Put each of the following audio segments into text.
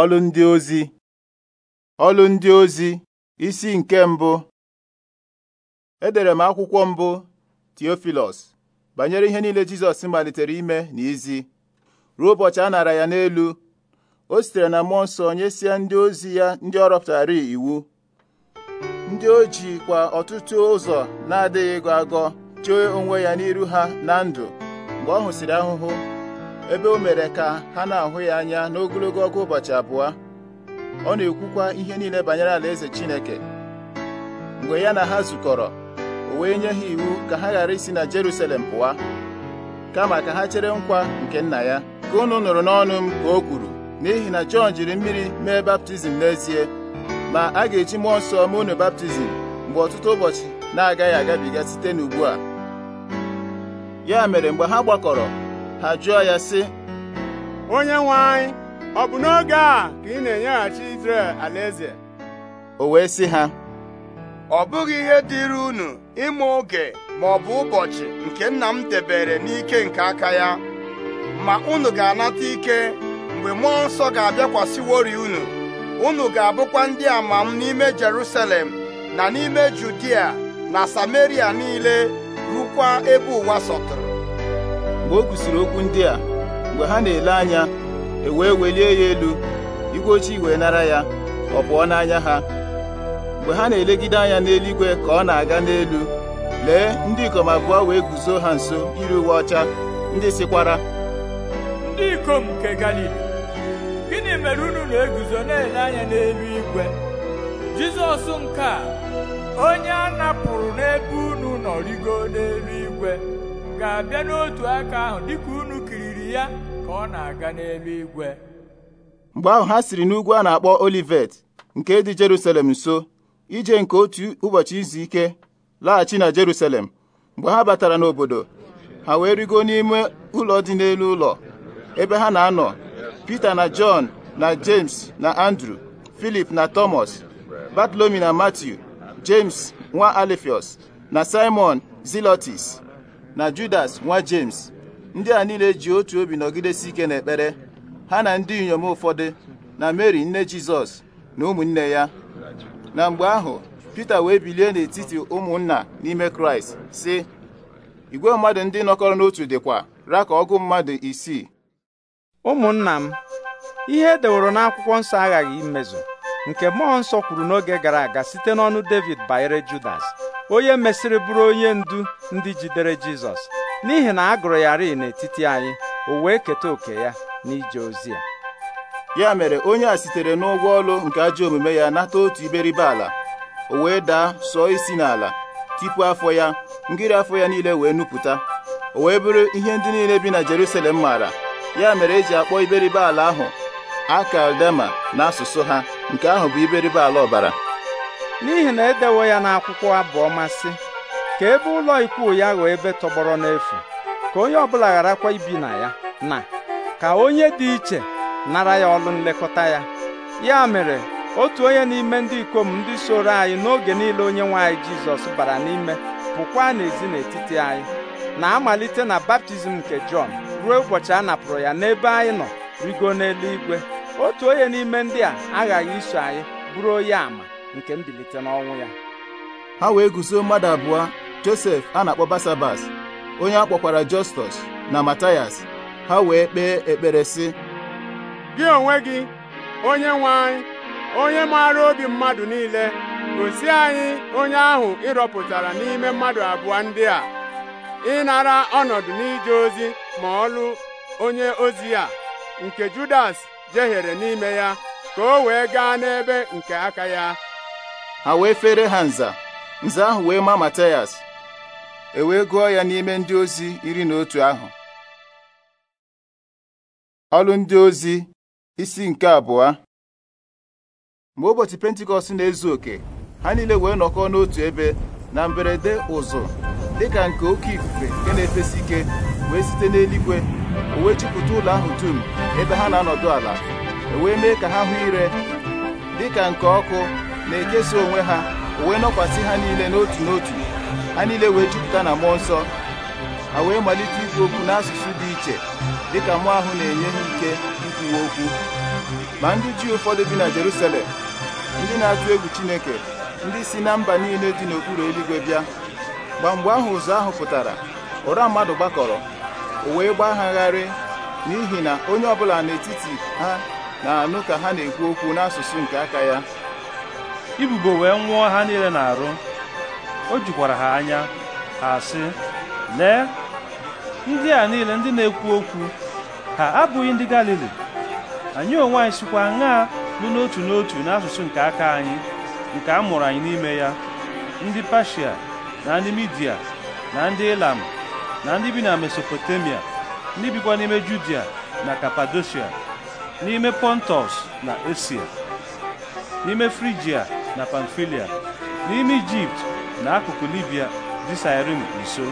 Ọlụ ndị ozi ọlụ ndị ozi isi nke mbụ edere m akwụkwọ mbụ Theophilus banyere ihe niile Jizọs malitere ime na izi ruo ụbọchị a nara ya n'elu o sitere na mmụọ nsọ sie ndị ozi ya ndị ọrụ pụtara iwu ndị o ji kwa ọtụtụ ụzọ na-adịghị ịgọ agọ chee onwe ya n'iru ha na ndụ mgbe ọ hụsịrị ahụhụ ebe o mere ka ha na-ahụ ya anya n'ogologo ọgụ ụbọchị abụọ ọ na-ekwukwa ihe niile banyere alaeze Chineke mgbe ya na ha zukọrọ o wee nye ha iwu ka ha ghara isi na Jerusalem pụwa kama ka ha chere nkwa nke nna ya ka unu nụrụ n'ọnụ m ka o kwuru n'ihi na Jọn jiri mmiri mee baptizim n'ezie ma a ga-eji mmụọ nsọ mee unu baptizim mgbe ọtụtụ ụbọchị na-agaghị agabiga site n'ugbu a ya mere mgbe ha gbakọrọ ha jụọ ya sị onye nwe anyị ọ bụ n'oge a ka ị na-enyeghachi Izrel alaeze o wee sị ha ọ bụghị ihe dịịrị unu ịma oge ma ọ bụ ụbọchị nke nna m debere n'ike nke aka ya ma unu ga-anata ike mgbe mmụọ nsọ ga-abịakwasịwori unu unu ga-abụkwa ndị ama m n'ime Jerusalem na n'ime Judia na Samaria niile rukwa ebe ụwa sọtụrụ mgbe o kwusiri okwu ndị a mgbe ha na-ele anya e wee welie ya elu igwe ojii wee nara ya ọ pụọ n'anya ha mgbe ha na-elegide anya n'eluigwe ka ọ na-aga n'elu lee ndị ikom abụọ wee guzo ha nso iri uwe ọcha ndị sịkwara ndị ikom nke Galili gịnị mere unu na-eguzo na-ele anya n'elu igwe Jizọs nke a onye a napụrụ n'ebe unu nọ rigo n'elu igwe ga-abịa n'otu aka ahụ dịka unu kiriri ya ka ọ na-aga n'eluigwe mgbe ahụ ha siri n'ugwu a na-akpọ Olivet nke dị Jerusalem nso ije nke otu ụbọchị izu ike laghachi na Jerusalem mgbe ha batara n'obodo ha wee rigo n'ime ụlọ dị n'elu ụlọ ebe ha na-anọ Pita na Jọn na James na Andrew Filip na Thomas batlomi na Matthew James nwa alifios na Simon Zelotes na Judas nwa James ndị a niile ji otu obi nọgidesi ike n'ekpere ha na ndị inyom ụfọdụ na Mary nne Jizọs na ụmụnne ya na mgbe ahụ Pita wee bilie n'etiti ụmụnna n'ime Kraịst sị igwe mmadụ ndị nọkọrọ n'otu dịkwa ra ka ọgụ mmadụ isii ụmụnna m ihe edeworo n'akwụkwọ nsọ aghaghị imezu nke mmụọ nsọ kwuru n'oge gara aga site n'ọnụ David banyere Judas onye mesịrị bụrụ onye ndu ndị jidere Jizọs n'ihi na a gụrụ ya rii n'etiti anyị o wee keta oke ya n'ije ozi ya ya mere onye a sitere n'ụgwọ ọlụ nke ajọ omume ya nata otu iberibe ala o wee daa sụọ isi n'ala tipu afọ ya ngiri afọ ya niile wee nupụta o wee bụrụ ihe ndị niile bi na Jerusalem maara ya mere eji akpọ iberibe ala ahụ akaldema n'asụsụ ha nke ahụ bụ iberibe ala ọbara n'ihi na edewo ya n'akwụkwọ abụọ masị ka ebe ụlọ ikwu ya ghọọ ebe tọgbọrọ n'efu ka onye ọbụla gharakwa ibi na ya na ka onye dị iche nara ya ọlụ nlekọta ya ya mere otu onye n'ime ndị ikom ndị soro anyị n'oge niile onye nwanyị Jizọs bara n'ime pụkwa n'ezi n'etiti anyị na-amalite na baptizim nke Jọn ruo ụbọchị a napụrụ ya n'ebe anyị nọ rigo n'eluigwe otu onye n'ime ndị a aghaghị iso anyị bụrụ onye àmà nke mbilite n'ọnwụ ya ha wee guzo mmadụ abụọ josef a na-akpọ basabas onye a kpọkwara jọstọs na matayas ha wee kpee ekpere sị gị onwe gị onye nwe anyị onye maara obi mmadụ niile gosi anyị onye ahụ ịrọpụtara n'ime mmadụ abụọ ndị a ịnara ọnọdụ n'ije ozi ma ọlụ onye ozi a nke judas jehiere n'ime ya ka o wee gaa n'ebe nke aka ya ha wee fere ha nza nza ahụ wee ma Matayas e wee gụọ ya n'ime ndị ozi iri na otu ahụ ọlụ ndị ozi isi nke abụọ Mgbe ụbọchị pentikọst na-ezu oke ha niile wee nọkọ n'otu ebe na mberede ụzụ ka nke oke ifufe nke na-efesi ike wee site n'eluigwe o wee ụlọ ahụ dum ebe ha na-anọdụ ala e wee mee ka ha hụ ire dịka nke ọkụ na-ekesa onwe ha wee nọkwasị ha niile n'otu n'otu ha niile wee jupụta na mmụọ nsọ ha wee malite ikwu okwu n'asụsụ dị iche dịka mụọ ahụ na-enye ha ike ikwuwe okwu ma ndị ji ụfọdụ bi na Jerusalem ndị na-atụ egwu Chineke ndị si na mba niile dị n'okpuru eluigwe bịa mgbe mgbe ahụ ụzọ ahụ pụtara ụra mmadụ gbakọrọ o wee gharị n'ihi na onye ọbụla n'etiti ha na-anụ ka ha na-ekwu okwu n'asụsụ nke aka ya ibubo wee nwụọ ha niile na-arụ o jikwara ha anya ha sị lee ndị a niile ndị na-ekwu okwu ha abụghị ndị Galili anyị onwe anyị sikwa aṅaa nụ n'otu n'otu n'asụsụ nke aka anyị nke a mụrụ anyị n'ime ya ndị Pashia na ndị Midia na ndị Ilam na ndị bi na Mesopotamia ndị bikwa n'ime Judia na Kapadoshia n'ime pontus na Esia n'ime Frigia na Pamfilia n'ime Ijipt na akụkụ Libia dị Sairim nso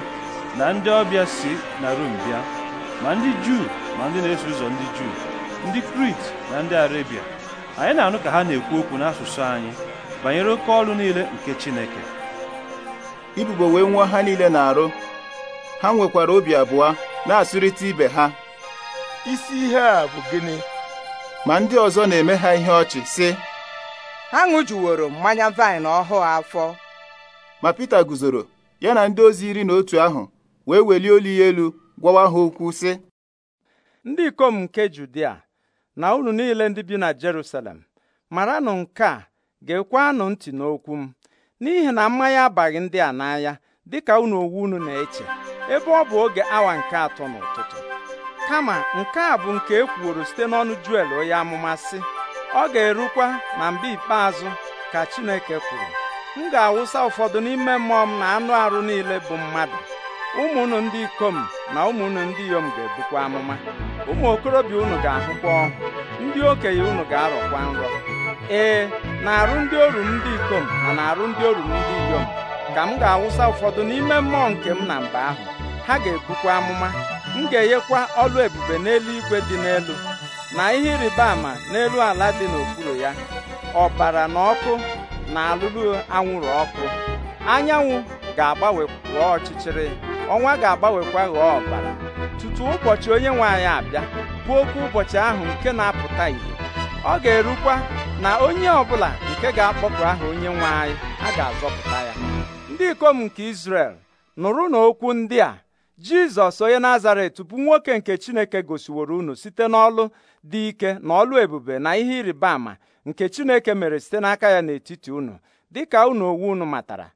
na ndị ọbịa si na Rom bịa ma ndị Juu ma ndị na-eso ụzọ ndị Juu ndị Krit na ndị arabia anyị na-anụ ka ha na-ekwu okwu n'asụsụ anyị banyere oke ọrụ niile nke Chineke ibubo wee nwa ha niile na-arụ ha nwekwara obi abụọ na-asụrịta ibe ha isi ihe a bụ gịnị ma ndị ọzọ na-eme ha ihe ọchị sị ha ṅụjuworo mmanya vaịn ọhụụ afọ ma Pita guzoro ya na ndị ozi iri na otu ahụ wee welie olu ya elu gwawa ha okwu sị ndị ikom nke Judia na unu niile ndị bi na Jerusalem maranụ nke a ga-ekwenụ ntị n'okwu m n'ihi na mmanya abaghị ndị a n'anya dịka unu onwe unu na-eche ebe ọ bụ oge awa nke atọ n'ụtụtụ kama nke a bụ nke e kwuoro site n'ọnụ Juel onye amụma sị ọ ga-erukwa na mgbe ikpeazụ ka Chineke kwuru m ga-awụsa ụfọdụ n'ime mmụọ m na anụ arụ niile bụ mmadụ ụmụnụ ndị ikom na ụmụnụ ndị inyom ga-ebukwa amụma ụmụ okorobịa unu ga-ahụkwa ọhụ ndị okenye unu ga-arọkwa nrọ ee na arụ ndị oru ndị ikom na na arụ ndị oru ndị inyom ka m ga-awụsa ụfọdụ n'ime mmụọ nke m na mba ahụ ha ga-ebukwa amụma m ga-enyekwa ọlụ ebube n'eluigwe dị n'elu na ihe ịrịba ama n'elu ala dị n'okpuru ya ọbara na ọkụ na alụlụ anwụrụ ọkụ anyanwụ ga-agbanwe ghọọ ọchịchịrị ọnwa ga-agbanwekwa ghọọ ọbara tutu ụbọchị onye nwe anyị abịa bụ okwu ụbọchị ahụ nke na-apụta ìhè ọ ga-erukwa na onye ọbụla nke ga akpọpụ aha onye nwe anyị a ga-azọpụta ya ndị ikom nke Izrel nụrụ n'okwu ndị a Jizọs onye Nazaret bụ nwoke nke Chineke gosiworo unu site n'ọlụ dị ike na ọlụ ebube na ihe ịrịba ama nke Chineke mere site n'aka ya n'etiti unu dịka unu owu unu matara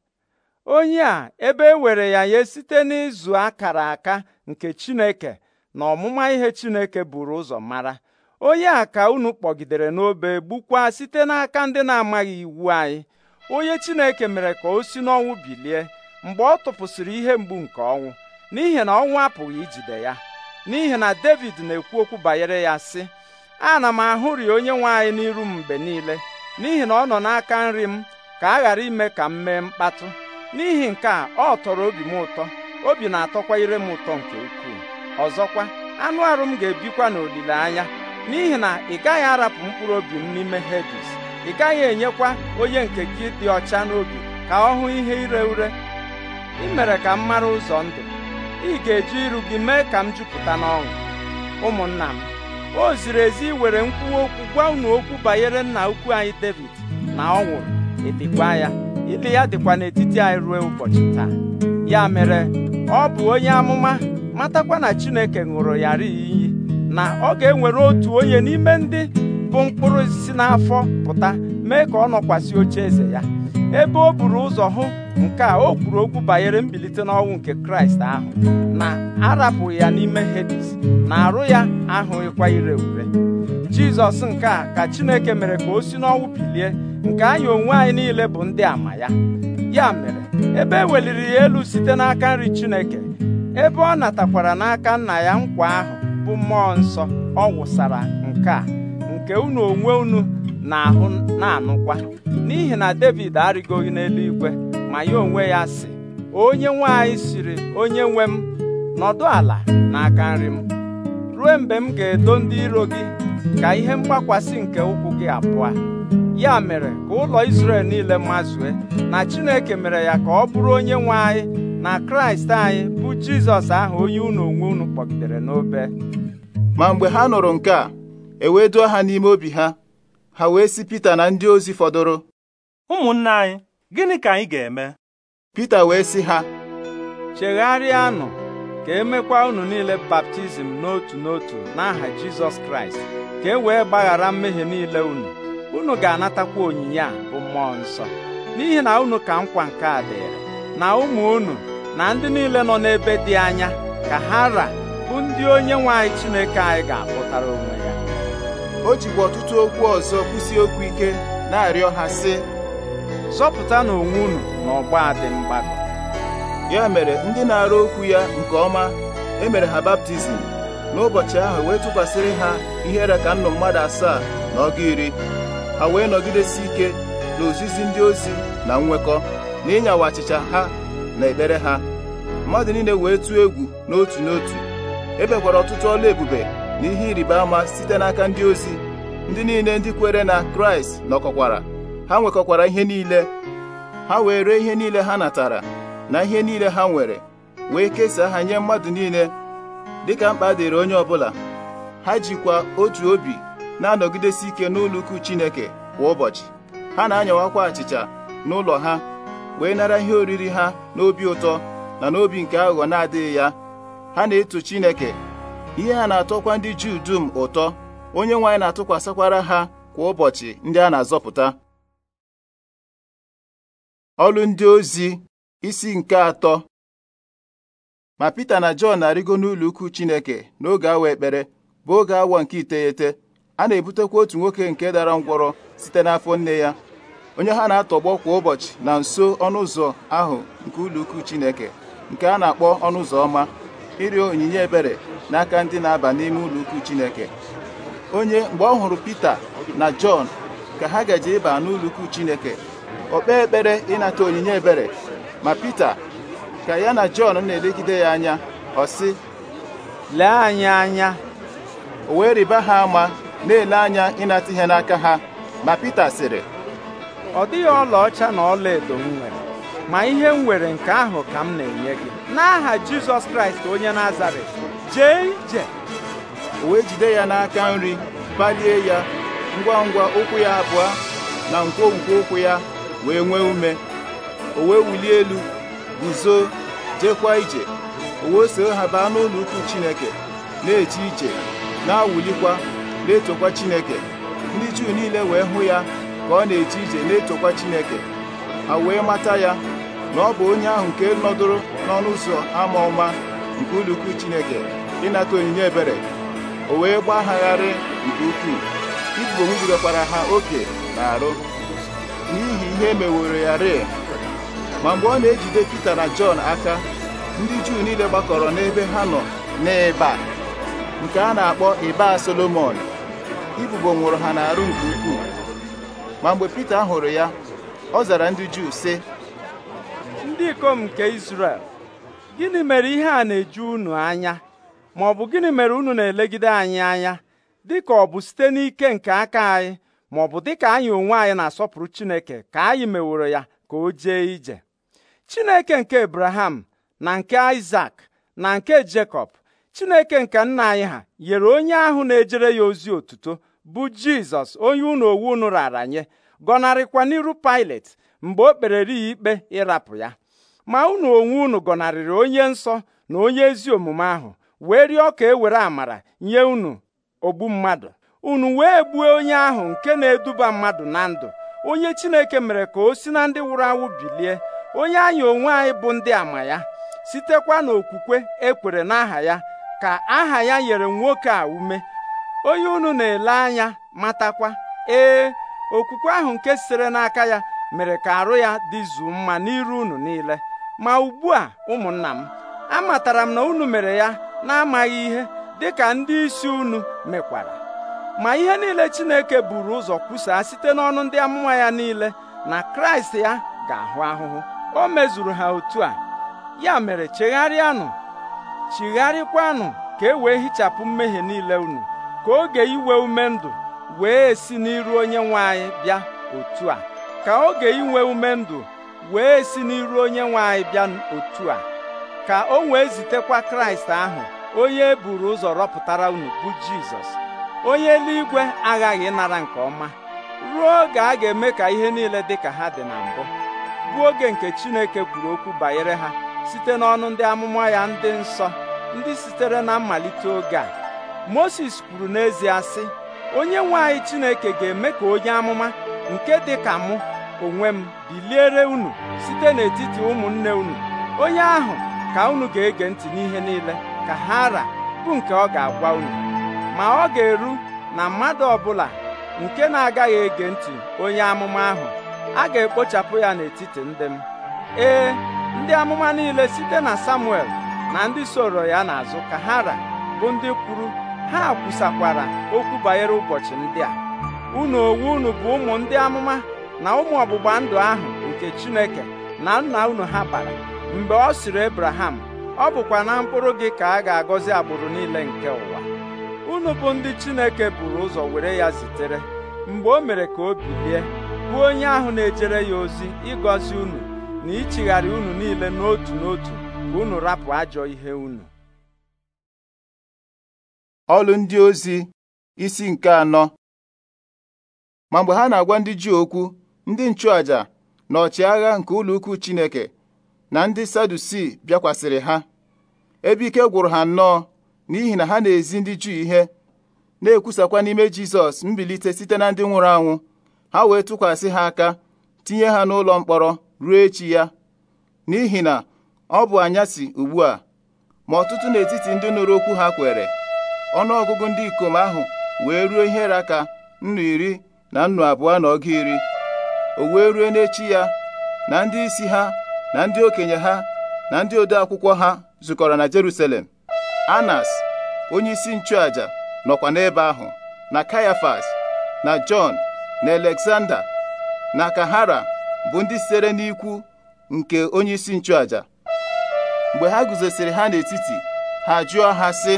onye a ebe e were ya nye site n'ịzụ akara aka nke Chineke na ọmụma ihe Chineke buru ụzọ mara onye a ka unu kpọgidere n'obe gbukwa site n'aka ndị na-amaghị iwu anyị onye Chineke mere ka o si n'ọnwụ bilie mgbe ọ tụpụsịrị ihe mgbu nke ọnwụ n'ihi na ọnwụ apụghị ijide ya n'ihi na David na-ekwu okwu banyere ya sị ana m ahụri onye nwe anyị n'iru m mgbe niile n'ihi na ọ nọ n'aka nri m ka a ghara ime ka m mee mkpatụ n'ihi nke a ọ tọrọ obi m ụtọ obi na-atọkwa ire m ụtọ nke ukwuu ọzọkwa anụ arụ m ga-ebikwa n'olileanya n'ihi na ị gaghị arapụ mkpụrụ obi m n'ime Hedis ị gaghị enyekwa onye nke gị dị ọcha n'obi ka ọ hụ ihe ire ure ị mere ka m mara ụzọ ndụ ị ga-eji iru gị mee ka m jupụta n'ọṅụ ụmụnna m o ziri ezi iwere nkwuwa okwu gwa unu okwu banyere nna ukwu anyị David na ọ nwụrụ ịdịkwa ya ịdị ya dịkwa n'etiti anyị ruo ụbọchị taa ya mere ọ bụ onye amụma matakwa na Chineke ṅụrụ ya iyi na ọ ga-enwere otu onye n'ime ndị bụ mkpụrụ osisi n'afọ pụta mee ka ọ nọkwasị oche eze ya ebe o buru ụzọ hụ nke a o kwuru okwu banyere mbilite n'ọnwụ nke kraịst ahụ na arapụ ya n'ime hedis na arụ ya ịkwa ire ure jizọs nke a ka chineke mere ka o si n'ọnwụ bilie nke anyị onwe anyị niile bụ ndị ama ya ya mere ebe e weliri ya elu site n'aka nri chineke ebe ọ natakwara n'aka nna ya nkwa ahụ bụ mmụọ nsọ ọ wụsara nke a nke unu onwe unu na-ahụ na-anụkwa n'ihi na David arịgoghị n'eluigwe ma ya onwe ya si onye nwe anyị siri onye nwe m nọdụ ala n'aka nri m ruo mgbe m ga-edo ndị iro gị ka ihe mgbakwasị nke ụkwụ gị abụọ ya mere ka ụlọ isrel niile mazue na Chineke mere ya ka ọ bụrụ onye nwe anyị na Kraịst anyị bụ Jizọs ahụ onye unu onwe unu kpọgidere n'obe ma mgbe ha nụrụ nke a ewee duo ha n'ime obi ha ha wee si Pita na ndị ozi fọdụrụ Ụmụnne anyị gịnị ka anyị ga-eme Pita wee sị ha chegharịanụ ka emekwa unu niile baptizim n'otu n'otu n'aha Jizọs Kraịst ka e wee gbaghara mmehie niile unu unu ga-anatakwa onyinye a bụ mmụọ nsọ n'ihi na unu ka nkwa nke a dịrị na ụmụ unu na ndị niile nọ n'ebe dị anya ka ha ra bụ ndị onye nwe anyị Chineke anyị ga-akpụtara onwe ya o jikwa ọtụtụ okwu ọzọ kwụsị okwu ike na-arịọ ha sị na onwe unu na ọgba dị mgbakọ ya mere ndị na-arụ okwu ya nke ọma emere ha baptizim n'ụbọchị ahụ wee tụkwasịrị ha ihere ka nnụ mmadụ asaa na ọgụ iri ha wee nọgidesi ike na ozizi ndị ozi na nwekọ na ịnyawa achịcha ha na ekpere ha mmadụ niile wee tụọ egwu n'otu n'otu ebekwara ọtụtụ ọla ebube na ihe ịrịba ama site n'aka ndị ozi ndị niile ndị kwere na kraịst nọkọkwara ha nwekọkwara ihe niile ha wee ree ihe niile ha natara na ihe niile ha nwere wee kesaa ha nye mmadụ niile dịka mkpa dịrị onye ọbụla ha jikwa otu obi na-anọgidesi ike n'ụlọ Chineke kwa ụbọchị ha na-anyawakwa achịcha n'ụlọ ha wee nara ihe oriri ha n'obi ụtọ na n'obi nke aghụghọ na-adịghị ya ha na-eto Chineke ihe a na-atọkwa ndị Juu dum ụtọ onye nwe anyị na-atụkwasịkwara ha kwa ụbọchị ndị a na-azọpụta ọlụ ndị ozi isi nke atọ ma Pita na Jọn na-arịgo n'ụlọ ukwu Chineke n'oge awa ekpere bụ oge awa nke iteghete a na-ebutekwa otu nwoke nke dara ngwọrọ site n'afọ nne ya onye ha na-atọgbọ kwa ụbọchị na nso ọnụ ụzọ ahụ nke ụlọ ukwu Chineke nke a na-akpọ ọnụ ụzọ ọma ịrịọ onyinye ebere n'aka ndị na-aba n'ime ụlọ ukwu Chineke onye mgbe ọ hụrụ Pita na Jọn ka ha gaje ịba n'ụlọ ukwu Chineke ọ ekpere ịnata onyinye ebere ma Pita ka ya na Jọn na-elegide ya anya ọ sị lee anyị anya o wee rịba ha ama na-ele anya ịnata ihe n'aka ha ma Pita sịrị ọ dịghị ọlaọcha na edo m nwere ma ihe m nwere nke ahụ ka m na-enye gị n'aha jizọs kraịst onye na nazaret jee ije wee jide ya n'aka nri balie ya ngwa ngwa ụkwụ ya abụọ na nkwonkwo ụkwụ ya wee nwee ume o wee wulie elu guzo jekwa ije o wee soo ha baa n'ụlọ ukwu chineke na-eje ije na awulikwa na-etokwa chineke ndị juu niile wee hụ ya ka ọ na-eje ije na-etokwa chineke ha wee mata ya na ọ bụ onye ahụ nke nọdụrụ n'ọnụ ụzọ ama ọma nke ụlọukwu Chineke ịnata onyinye ebere o wee gbagharị nke ukwuu ibubo ngidekwara ha oke na arụ n'ihi ihe e meworo ya rịị ma mgbe ọ na-ejide Pita na Jọn aka ndị Juu niile gbakọrọ n'ebe ha nọ n'ịba nke a na-akpọ ịba Solomon ibubo nwụrụ ha n'arụ nke ukwuu ma mgbe Pita hụrụ ya ọ zara ndị Juu sị ndị ikom nke Izrel gịnị mere ihe a na-eju unu anya ma ọ bụ gịnị mere unu na-elegide anyị anya dịka ọ bụ site n'ike nke aka anyị ma ọ bụ dịka anyị onwe anyị na-asọpụrụ Chineke ka anyị meworo ya ka o jee ije Chineke nke ebraham na nke Isak na nke Jekọb Chineke nke nna anyị ha nyere onye ahụ na-ejere ya ozi otuto bụ Jizọs onye unu owu unu rara nye gọnarịkwa n'iru Pilet mgbe o kperere ya ikpe ịrapụ ya ma unu onwe unu gọnarịrị onye nsọ na onye ezi omume ahụ wee rịọ ka ewere were amara nye unu ogbu mmadụ unu wee gbuo onye ahụ nke na-eduba mmadụ na ndụ onye Chineke mere ka o si na ndị nwụrụ anwụ bilie onye anyị onwe anyị bụ ndị ama ya sitekwa n'okwukwe ekwere n'aha ya ka aha ya nyere nwoke a ume onye unu na-ele anya matakwa ee okwukwe ahụ nke sitere n'aka ya mere ka arụ ya dịzuo mma n'iru unu niile ma ugbu a ụmụnna m amatara m na unu mere ya na-amaghị ihe dịka ndị isi unu mekwara ma ihe niile Chineke buru ụzọ kwusaa site n'ọnụ ndị amụma ya niile na Kraịst ya ga-ahụ ahụhụ o mezuru ha otu a ya mere chegharịanụ chigharịkwanụ ka e wee hichapụ mmehie niile unu ka oge iwe ume ndụ wee si n'iru onye nwe anyị bịa otu a ka oge inwe ume ndụ wee si n'iru onye nwe anyị bịa otu a ka o wee zitekwa kraịst ahụ onye e buru ụzọ rọpụtara unu bụ jizọs onye eluigwe aghaghị ịnara nke ọma ruo oge a ga-eme ka ihe niile dị ka ha dị na mbụ bụ oge nke chineke kwuru okwu banyere ha site n'ọnụ ndị amụma ya ndị nsọ ndị sitere na mmalite oge a moses kwuru n'ezie sị onye nwe anyị chineke ga-eme ka onye amụma nke dị ka mụ onwe m biliere unu site n'etiti ụmụnne unu onye ahụ ka unu ga-ege ntị n'ihe niile ka ha ra bụ nke ọ ga-agwa unu ma ọ ga-eru na mmadụ ọbụla nke na-agaghị ege ntị onye amụma ahụ a ga-ekpochapụ ya n'etiti ndị m ee ndị amụma niile site na Samuel na ndị soro ya n'azụ ka ha ra bụ ndị kwuru ha kwusakwara okwu banyere ụbọchị ndị a unu owu unu bụ ụmụ ndị amụma na ụmụ ọgbụgba ndụ ahụ nke Chineke na nna unu ha bara mgbe ọ sịrị Ebraham ọ bụkwa na mkpụrụ gị ka a ga-agọzi agbụrụ niile nke ụwa unu bụ ndị Chineke buru ụzọ were ya zitere mgbe o mere ka o bilie bụ onye ahụ na-ejere ya ozi ịgọzi unu na ichigharị unu niile n'otu n'otu ka unu rapụ ajọ ihe unu ọlụ ndị ozi isi nke anọ ma mgbe ha na-agwa ndị Juu okwu ndị nchụaja na ọchịagha nke ụlọukwu Chineke na ndị Sadusi bịakwasịrị ha ebe ike gwụrụ ha nnọọ n'ihi na ha na-ezi ndị Juu ihe na-ekwusakwa n'ime Jizọs mbilite site na ndị nwụrụ anwụ ha wee tụkwasị ha aka tinye ha n'ụlọ mkpọrọ ruo echi ya n'ihi na ọ bụ anyasị ugbu a ma ọtụtụ n'etiti ndị nụrụ okwu ha kwere ọnụọgụgụ ndị ikom ahụ wee ruo ihe raka nnu iri na nnu abụọ na ọga iri o wee rue n'echi ya na ndị isi ha na ndị okenye ha na ndị ode akwụkwọ ha zukọrọ na Jerusalem Anas onye isi nchụaja nọkwa n'ebe ahụ na Kayafas na Jọn na Alexander na Kahara bụ ndị sitere n'ikwu nke onye isi nchụaja mgbe ha guzosiri ha n'etiti ha jụọ ha sị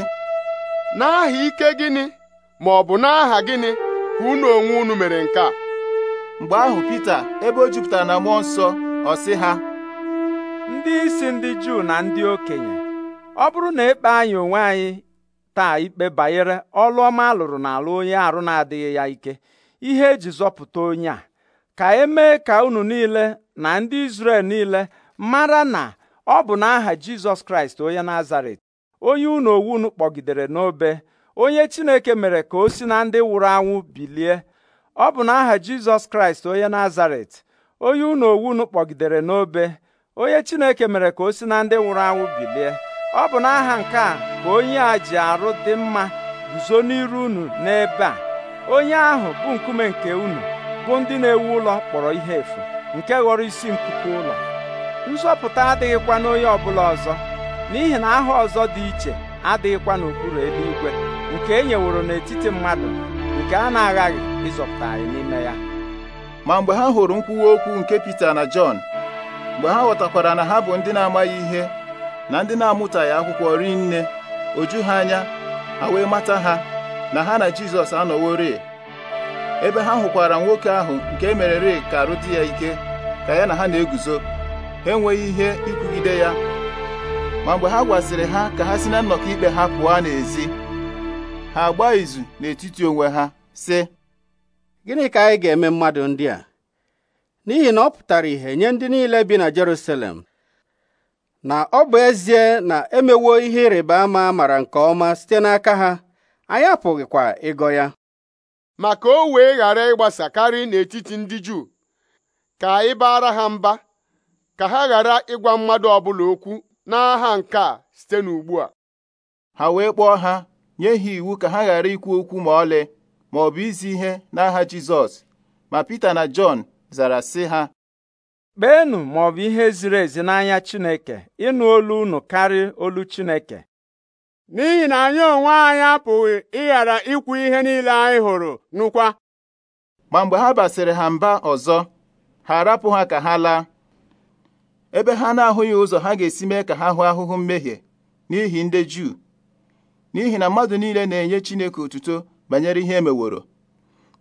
n'aha ike gịnị ma ọ bụ n'aha gịnị ka unu onwe unu mere nke a mgbe ahụ Pita ebe o jupụtara na mmụọ nsọ ọ sị ha ndị isi ndị Juu na ndị okenye ọ bụrụ na ekpe anyị onwe anyị taa ikpe banyere ọlụ ọma alụrụ n'ala onye arụ na-adịghị ya ike ihe eji zọpụta onye a ka emee ka unu niile na ndị isrel niile mara na ọ bụ n'aha Jizọs Kraịst onye Nazaret onye unu owu unu kpọgidere n'obe onye Chineke mere ka o si na ndị nwụrụ anwụ bilie ọ bụ n'aha Jizọs Kraịst onye Nazaret onye unu owunu kpọgidere n'obe onye Chineke mere ka o si na ndị nwụrụ anwụ bilie ọ bụ n'aha nke a ka onye a ji arụ dị mma guzo n'iru unu n'ebe a onye ahụ bụ nkume nke unu bụ ndị na-ewu ụlọ kpọrọ ihe efu nke ghọrọ isi nkuku ụlọ nzọpụta adịghịkwa n'onye ọbụla ọzọ n'ihi na aha ọzọ dị iche adịghịkwa n'okpuru eluigwe nke e nyeworo n'etiti mmadụ nke a na-aghaghị ịzọpụta anyị n'ime ya ma mgbe ha hụrụ nkwuwa okwu nke Pita na Jọn mgbe ha ghọtakwara na ha bụ ndị na-amaghị ihe na ndị na-amụtaghị akwụkwọ rinne oju ha anya ha wee mata ha na ha na Jizọs anọworị ebe ha hụkwara nwoke ahụ nke e merere ka arụ dị ya ike ka ya na ha na-eguzo ha enweghị ihe ikwugide ya ma mgbe ha gwaziri ha ka ha si na nnọkọ ikpe ha pụọ n'ezi ha agba izu n'etiti onwe ha sị gịnị ka anyị ga-eme mmadụ ndị a n'ihi na ọ pụtara ihe nye ndị niile bi na Jerusalem na ọ bụ ezie na emewo ihe ịrịba ama mara nke ọma site n'aka ha anyị apụghịkwa ịgọ ya ma ka o wee ghara ịgbasa karị n'etiti ndị Juu ka anyị baara ha mba ka ha ghara ịgwa mmadụ ọbụla okwu n'aha nke a site n'ugbu a ha wee kpọọ ha nye ha iwu ka ha ghara ikwu okwu ma ọlị ma ọ bụ izi ihe n'aha Jizọs ma Pita na Jọn zara sị ha kpeenụ ma ọ bụ ihe ziri ezi n'anya Chineke ịnụ olu unu karị olu Chineke n'ihi na anyị onwe anyị apụghị ịghara ikwu ihe niile anyị hụrụ nụkwa ma mgbe ha basịrị ha mba ọzọ ha arapụ ha ka ha laa ebe ha na-ahụghị ụzọ ha ga-esi mee ka ha hụ ahụhụ mmehie n'ihi ndị Juu n'ihi na mmadụ niile na-enye Chineke otuto banyere ihe emeworo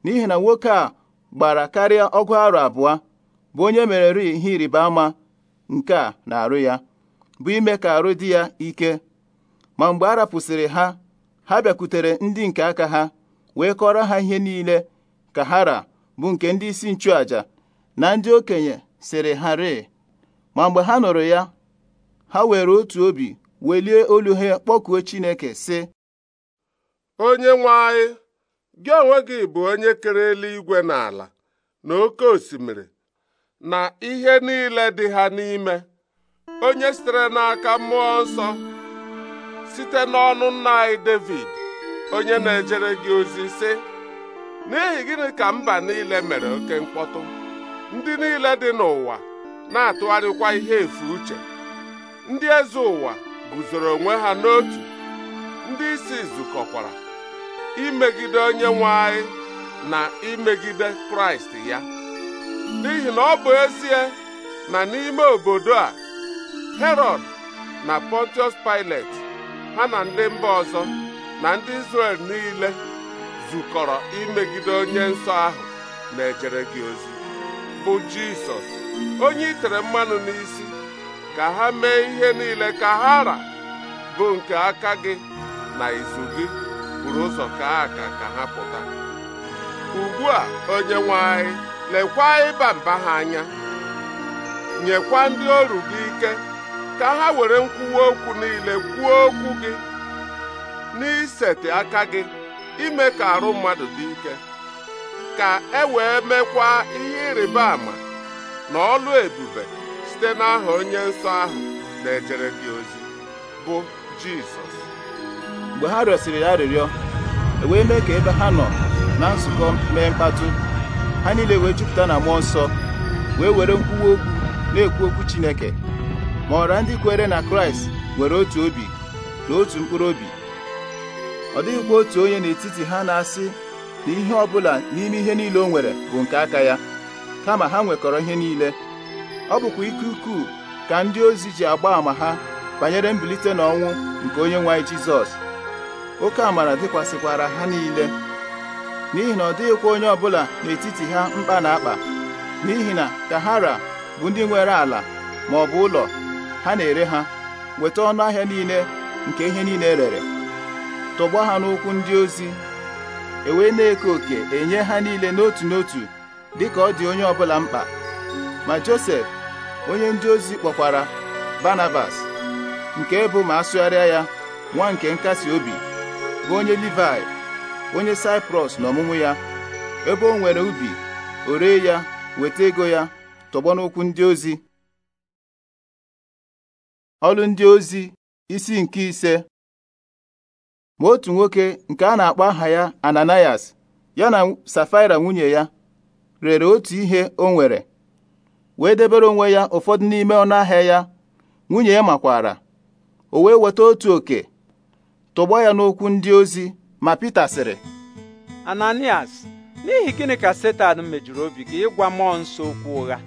n'ihi na nwoke a gbara karịa ọgụ arọ abụọ bụ onye mere ihe ịrịba ama nke a na-arụ ya bụ ime ka arụ dị ya ike ma mgbe a rapụsịrị ha ha bịakwutere ndị nke aka ha wee kọrọ ha ihe niile ka ha ra bụ nke ndị isi nchụaja na ndị okenye sịrị ha rịị ma mgbe ha nụrụ ya ha were otu obi welie olu ha kpọkuo Chineke sị onye nwe anyị gị onwe gị bụ onye kere eluigwe na ala na oke osimiri na ihe niile dị ha n'ime onye sitere n'aka mmụọ nsọ site n'ọnụ nna anyị David onye na-ejere gị ozi sị n'ihi gịnị ka mba niile mere oke mkpọtụ ndị niile dị n'ụwa na-atụgharịkwa ihe efu uche ndị eze ụwa guzoro onwe ha n'otu ndị isi zukọkwara imegide onye nwanyị na imegide kraịst ya n'ihi na ọ bụ ezie na n'ime obodo a herod na pontius pilet ha na ndị mba ọzọ na ndị isrel niile zukọrọ imegide onye nsọ ahụ na-ejere gị ozi bụ jisọs onye itere mmanụ n'isi ka ha mee ihe niile ka ha ra bụ nke aka gị na izu gị buru ụzọ kaa aka ka ha pụta ugbu a onye nwe lekwa ịba mba ha anya nyekwa ndị ọrụ gị ike ka ha were nkwuwa okwu niile kwuo okwu gị n'iseti aka gị ime ka arụ mmadụ dị ike ka e wee mekwa ihe ịrịba ama na ọlụ ebube site n'aha onye nsọ ahụ na-ejere gị ozi bụ Jizọs mgbe ha rịọsiri ya arịrịọ e wee mee ka ebe ha nọ na nzukọ mee mkpatụ ha niile wee jupụta na mmụọ nsọ wee were nkwuwa okwu na-ekwu okwu Chineke ma ọra ndị kwere na Kraịst nwere otu obi na otu mkpụrụ obi ọ dịghịkwa otu onye n'etiti ha na-asị na ihe ọ bụla n'ime ihe niile o nwere bụ nke aka ya kama ha nwekọrọ ihe niile ọ bụkwa ike ukwuu ka ndị ozi ji agba àmà ha banyere mbilite n'ọnwụ nke onye nwe anyị Jizọs oke amara dịkwasịkwara ha niile n'ihi na ọ dịghịkwa onye ọbụla n'etiti ha mkpa na akpa n'ihi na Tahara bụ ndị nwere ala ma ọ bụ ụlọ ha na-ere ha weta ọnụ ahịa niile nke ihe niile e rere tọgbọ ha n'ụkwụ ndị ozi ewee na-eke òkè enye ha niile n'otu n'otu dịka ọ dị onye ọbụla mkpa ma Josef onye ndị ozi kpọkwara Barnabas nke bụ ma asụgharịa ya nwa nke nkasi obi bụ onye Livai onye Saiprọs na ọmụmụ ya ebe o nwere ubi o ya weta ego ya tọgbọ ndị ozi ọlụ ndị ozi isi nke ise ma otu nwoke nke a na-akpọ aha ya Ananias ya na Safaira nwunye ya rere otu ihe o nwere wee debere onwe ya ụfọdụ n'ime ọnụ ahịa ya nwunye ya makwara o wee weta otu oke tụgbọ ya n'okwu ndị ozi ma Pita sịrị Ananias n'ihi gịnị ka Setan mejuru obi gị ịgwa mmụọ nsọ okwu ụgha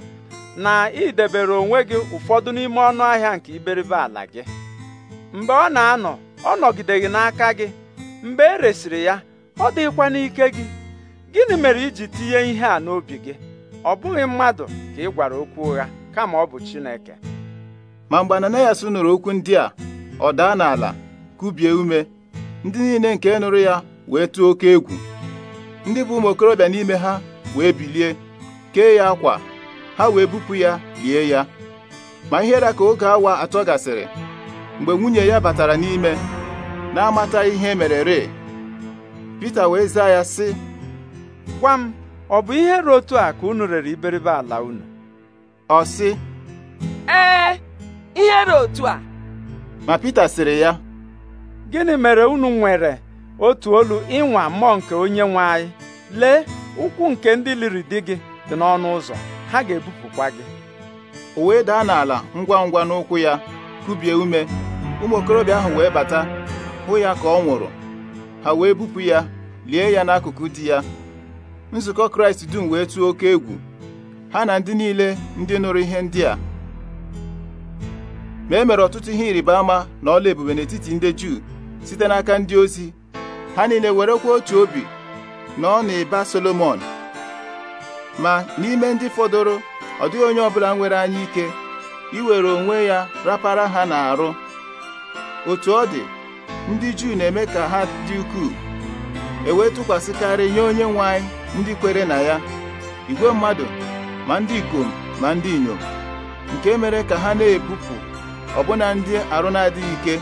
na idebere onwe gị ụfọdụ n'ime ọnụ ahịa nke iberibe ala gị mgbe ọ na-anọ ọ nọgideghị n'aka gị mgbe e resịrị ya ọ dịghịkwa n'ike gị gịnị mere iji tinye ihe a n'obi gị ọ bụghị mmadụ ka ị gwara okwu ụgha kama ọ bụ Chineke ma mgbe Ananayas nụrụ okwu ndị a ọ daa n'ala kubie ume ndị niile nke nụrụ ya wee tụọ oke egwu ndị bụ ụmụ okorobịa n'ime ha wee bilie kee ya akwa ha wee bupụ ya lie ya ma ihere ka oge awa atọ gasịrị mgbe nwunye ya batara n'ime na amata ihe e mere re Pita wee zaa ya sị gwa m ọ bụ ihe ruo otu a ka unu rere iberibe ala unu ọ sị ee ihe ruo otu a ma Pita sịrị ya gịnị mere unu nwere otu olu ịnwa mmụọ nke onye nwe anyị lee ụkwụ nke ndị liri di gị dị n'ọnụ ụzọ ha ga-ebupụkwa gị o wee daa n'ala ngwa ngwa n'ụkwụ ya kubie ume ụmụ okorobịa ahụ wee bata hụ ya ka ọ nwụrụ ha wee bupụ ya lie ya n'akụkụ di ya nzukọ kraịst dum wee tụọ oke egwu ha na ndị niile ndị nụrụ ihe ndị a ma e mere ọtụtụ ihe ịrịba ama na ọla ebube n'etiti ndị juu site n'aka ndị ozi ha niile werekwa otu obi na ọ na-eba solomon ma n'ime ndị fọdụrụ ọ dịghị onye ọbụla nwere anya ike iwere onwe ya rapara ha n'arụ otu ọ dị ndị juu na-eme ka ha dị ukwuu e wee tụkwasịkarị nye onye nwe anyị ndị kwere na ya igwe mmadụ ma ndị ikom ma ndị inyom nke mere ka ha na-ebupụ ọbụna ndị arụ na ike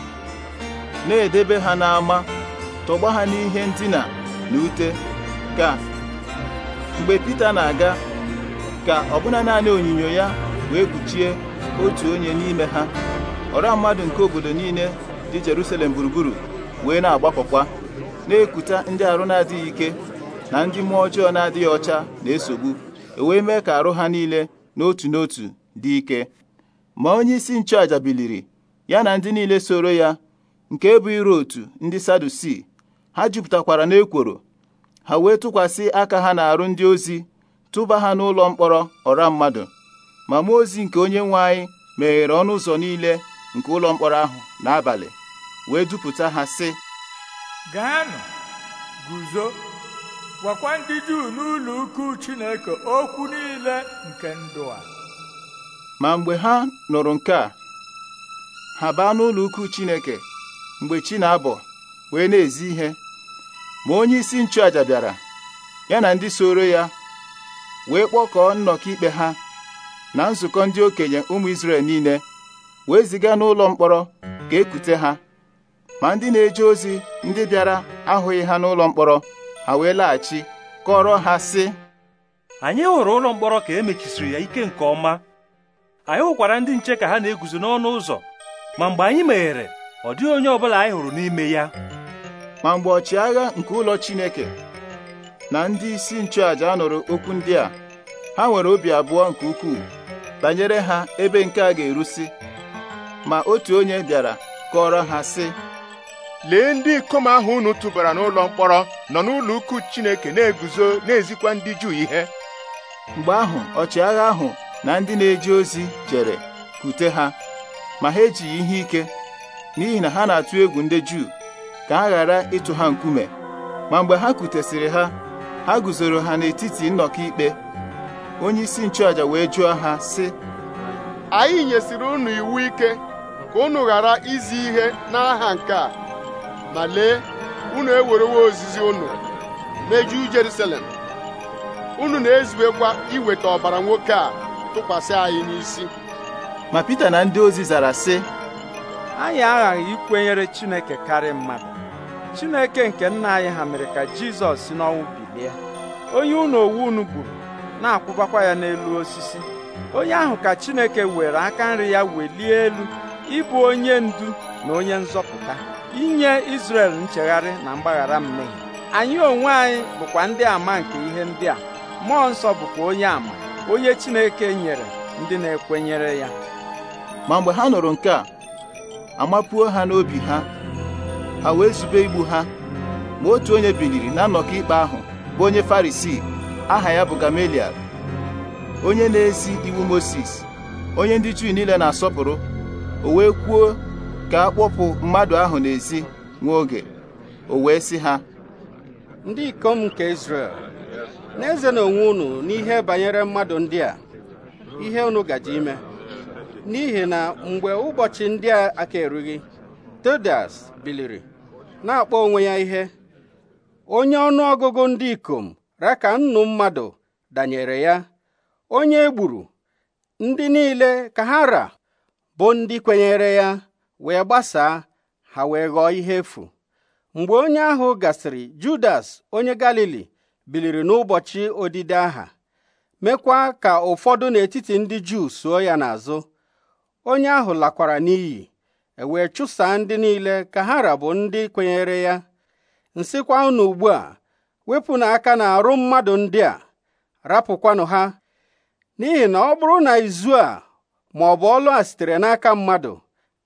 na-edebe ha n'ama tọgba ha n'ihe ndina na ute ka mgbe Pita na-aga ka ọbụna naanị onyinyo ya wee kpuchie otu onye n'ime ha ọra mmadụ nke obodo niile dị Jerusalem gburugburu wee na-agbakọkwa na-ekuta ndị arụ na-adịghị ike na ndị mmụọ ọjọọ na-adịghị ọcha na-esogbu e wee mee ka arụ ha niile n'otu n'otu dị ike ma onye isi nchụaja biliri ya na ndị niile soro ya nke bụ iru otu ndị sadusi ha jupụtakwara n'ekworo ha wee tụkwasị aka ha na-arụ ndị ozi tụba ha n'ụlọ mkpọrọ ọra mmadụ ma mụọ ozi nke onye nwe anyị meghere ọnụ ụzọ niile nke ụlọ mkpọrọ ahụ n'abalị wee dupụta ha sị gaanụ guzo gwakwa ndị Juu n'ụlọ ukwu Chineke okwu niile nke ndụ a ma mgbe ha nụrụ nke a ha baa n'ụlọ ukwu Chineke mgbe chi na-abọ wee na-ezi ihe ma onye isi nchụaja bịara ya na ndị soro ya wee kpọkọọ nnọkọ ikpe ha na nzukọ ndị okenye ụmụ Izrel niile wee ziga n'ụlọ mkpọrọ ka ekute ha ma ndị na-eje ozi ndị bịara ahụghị ha n'ụlọ mkpọrọ ha wee laghachi kọrọ ha sị anyị hụrụ ụlọ mkpọrọ ka e mechisiri ya ike nke ọma anyị hụkwara ndị nche ka ha na-eguzo n'ọnụ ụzọ ma mgbe anyị meghere ọ dịghị onye ọbụla anyị hụrụ n'ime ya ma mgbe ọchịagha nke ụlọ Chineke na ndị isi nchụàja anụrụ okwu ndị a ha nwere obi abụọ nke ukwuu banyere ha ebe nke a ga-erusi ma otu onye bịara kọrọ ha sị lee ndị ikom ahụ unu tụbara n'ụlọ mkpọrọ nọ n'ụlọ ukwu Chineke na-eguzo na-ezikwa ndị Juu ihe mgbe ahụ ọchịagha ahụ na ndị na-eje ozi jere kute ha ma ha ejighị ihe ike n'ihi na ha na-atụ egwu ndị Juu ka ha ghara ịtụ ha nkume ma mgbe ha kutesịrị ha ha guzoro ha n'etiti nnọkọ ikpe onyeisi nchụaja wee jụọ ha sị anyị nyesịrị unu iwu ike ka unu ghara izi ihe n'aha nke a ma lee unu ewerewo ozizi unu mejuo Jerusalem unu na-ezubekwa iweta ọbara nwoke a tụkwasị anyị n'isi ma Pita na ndị ozi zara sị anyị aghaghị ikwenyere Chineke karịa mmadụ Chineke nke nna anyị ha mere ka Jizọs si n'ọnwụ bilie onye unu owu unu gburu na-akwụbakwa ya n'elu osisi onye ahụ ka Chineke were aka nri ya welie elu ịbụ onye ndu na onye nzọpụta inye Izrel nchegharị na mgbaghara mmehie anyị onwe anyị bụkwa ndị ama nke ihe ndị a mmụọ nsọ bụkwa onye ama onye Chineke nyere ndị na-ekwenyere ya ma mgbe ha nụrụ nke a amapuo ha n'obi ha ha wee zube igbu ha ma otu onye biliri na nnọkọ ikpe ahụ bụ onye Farisii aha ya bụ Gamaliel onye na-ezi iwu moses onye ndị Juu niile na-asọpụrụ o wee kwuo ka a kpọpụ mmadụ ahụ n'ezi nwa oge o wee sị ha ndị ikom nke n'eze na-eze n'onwe unu n'ihe banyere mmadụ ndị a ihe unu gaji ime n'ihi na mgbe ụbọchị ndị a aka erughị Teodas biliri na-akpọ onwe ya ihe onye ọnụ ọgụgụ ndị ikom raka nnu mmadụ danyere ya onye egburu ndị niile ka ha ra bụ ndị kwenyere ya wee gbasaa ha wee ghọọ ihe efu mgbe onye ahụ gasịrị Judas onye Galili biliri n'ụbọchị odide aha mekwa ka ụfọdụ n'etiti ndị Juu suo ya n'azụ onye ahụ lakwara n'iyi ewee chụsaa ndị niile ka ha rabụ ndị kwenyere ya nsịkwa unu ugbu a wepụ na na-arụ mmadụ ndị a rapụkwanụ ha n'ihi na ọ bụrụ na izu a ma ọlụ a sitere n'aka mmadụ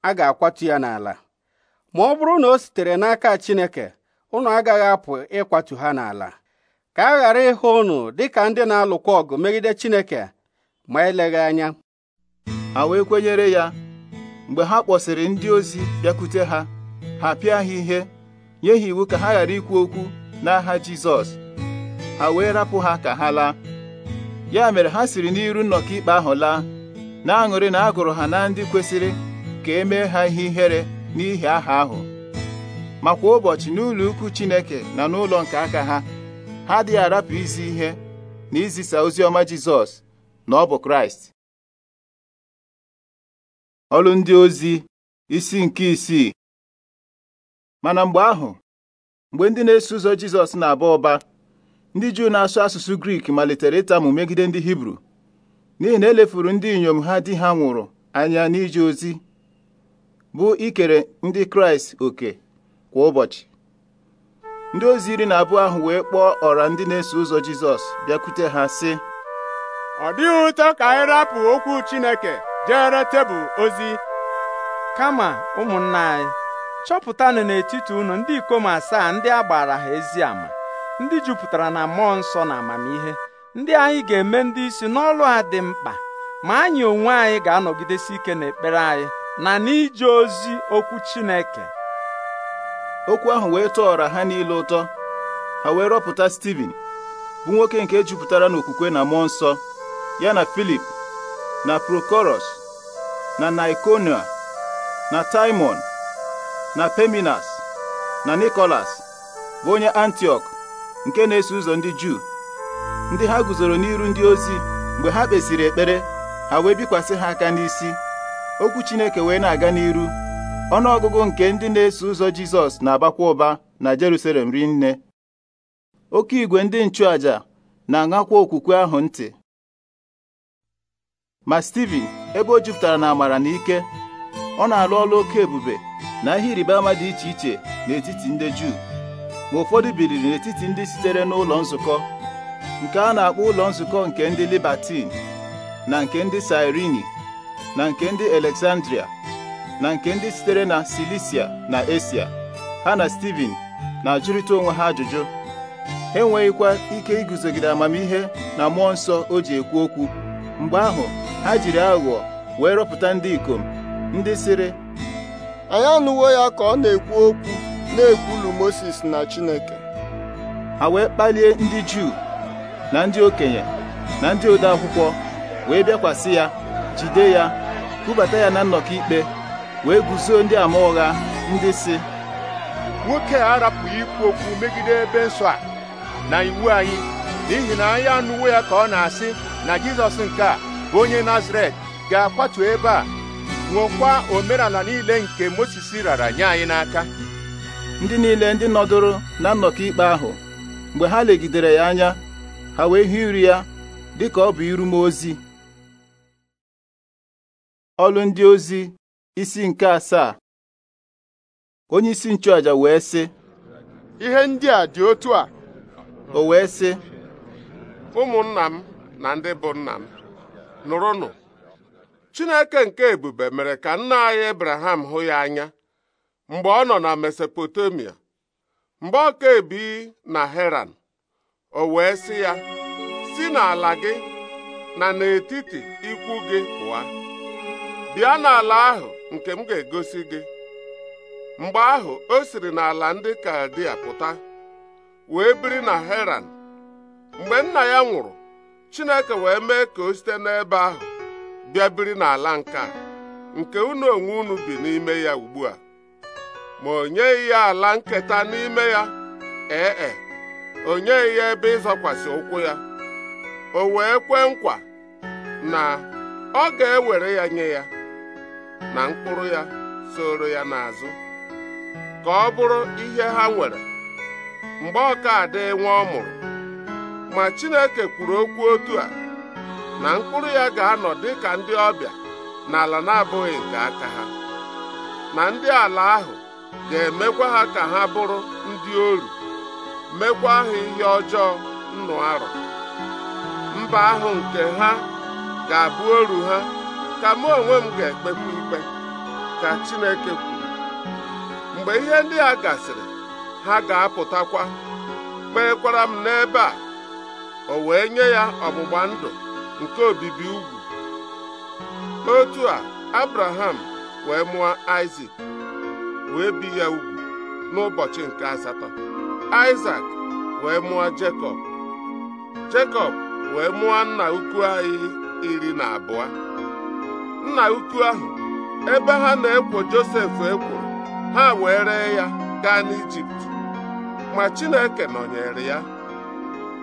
a ga-akwatu ya n'ala ma ọ bụrụ na o sitere n'aka Chineke unu agaghị apụ ịkwatu ha n'ala ka a ghara ịhụ unu dịka ndị na-alụkwa ọgụ megide Chineke ma eleghị anya ha wee kwenyere ya mgbe ha kpọsịrị ndị ozi bịakwute ha ha pịa ha ihe nye ha iwu ka ha ghara ikwu okwu n'aha Jizọs ha wee rapụ ha ka ha laa ya mere ha siri n'iru nnọkọ ikpe ahụ laa na-aṅụrị na a gụrụ ha na ndị kwesịrị ka e mee ha ihe ihere n'ihi aha ahụ ma kwa ụbọchị n'ụlọ ukwu Chineke na n'ụlọ nke aka ha ha adịghị arapụ izi ihe na izisa ozi ọma Jizọs na ọ bụ Kraịst Ọlụ ndị ozi isi nke isii mana mgbe ahụ mgbe ndị na-eso ụzọ Jizọs na-aba ụba ndị Juu na-asụ asụsụ Grik malitere ịtamụ megide ndị Hibru n'ihi na elefuru ndị inyom ha di ha nwụrụ anya n'ije ozi bụ ikere ndị kraịst oke kwa ụbọchị ndị ozi iri na abụọ ahụ wee kpọọ ọra ndị na-eso ụzọ jizọs bịakwute ha sị ọ dịghị ụtọ ka anyị rapụ okwu chineke jere tebụl ozi kama ụmụnna anyị chọpụtanụ n'etiti unu ndị ikom asaa ndị a gbara ha ezi ama ndị jupụtara na mmụọ nsọ na amamihe ndị anyị ga-eme ndị isi n'ọlụ a dị mkpa ma anyị onwe anyị ga-anọgidesi ike n'ekpere anyị na n'ije ozi okwu Chineke okwu ahụ wee tọọrọ ha niile ụtọ ha wee rọpụta Steven bụ nwoke nke e jupụtara n'okwukwe na mmụọ nsọ ya na Filip na Prokoros na Nikonia na taimon na Peminas na Nikolas bụ onye antiok nke na-eso ụzọ ndị Juu ndị ha guzoro n'iru ndị ozi mgbe ha kpesịrị ekpere ha wee bikwasị ha aka n'isi okwu Chineke wee na-aga n'iru ọnụọgụgụ nke ndị na-eso ụzọ Jizọs na-abakwa ụba na Jerusalem rinne oke igwe ndị nchụaja na-aṅakwa okwukwe ahụ ntị ma Steven ebe o jupụtara na amara na ike ọ na-alụ ọlụ oke ebube na ihe ịrịba ama dị iche iche n'etiti ndị Juu ma ụfọdụ biliri n'etiti ndị sitere n'ụlọ nzukọ nke a na-akpọ ụlọ nzukọ nke ndị Libatin na nke ndị sairini na nke ndị Alexandria na nke ndị sitere na Silisia na Esia ha na Steven na-ajụrịta onwe ha ajụjụ ha enweghịkwa ike iguzogide amamihe na mmụọ nsọ o ji ekwu okwu mgbe ahụ ha jiri aghụghọ wee rọpụta ndị ikom ndị sịrị anyị anụwo ya ka ọ na-ekwu okwu na-ekwulu Moses na Chineke ha wee kpalie ndị Juu na ndị okenye na ndị ode akwụkwọ wee bịakwasị ya jide ya kubata ya na nnọkọ ikpe wee guzo ndị ama ụgha ndị si nwoke a arapụghị ikwu okwu megide ebe nsọ a na iwu anyị n'ihi na anyị anụwo ya ka ọ na-asị na Jizọs nke a bụ onye Nazaret ga-akwatu ebe a nwokwa omenala niile nke Mozis rara nye anyị n'aka ndị niile ndị nọdụrụ na nnọkọ ikpe ahụ mgbe ha legidere ya anya ha wee hụ iri ya dị ka ọ bụ iru ozi ọlụ ndị ozi isi nke asaa onye isi nchụaja wee sị ihe ndị a dị otu a o wee sị ụmụnna m na ndị bụ nna m nụrụnụ Chineke nke ebube mere ka nna anyị Abraham hụ ya anya mgbe ọ nọ na Mesopotamia mgbe ọ ka ebi na Heran o wee sị ya si n'ala gị na n'etiti ikwu gị pụa bịa n'ala ahụ nke m ga-egosi gị mgbe ahụ o siri n'ala ndị Kaldia pụta wee biri na Heran mgbe nna ya nwụrụ Chineke wee mee ka o site n'ebe ahụ bịa biri n'ala nke a nke unu onwe unu bi n'ime ya ugbu a ma o nyeghị ya ala nketa n'ime ya ee e, o nyeghị ya ebe ịzọkwasị ụkwụ ya o wee kwee nkwa na ọ ga-ewere ya nye ya na mkpụrụ ya soro ya n'azụ ka ọ bụrụ ihe ha nwere mgbe ọkada nwa ọ mụrụ ma Chineke kwuru okwu otu a na mkpụrụ ya ga-anọ dị ka ndị ọbịa n'ala na-abụghị nke aka ha na ndị ala ahụ ga-emekwa ha ka ha bụrụ ndị oru mekwa ha ihe ọjọọ nnụ arụ mba ahụ nke ha ga-abụ oru ha ka mụ onwe m ga-ekpekwa ikpe ka Chineke kwuru mgbe ihe ndị a gasịrị ha ga-apụtakwa kpeekwara m n'ebe a o wee nye ya ọgbụgba ndụ nke obibi ugwu otu a Abraham wee mụọ Isaac wee bi ya ugwu n'ụbọchị nke asatọ Isaac wee mụọ Jekọb Jekọb wee mụọ nna ukwu anyị iri na abụọ nna ukwu ahụ ebe ha na-ekwo Josef ekworo ha wee ree ya gaa n'Ijipt ma Chineke nọnyere ya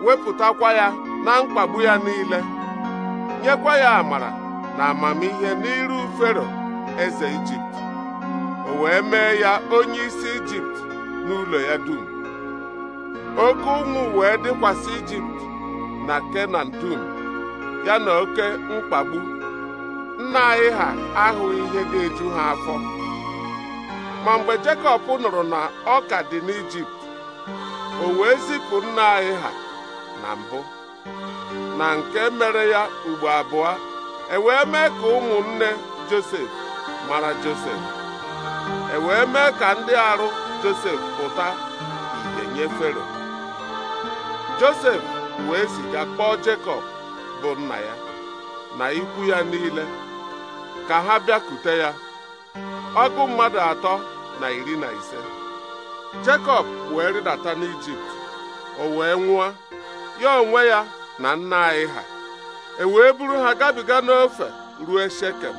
wepụtakwa ya na mkpagbu ya niile nyekwa ya amara na amamihe n'iru Fero eze Ijipt o wee mee ya onye isi Ijipt n'ụlọ ya dum oke ụmụ wee dịkwasị Ijipt na Kenan dum ya na oke mkpagbu nna anyị ha ahụghị ihe ga-eju ha afọ ma mgbe Jekọb nụrụ na ọ ka dị n'Ijipt o wee zipụ nna anyị ha na mbụ na nke mere ya ugbo abụọ e wee mee ka ụmụnne Josef mara Josef e wee mee ka ndị arụ Josef pụta ìhè nye Fero Josef wee ziga kpọọ Jekọb bụ nna ya na ikwu ya niile ka ha bịakute ya ọgụ mmadụ atọ na iri na ise Jekọb wee rịdata n'Ijipt o wee nwụọ ya onwe ya na nna anyị ha e wee buru ha gabiga n'ofe ruo Shekem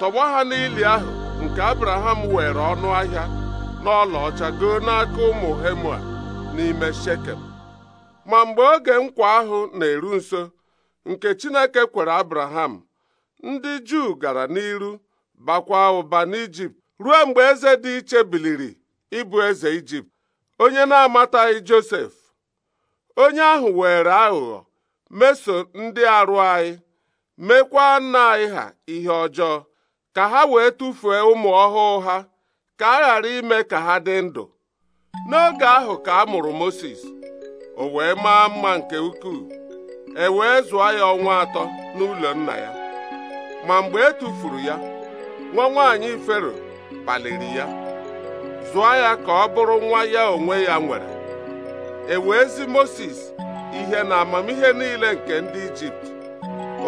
tọgbọ ha n'ili ahụ nke Abraham were ọnụ ahịa ọcha goo n'aka ụmụ Hemua n'ime Shekem ma mgbe oge nkwa ahụ na-eru nso nke Chineke kwere Abraham ndị Juu gara n'iru bakwa ụba n'Ijipt ruo mgbe eze dị iche biliri ịbụ eze Ijipt onye na-amataghị Josef onye ahụ were aghụghọ meso ndị arụ anyị mekwa nna anyị ha ihe ọjọọ ka ha wee tụfuo ụmụ ọhụụ ha ka a ghara ime ka ha dị ndụ n'oge ahụ ka a mụrụ Mozis o wee maa mma nke ukwuu e wee zụọ ya ọnwa atọ n'ụlọ nna ya ma mgbe e tufuru ya nwa nwaanyị fero kpaliri ya zụọ ya ka ọ bụrụ nwa ya onwe ya nwere e wee zi Mozis ihe na amamihe niile nke ndị Ijipt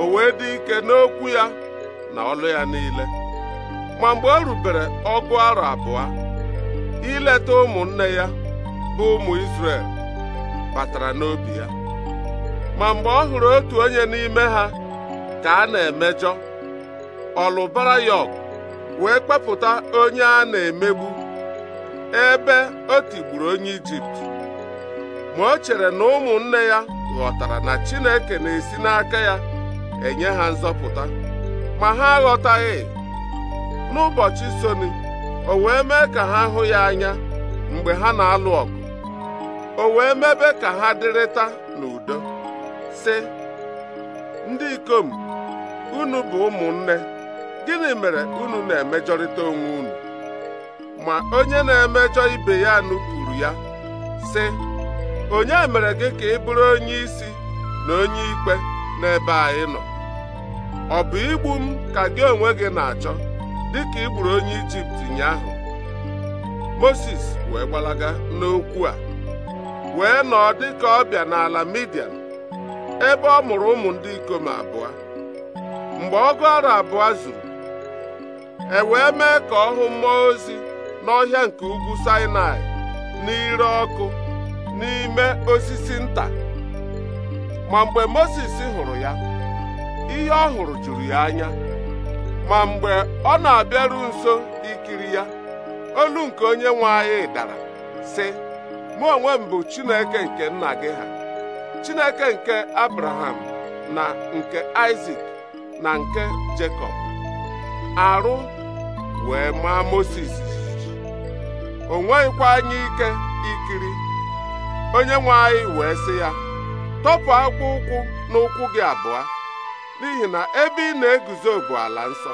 o wee dị ike n'okwu ya na ọlụ ya niile ma mgbe o rubere ọgụ arọ abụọ ileta ụmụnne ya bụ ụmụ Izrel batara n'obi ya ma mgbe ọ hụrụ otu onye n'ime ha ka a na-emejọ ọlụbarayọk wee kpepụta onye a na-emegbu ebe o tigburu onye ijipt ma o chere na ụmụnne ya ghọtara na chineke na-esi n'aka ya enye ha nzọpụta ma ha aghọtaghị n'ụbọchị soni o wee mee ka ha hụ ya anya mgbe ha na-alụ ọgụ o wee mebe ka ha dịrịta n'udo si ndị ikom unu bụ ụmụnne gịnị mere unu na-emejọrịta onwe unu ma onye na-emejọ ibe ya nupụrụ ya sị onye mere gị ka ị bụrụ onye isi na onye ikpe n'ebe anyị nọ ọ bụ igbu m ka gị onwe gị na-achọ dịka ị gburu onye ijipt ụnyaahụ moses wee gbalaga n'okwu a wee nọọ dịka ọbịa n'ala midian ebe ọ mụrụ ụmụ ndị ikom abụọ mgbe ọgụ ara abụọ zuru e wee mee ka ọ hụ mmụọ ozi n'ọhịa nke ugwu Sinai n'ire ọkụ n'ime osisi nta ma mgbe Mozis hụrụ ya ihe ọ hụrụ juru ya anya ma mgbe ọ na-abịaru nso ikiri ya olu nke onye nwe anyị dara sị mụ onwe m bụ Chineke nke nna gị ha Chineke nke Abraham na nke Isaac na nke Jekọb arụ wee maa Moses, jijiji o anyị ike ikiri onye nwe anyị wee sị ya tọpụ akwụ ụkwụ n'ụkwụ gị abụọ n'ihi na ebe ị na-eguzo bụ ala nsọ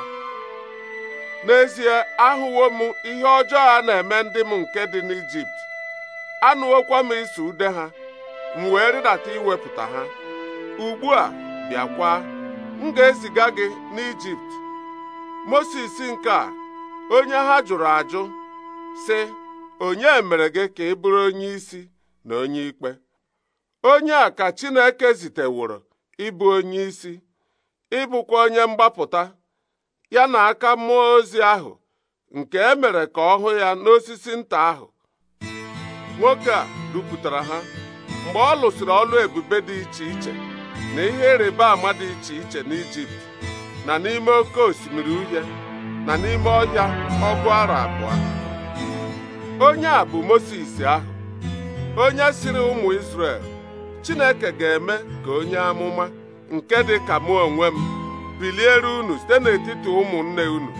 n'ezie ahụwo m ihe ọjọọ a na-eme ndị m nke dị n'Ijipt anụwokwa m iso ude ha m wee rịdata iwepụta ha ugbu a bịakwa m ga-eziga gị n'Ijipt Mosis nke a onye ha jụrụ ajụ sị onye mere gị ka ị bụrụ onye isi na onye ikpe onye a ka Chineke ziteworo ịbụ onye isi ịbụkwa onye mgbapụta ya na aka mmụọ ozi ahụ nke e mere ka ọ hụ ya n'osisi nta ahụ nwoke a dupụtara ha mgbe ọ lụsịrị ọlụ ebube dị iche iche na ihe ịrịba ama dị iche iche n'Ijipt na n'ime oke osimiri uhie na n'ime ọhịa ọgụ ara abụọ onye a bụ Mosis ahụ onye siri ụmụ Izrel Chineke ga-eme ka onye amụma nke dị ka mụ onwe m biliere unu site n'etiti ụmụnne unu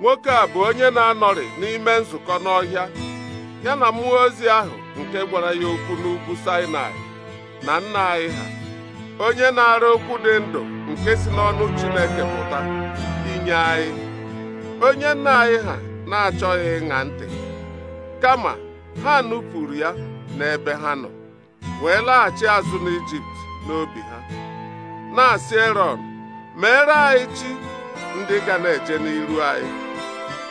nwoke a bụ onye na-anọrị n'ime nzukọ n'ọhịa ya na mmụọ ozi ahụ nke gwara ya okwu n'ugwu sinai na nna anyị ha onye na-ara okwu dị ndụ nke si n'ọnụ Chineke pụta inye anyị onye nna anyị ha na-achọghị ịṅa ntị kama ha nupụrụ ya n'ebe ha nọ wee laghachi azụ n'Ijipt n'obi ha na-asị Erọn meere anyị chi ndị ga na-eje n'iru anyị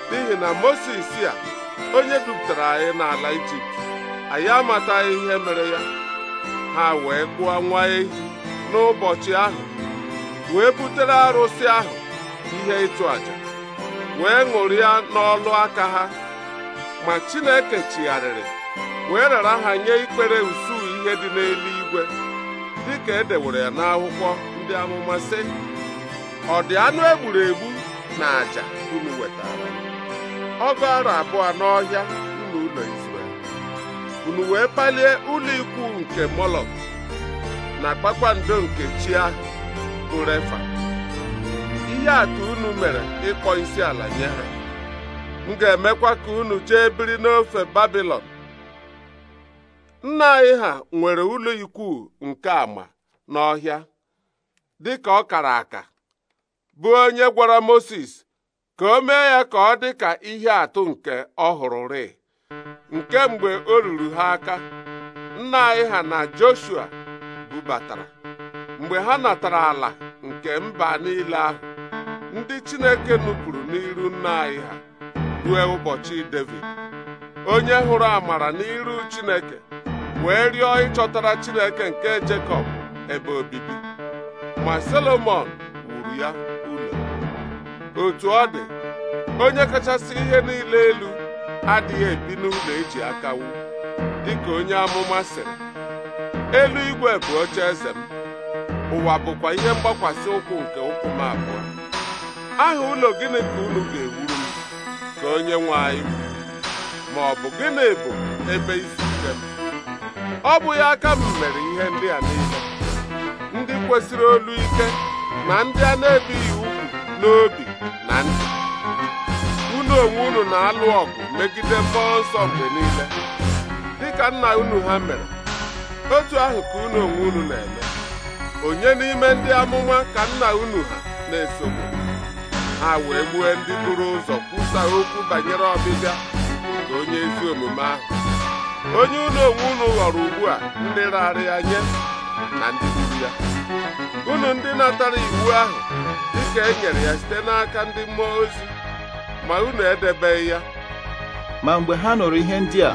n'ihi na Mosis a onye dupụtara anyị n'ala Ijipt anyị amataghị ihe mere ya ha wee kpụọ nwa ehi n'ụbọchị ahụ wee butere arụsị ahụ ihe ịchụ àjà wee ṅụrịa n'ọlụ aka ha ma Chineke chigharịrị wee rara ha nye ikpere usuu ihe dị n'eluigwe dịka edewere ya n'akwụkwọ ndị amụma sị ọ dị anụ egburu egbu na àjà unu wetara ọgụ arụ abụọ n'ọhịa unu ụlọ Izrel unu wee palie ụlọ ikwu nke Molok na kpakpando nke chi ahụ ihe atụ unu mere ịkpọ isi ala nye ha m ga-emekwa ka unu chee biri n'ofe babilon nna anyị ha nwere ụlọ ikwu nke ama n'ọhịa dịka ọ kara aka bụ onye gwara moses ka o mee ya ka ọ dị ka ihe atụ nke ọ hụrụrị nke mgbe o ruru ha aka nna anyị ha na Joshua bubatara mgbe ha natara ala nke mba niile ahụ ndị Chineke nupụrụ n'iru nna anyị ha rue ụbọchị Devid onye hụrụ amara n'iru Chineke wee rịọ ịchọtara Chineke nke Jekọb ebe obibi ma Solomọn wuru ya ụlọ otu ọ dị onye kachasị ihe niile elu adịghị ebi n'ụlọ eji aka wu dịka onye amụma sịrị elu igwe bụ oche eze ụwa bụkwa ihe mgbakwasị ụkwụ nke ụkwụ m abụọ aha ụlọ gịnị ka unu ga-ewuru m ka onye nwe anyị ma ọ bụ gịnị bụ ebe isi ike m ọ bụghị aka m mere ihe ndị a niile ndị kwesịrị olu ike na ndị a na-ebighị ugwu n'obi na ndị. unu onwe unu na-alụ ọgụ megide mmụọ nsọ mgbe niile dịka nna unu ha mere otu ahụ ka unu onwe unu na-eme onye n'ime ndị amụma ka nna unu ha na-esogbu ha wee gbue ndị buru ụzọ kwusa okwu banyere ọbịbịa nke onye ezi omume ahụ onye unu onwe unu ghọrọ ugbu a ndị raara ya nye na ndị gburu ya unu ndị natara iwu ahụ dịka e nyere ya site n'aka ndị mmụọ ozi ma unu edebeghị ya ma mgbe ha nụrụ ihe ndị a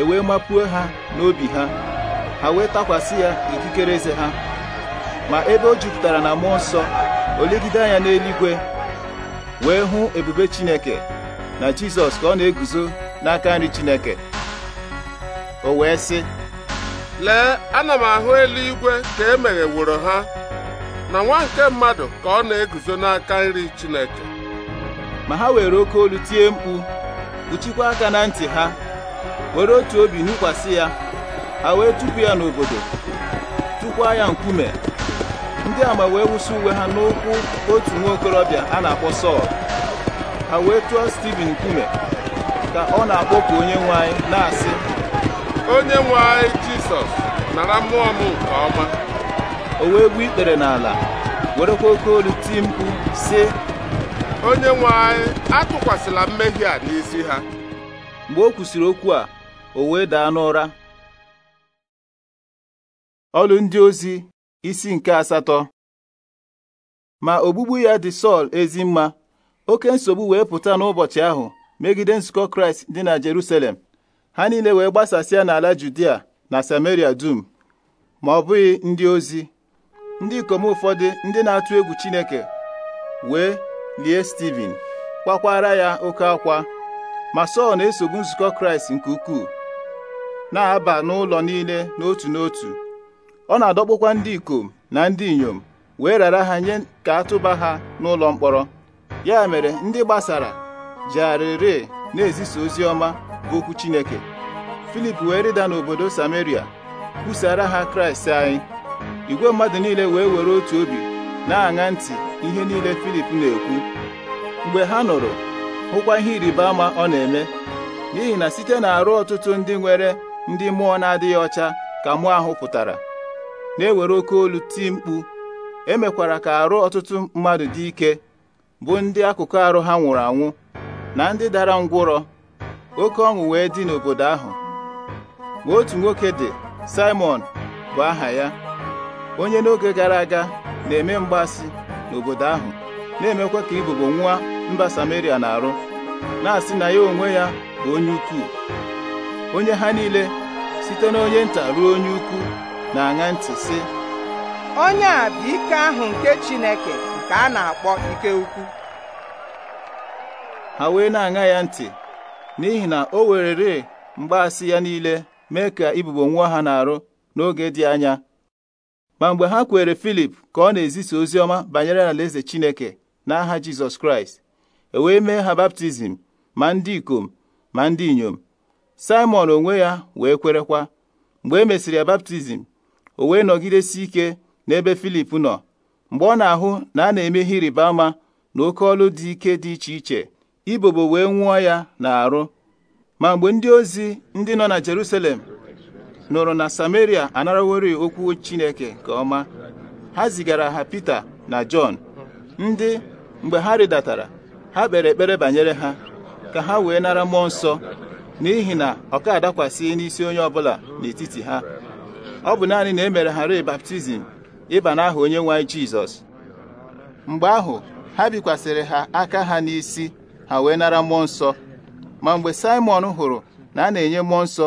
ewee mapuo ha n'obi ha ha wee takwasị ya ikikere eze ha ma ebe o jupụtara na mmụọ nsọ o legide anya n'eluigwe wee hụ ebube Chineke na Jizọs ka ọ na-eguzo n'aka nri Chineke o wee sị lee ana m ahụ eluigwe ka e wụrụ ha na nwa nke mmadụ ka ọ na-eguzo n'aka nri Chineke ma ha were oke olu tie mkpu kpuchikwa aka na ntị ha were otu obi nụkwasị ya ha wee tụpụ ya n'obodo tụkwa ya nkume ndị ama wee wụsị uwe ha n'ụkwụ otu nwa okorobịa a na-akpọ Sọl ha wee tụọ Stiven nkume ka ọ na-akpọku onye nwe anyị na-asị onye nwe anyị Jisọs nara mmụọ m nke ọma o wee gbuo ikpere n'ala werekwa oke olu tii mkpu sị onye nwe anyị atụkwasịla mmehie a n'isi ha mgbe o kwusịrị okwu a o wee daa n'ụra ọlụ ndị ozi isi nke asatọ ma ogbugbu ya dị Sọl ezi mma oke nsogbu wee pụta n'ụbọchị ahụ megide nzukọ Kraịst dị na Jeruselem. ha niile wee gbasasịa n'ala Judia na Samaria dum ma ọ bụghị ndị ozi ndị ikom ụfọdụ ndị na-atụ egwu Chineke wee lie Steven kwakwara ya oke akwa ma Sọl na-esogbu nzukọ Kraịst nke ukwuu na-aba n'ụlọ niile n'otu n'otu ọ na-adọkpụkwa ndị ikom na ndị inyom wee rara ha nye ka atụba ha n'ụlọ mkpọrọ ya mere ndị gbasara jegharịrị na-ezisa ozi ọma bụ okwu Chineke Filip wee rịda n'obodo Samaria kwusara ha Kraịst anyị igwe mmadụ niile wee were otu obi na-aṅa ntị ihe niile Filip na-ekwu mgbe ha nụrụ hụkwa ihe ịrịba ama ọ na-eme n'ihi na site na arụ ọtụtụ ndị nwere ndị mmụọ na-adịghị ọcha ka mmụọ ahụ pụtara na-ewere oke olu tii mkpu emekwara ka arụ ọtụtụ mmadụ dị ike bụ ndị akụkụ arụ ha nwụrụ anwụ na ndị dara ngwụrọ oke ọṅụ wee dị n'obodo ahụ ma otu nwoke dị Simon bụ aha ya onye n'oge gara aga na-eme mgbasi n'obodo ahụ na-emekwa ka ibubo nwa mba Samaria na-arụ na-asị na ya onwe ya bụ onye ukwu onye ha niile site n'onye nta ruo onye ukwu na-aṅa ntị sị onye a bụ ike ahụ nke Chineke nke a na-akpọ ike ukwu ha wee na-aṅa ya ntị n'ihi na o werere mgbaasị ya niile mee ka ibubo nwa ha na-arụ n'oge dị anya ma mgbe ha kwere Filip ka ọ na-ezisa ozi ọma banyere alaeze Chineke n'aha Jizọs Kraịst e wee mee ha baptizim ma ndị ikom ma ndị inyom Simon onwe ya wee kwerekwa mgbe e mesịrị ya baptizim o wee nọgidesi ike n'ebe Filip nọ mgbe ọ na-ahụ na a na-eme ihe ịrịba ama na oke ọlụ dị ike dị iche iche ibobo wee nwụọ ya na-arụ ma mgbe ndị ozi ndị nọ na Jerusalem nụrụ na Samaria anarawori okwu Chineke nke ọma ha zigara ha Pita na Jọn ndị mgbe ha rịdatara ha kpere ekpere banyere ha ka ha wee nara mmụọ nsọ n'ihi na ọka ka n'isi onye ọbụla n'etiti ha ọ bụ naanị na e mere ha baptizim ịba n'aha onye nwe anyị Jizọs mgbe ahụ ha bikwasịrị ha aka ha n'isi ha wee nara mmụọ nsọ ma mgbe simon hụrụ na a na-enye mmụọ nsọ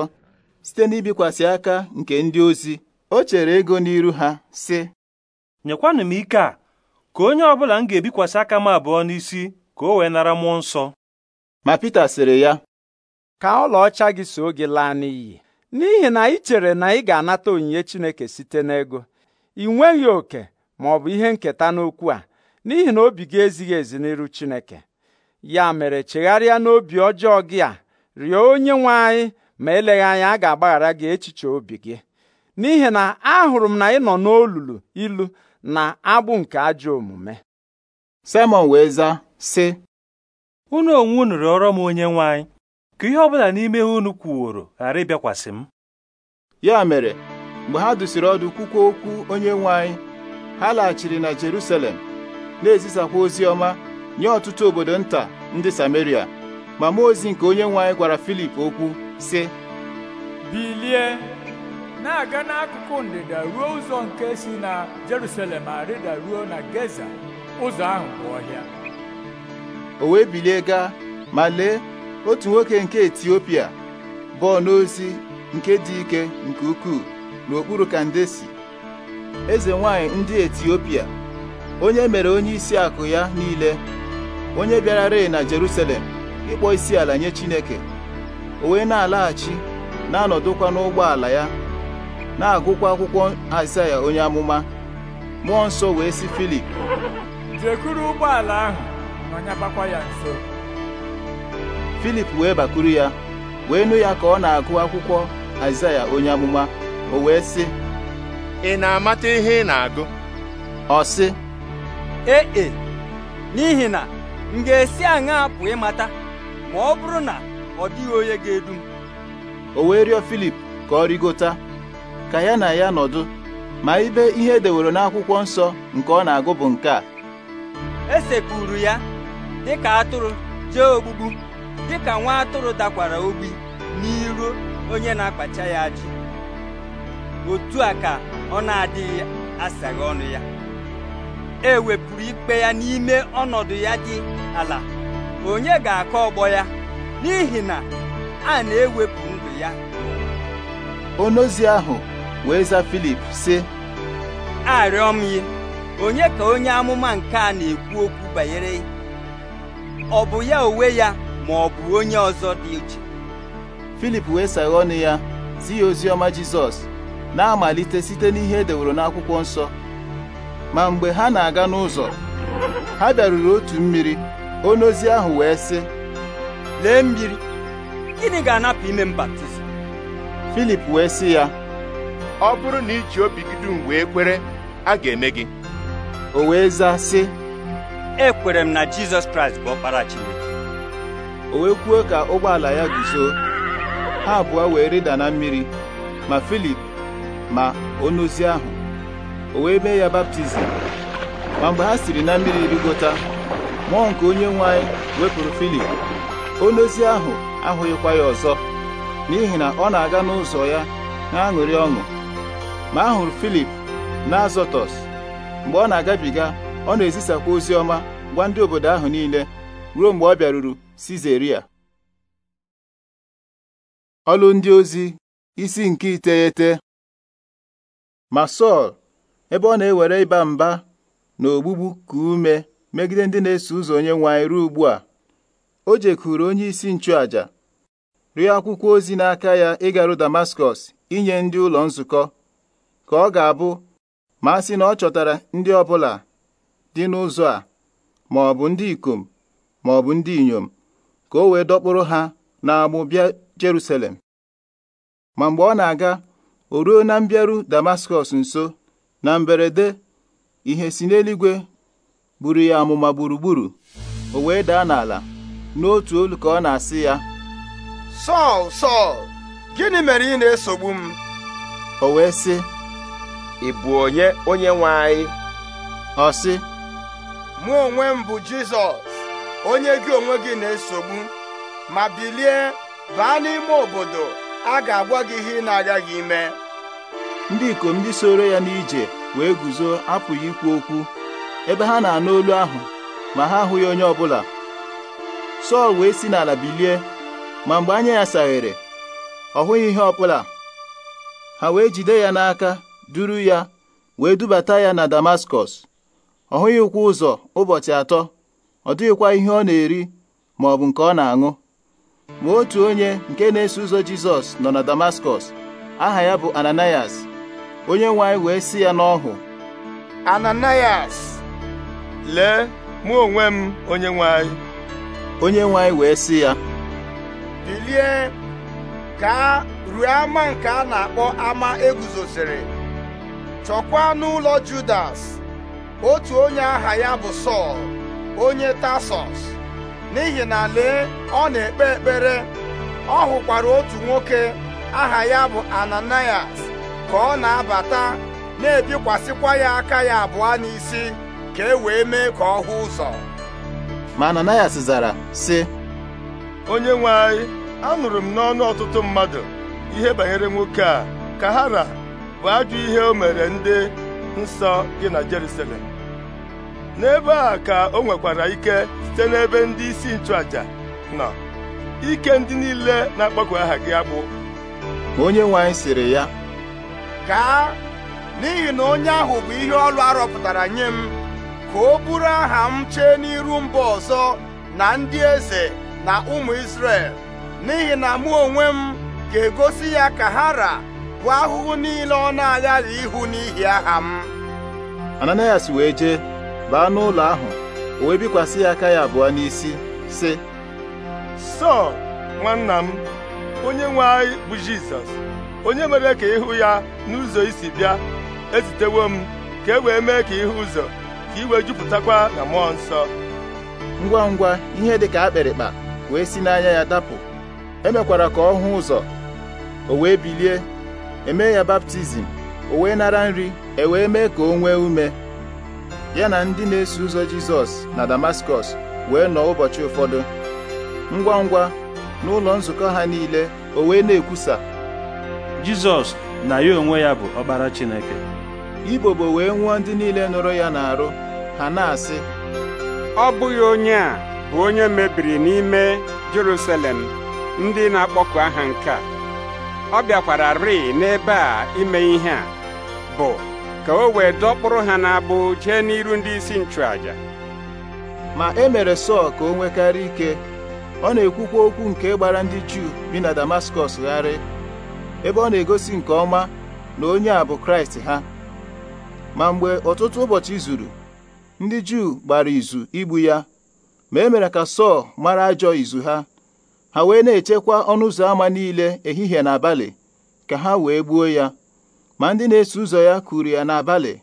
site n'ibikwasị aka nke ndị ozi o chere ego n'iru ha sị nyekwanụ m ike a ka onye ọ bụla m ga-ebikwasị aka m abụọ n'isi ka o wee nara mmụọ nsọ ma Pita sịrị ya ka ọlaọcha gị so gị laa n'iyi n'ihi na ị chere na ị ga-anata onyinye Chineke site n'ego ị nweghị oke ma ọ bụ ihe nketa n'okwu a n'ihi na obi gị ezighị ezi n'iru Chineke ya mere chegharịa n'obi ọjọọ gị a rịọ onye nwe anyị ma eleghị anya a ga-agbaghara gị echiche obi gị n'ihi na ahụrụ m na ị nọ n'olulu ilu na agbụ nke ajọ omume Simon wee zaa sị unu onwe unu m onye nwe anyị ka ihe ọ bụla n'ime unu kwuworo ghara ịbịakwasị m ya mere mgbe ha dụsiri ọdụ kwukwa okwu onye nwe ha laghachiri na Jerusalem na-ezisakwa ozi ọma nye ọtụtụ obodo nta ndị Sameria ma mmụọ ozi nke onye nwe anyị gwara Filip okwu sị bilie na-aga n'akụkụ ndịda ruo ụzọ nke si na Jerusalem arịda ruo na Geza ụzọ ahụ bụ ọhịa o wee bilie gaa ma lee otu nwoke nke etiopia bụ n'ozi nke dị ike nke ukwuu n'okpuru kandesi eze nwanyị ndị etiopia onye mere onye isi akụ ya niile onye bịara rịị na jerusalem ịkpọ isi ala nye chineke o na-alaghachi na-anọdụkwa n'ụgbọala ya na-agụkwa akwụkwọ azaya onye amụma mmụọ nsọ wee sị filip jekwuru ụgbọala ahụ ya nso filip wee bakuru ya wee nụ ya ka ọ na-agụ akwụkwọ aịzaya onye amụma o wee sị ị na-amata ihe ị na-agụ ọ sị ee e n'ihi na m ga-esi aṅa apụ ịmata ma ọ bụrụ na ọ dịghị onye ga-edu m o wee rịọ filip ka ọ rigota ka ya na ya nọdụ ma ibe ihe edewere n'akwụkwọ nsọ nke ọ na-agụ bụ nke a esekpuru ya dịka atụrụ jee ogbugbu ka nwa atụrụ dakwara obi n'iru onye na-akpacha ya ajụ otu a ka ọ na-adịghị asaghị ọnụ ya e wepụrụ ikpe ya n'ime ọnọdụ ya dị ala onye ga-akọ ọgbọ ya n'ihi na a na-ewepụ ndụ ya onozi ahụ wee za Filip sị arịọ onye ka onye amụma nke a na-ekwu okwu banyere ọ bụ ya onwe ya ma ọ bụ onye ọzọ dị iche filip wee saghe ọnụ ya zi ya ozi ọma jizọs na-amalite site n'ihe e deworo n'akwụkwọ nsọ ma mgbe ha na-aga n'ụzọ ha bịaruru otu mmiri onye ozi ahụ wee sị lee mmiri gịnị ga-anapụ ime m baptizim filip wee sị ya ọ bụrụ na iji obi gị dum wee kwere a ga-eme gị o wee zaa sị ekwere m na jizọs kraịst bụ ọkpara chineke o wee kwuo ka ụgbọala ya guzo ha abụọ wee rịda na mmiri ma filip ma onozi ahụ o wee mee ya baptizim ma mgbe ha siri na mmiri rigota mmụọ nke onye nwe wepụrụ filip onozi ahụ ahụghịkwa ya ọzọ n'ihi na ọ na-aga n'ụzọ ya na-aṅụrị ọṅụ ma a hụrụ filip na azọtọs mgbe ọ na-agabiga ọ na-ezisakwa ozi ọma gwa ndị obodo ahụ niile ruo mgbe ọ bịaruru Sizeria ọlụ ndị ozi isi nke iteghete ma Sọl ebe ọ na-ewere ịba mba na ogbugbu ka ume megide ndị na-eso ụzọ onye nwe ruo ugbu a o jekwuru onye isi nchụaja rịọ akwụkwọ ozi n'aka ya ịgaru Damaskọs inye ndị ụlọ nzukọ ka ọ ga-abụ ma a sị na ọ chọtara ndị ọbụla dị n'ụzọ a ma ndị ikom ma ndị inyom ka o wee dọkpụrụ ha n'agbụ bịa Jerusalem ma mgbe ọ na-aga o ruo na mbịaru Damaskọs nso na mberede ihe si n'eluigwe buru ya amụma gburugburu o wee daa n'ala n'otu olu ka ọ na-asị ya Sọl Sọl gịnị mere ị na-esogbu m o wee sị ị bụ onye onye nwe anyị ọ sị mụ onwe m bụ Jizọs onye gị onwe gị na-esogbu ma bilie baa n'ime obodo a ga-agwa gị ihe ị na-agaghị ime ndị ikom ndị soro ya n'ije wee guzo apụghị ikwu okwu ebe ha na-anụ olu ahụ ma ha ahụghị onye ọbụla Sọl wee si n'ala bilie ma mgbe anya ya saghere ọ hụghị ihe ọbụla ha wee jide ya n'aka duru ya wee dubata ya na Damaskọs ọ hụghị ụkwụ ụzọ ụbọchị atọ ọ dịghịkwa ihe ọ na-eri maọbụ nke ọ na-aṅụ ma otu onye nke na-eso ụzọ jizọs nọ na damaskọs aha ya bụ ananias onye nwe anyị wee si ya n'ọhụ ananias lee mụ onwe m onye nwe anyị onye nwe wee sị ya bilie ka ruo ama nke a na-akpọ ama eguzosiri chọkwa n'ụlọ judas otu onye aha ya bụ sọl onye tasọs n'ihi na lee ọ na-ekpe ekpere ọ hụkwara otu nwoke aha ya bụ ananias ka ọ na-abata na-ebikwasịkwa ya aka ya abụọ n'isi ka e wee mee ka ọ hụ ụzọ ma ananias zara sị onye nwe anyị anụrụ m n'ọnụ ọtụtụ mmadụ ihe banyere nwoke a ka bụ ajọ ihe o mere ndị nsọ gị na Jerusalem n'ebe a ka o nwekwara ike site n'ebe ndị isi nchụaja nọ ike ndị niile na-akpọku aha gị agbụ onye nwe anyị sịrị ya gaa n'ihi na onye ahụ bụ ihe ọlụ arọpụtara nye m ka o bụrụ aha m chee n'iru mba ọzọ na ndị eze na ụmụ Izrel n'ihi na mụ onwe m ga-egosi ya ka ha bụ ahụhụ niile ọ na-aghaghị ihu n'ihi aha m Ananias wee jee baa n'ụlọ ahụ o wee bikwasị ya aka ya abụọ n'isi sị sọ nwanna m onye nwe anyị bụ jizọs onye mere ka ịhụ ya n'ụzọ isi bịa ezitewo m ka e wee mee ka ịhụ ụzọ ka wee jupụtakwa na mmụọ nsọ ngwa ngwa ihe dị ka akpịrịkpa wee si n'anya ya dapụ emekwara ka ọ hụ ụzọ o wee bilie emee ya baptizim o wee nara nri e wee mee ka o nwee ume ya na ndị na-eso ụzọ Jizọs na Damaskọs wee nọ ụbọchị ụfọdụ ngwa ngwa ụlọ nzukọ ha niile o wee na-ekwusa Jizọs na ya onwe ya bụ ọkpara Chineke Ibobo wee nwụọ ndị niile nụrụ ya n'arụ ha na-asị ọ bụghị onye a bụ onye mebiri n'ime Jerusalem ndị na-akpọku aha nke a ọ bịakwara rịị n'ebe a ime ihe a bụ ka o wee dọkpụrụ ha n'abụ jee n'iru ndị isi nchụàjà. ma e mere Sọl ka o nwekarị ike ọ na-ekwukwa okwu nke gbara ndị Juu bi na Damaskọs gharị ebe ọ na-egosi nke ọma na onye a bụ Kraịst ha ma mgbe ọtụtụ ụbọchị zuru ndị Juu gbara izu igbu ya ma e mere ka Sọl mara ajọ izu ha ha wee na-echekwa ọnụ ụzọ ámá niile ehihie na abalị ka ha wee gbuo ya ma ndị na-eso ụzọ ya kuru ya n'abalị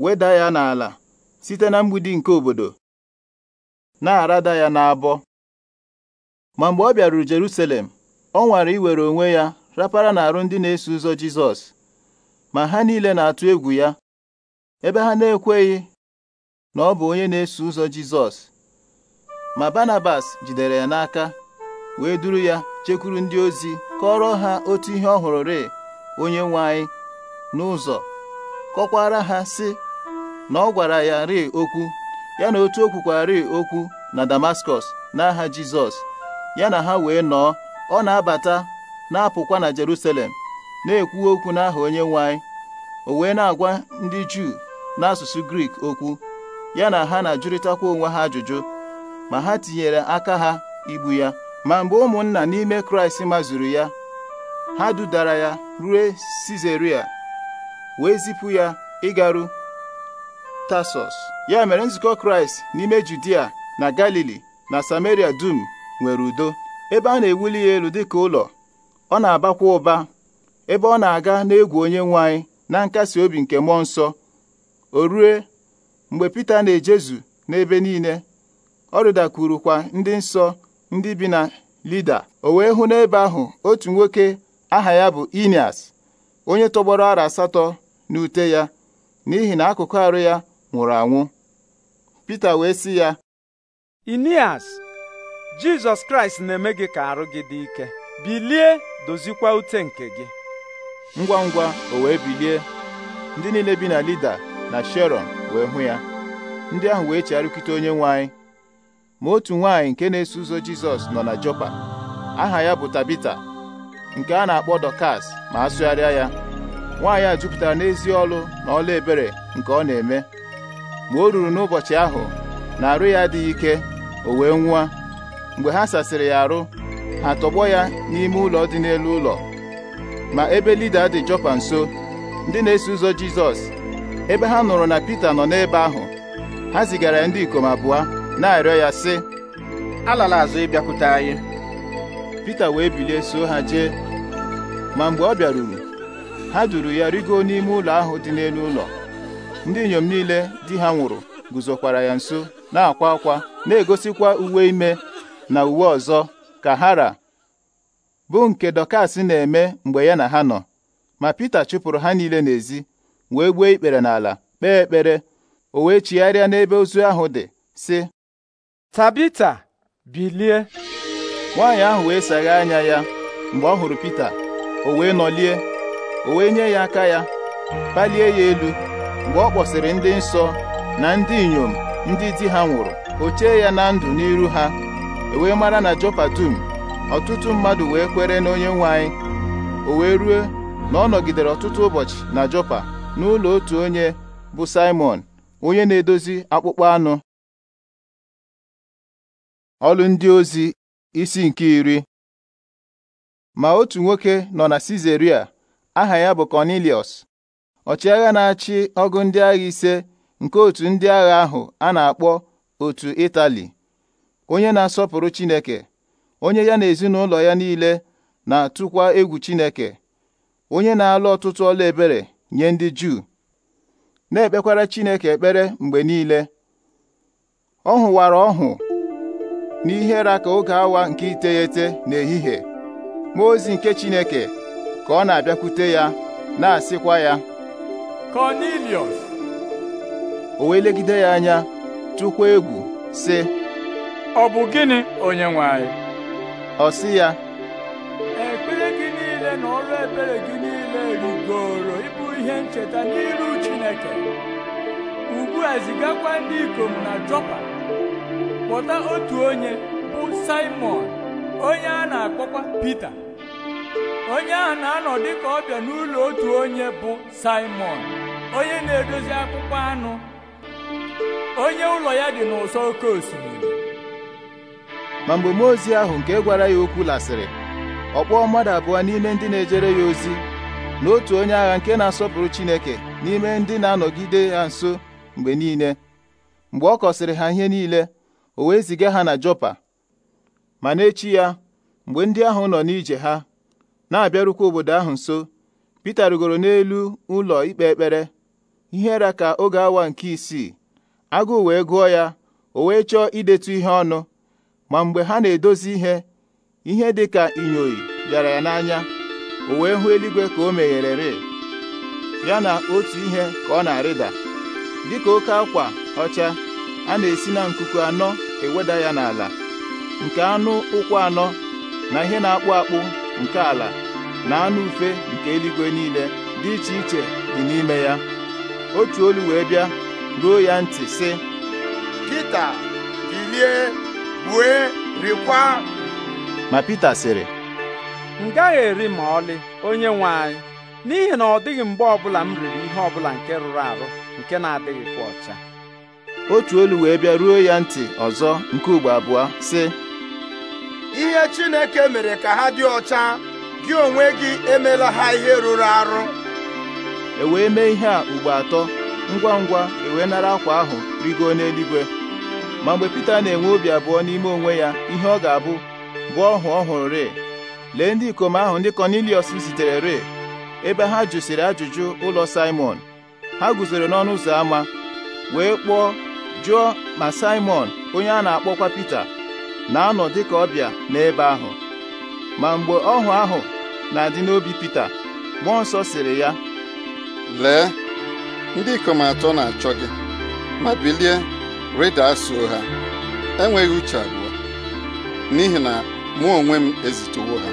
weda ya n'ala site na mgbidi nke obodo na-arada ya n'abọ ma mgbe ọ bịaruru Jerusalem ọ nwara iwere onwe ya rapara n'arụ ndị na-eso ụzọ Jizọs ma ha niile na-atụ egwu ya ebe ha na-ekweghị na ọ bụ onye na-eso ụzọ Jizọs ma Barnabas jidere ya n'aka wee duru ya chekwuru ndị ozi kọrọ ha otu ihe ọ hụrụ onye nwe anyị n'ụzọ kọkwara ha sị na ọ gwara ya ri okwu ya na otu o kwukwari okwu na Damaskọs n'aha Jizọs ya na ha wee nọọ ọ na-abata na-apụkwa na Jerusalem na-ekwu okwu n'aha onye nwanyị o wee na-agwa ndị Juu n'asụsụ Grik okwu ya na ha na-ajụrịtakwa onwe ha ajụjụ ma ha tinyere aka ha igbu ya ma mgbe ụmụnna n'ime Kraịst mazuru ya ha dudara ya rue Sizeria wee zipụ ya ịgaru tasos ya mere nzukọ Kraịst n'ime Judia na Galili na Samaria dum nwere udo ebe a na-ewuli ya elu dịka ụlọ ọ na-abakwa ụba ebe ọ na-aga n'egwu onye nwanyị na nkasi obi nke mmụọ nsọ o rue mgbe Pita na-ejezu n'ebe niile ọ rịdakwurukwa ndị nsọ ndị bi na Lida o wee hụ n'ebe ahụ otu nwoke aha ya bụ Inias onye tọgbọrọ ara asatọ n'ute ya n'ihi na akụkụ arụ ya nwụrụ anwụ Pita wee sị ya Inias Jizọs Kraịst na-eme gị ka arụ gị dị ike bilie dozikwa ute nke gị ngwa ngwa o wee bilie ndị niile bi na Lida na Sharon wee hụ ya ndị ahụ wee chegharịkite onye nwanyị ma otu nwanyị nke na-eso ụzọ Jizọs nọ na Jopa aha ya bụ Tabita nke a na-akpọ Dọkas ma a sụgharịa ya nwaanyị a jupụtara n'ezi ọlụ na ọla ebere nke ọ na-eme ma o ruru n'ụbọchị ahụ na arụ ya adịghị ike o wee nwụọ mgbe ha sasịrị ya arụ ha tọgbọ ya n'ime ụlọ dị n'elu ụlọ ma ebe lida dị Jọpa nso ndị na-eso ụzọ Jizọs ebe ha nụrụ na Pita nọ n'ebe ahụ ha zigara ya ndị ikom abụọ na-arịọ ya sị alala azụ ịbịakwute anyị Pita wee bilie so ha jee ma mgbe ọ bịaruru ha duru ya rigo n'ime ụlọ ahụ dị n'elu ụlọ ndị inyom niile di ha nwụrụ guzokwara ya nso na-akwa akwa na-egosikwa uwe ime na uwe ọzọ ka hara bụ nke Dọkas na-eme mgbe ya na ha nọ ma Pita chụpụrụ ha niile n'ezi wee gbuo ikpere n'ala kpee ekpere o wee chigharịa n'ebe ozu ahụ dị sị Tabita bilie nwaanyị ahụ wee sagha anya ya mgbe ọ hụrụ Pita o wee nọlie o wee nye ya aka ya palie ya elu mgbe ọ kpọsịrị ndị nsọ na ndị inyom ndị di ha nwụrụ o chee ya na ndụ n'iru ha e wee mara na Jopa dum ọtụtụ mmadụ wee kwere na onye nwanyị o wee rue na ọ nọgidere ọtụtụ ụbọchị na Jopa n'ụlọ otu onye bụ Simon onye na-edozi akpụkpọ anụ ọlụ ndị ozi isi nke iri ma otu nwoke nọ na Sizeria aha ya bụ Kọnilius, ọchịagha na-achị ọgụ ndị agha ise nke otu ndị agha ahụ a na-akpọ otu Itali onye na-asọpụrụ Chineke onye ya na ezinụlọ ya niile na-atụkwa egwu Chineke onye na-alụ ọtụtụ ọla ebere nye ndị Juu na-ekpekwara Chineke ekpere mgbe niile ọ hụwara ọhụ n'ihere ka oge awa nke iteghete n'ehihie mmụọ ozi nke Chineke ka ọ na-abịakwute ya na-asịkwa ya Kọniliọs o wee legide ya anya tụkwa egwu sị ọ bụ gịnị onye anyị ọ sị ya ekpere gị niile na ọrụ ebere gị niile rigoro ịbụ ihe ncheta n'iru Chineke ugbu a zigakwa ndị ikom na Jọpa kpọta otu onye bụ Simon onye a na-akpọkwa Pita onye ahụ na-anọ dịka ọbịa n'ụlọ otu onye bụ simon onye na-edozi akpụkpọ anụ onye ụlọ ya dị n'ụsọ oke osimiri ma mgbe mmụọ ozi ahụ nke gwara ya okwu lasịrị ọ kpọọ mmadụ abụọ n'ime ndị na-ejere ya ozi na otu onye agha nke na-asọpụrụ Chineke n'ime ndị na-anọgide ya nso mgbe niile mgbe ọ kọsịrị ha ihe niile o wee ziga ha na jọpa, ma n'echi ya mgbe ndị ahụ nọ n'ije ha na-abịarukwa obodo ahụ nso Pita rigoro n'elu ụlọ ikpe ekpere ihe ra ka oge awa nke isii agụụ wee gụọ ya o wee chọọ idetu ihe ọnụ ma mgbe ha na-edozi ihe ihe dị ka inyoyi bịara ya n'anya o wee hụ eluigwe ka o megherere ya na otu ihe ka ọ na-arịda dịka oke akwa ọcha a na-esi na nkuku anọ eweda ya n'ala nke anụ ụkwụ anọ na ihe na-akpụ akpụ nke ala na anụ ufe nke eluigwe niile dị iche iche dị n'ime ya otu olu wee bịa ruo ya ntị sị Pita bilie gbue rikwa ma Pita sịrị m gaghị eri ma ọlị onye nwe anyị n'ihi na ọ dịghị mgbe ọ bụla m riri ihe ọ bụla nke rụrụ arụ nke na-adịghịkwa ọcha otu olu wee bịa ruo ya ntị ọzọ nke ugbo abụọ sị ihe Chineke mere ka ha dị ọcha gị onwe gị emela ha ihe rụrụ arụ e wee mee ihe a ugbo atọ ngwa ngwa e wee nara akwa ahụ rigo n'eluigwe ma mgbe Pita na-enwe obi abụọ n'ime onwe ya ihe ọ ga-abụ bụ ọhụ ọhụrụ re lee ndị ikom ahụ ndị Kọniliọs zitere re ebe ha jụsiri ajụjụ ụlọ simon ha guzoro n'ọnụ ụzọ ámá wee kpọọ jụọ ma simon onye a na-akpọkwa Pita na-anọ dị dịka ọbịa n'ebe ahụ ma mgbe ọhụ ahụ na-adị n'obi Pita mmụọ nsọ sịrị ya lee ndị ikom atọ na-achọ gị ma bilie rịda asụ ha enweghị uche abụọ n'ihi na mụ onwe m ezitewo ha